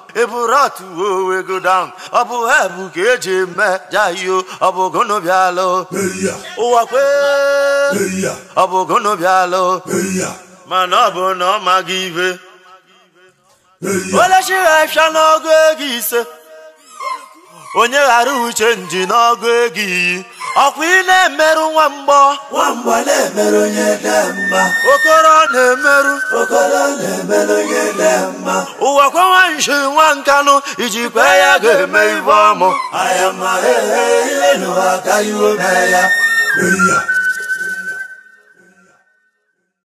eburatuwe go down ọ bụ hebu ka eji eme jayo ọ bụ gonobialụ kwee ọ bụ gonobialụ mana ọ bụ na ọ maghị ibe olechighị afịa n'ọgụ ego ise onye ghara uche nji n'ọgụ ego iyi ọkwa ị na-emerụ nwa mgbọ nwamba na-emerụ onye dị mma okoro na-emerụ okoro na-emerụ onye dị mma ụwa kwawa nshi nwa nkanụ kwe ya ga-eme ibe ọmụ ayamahehe ihe nụwa aka iwe mee ya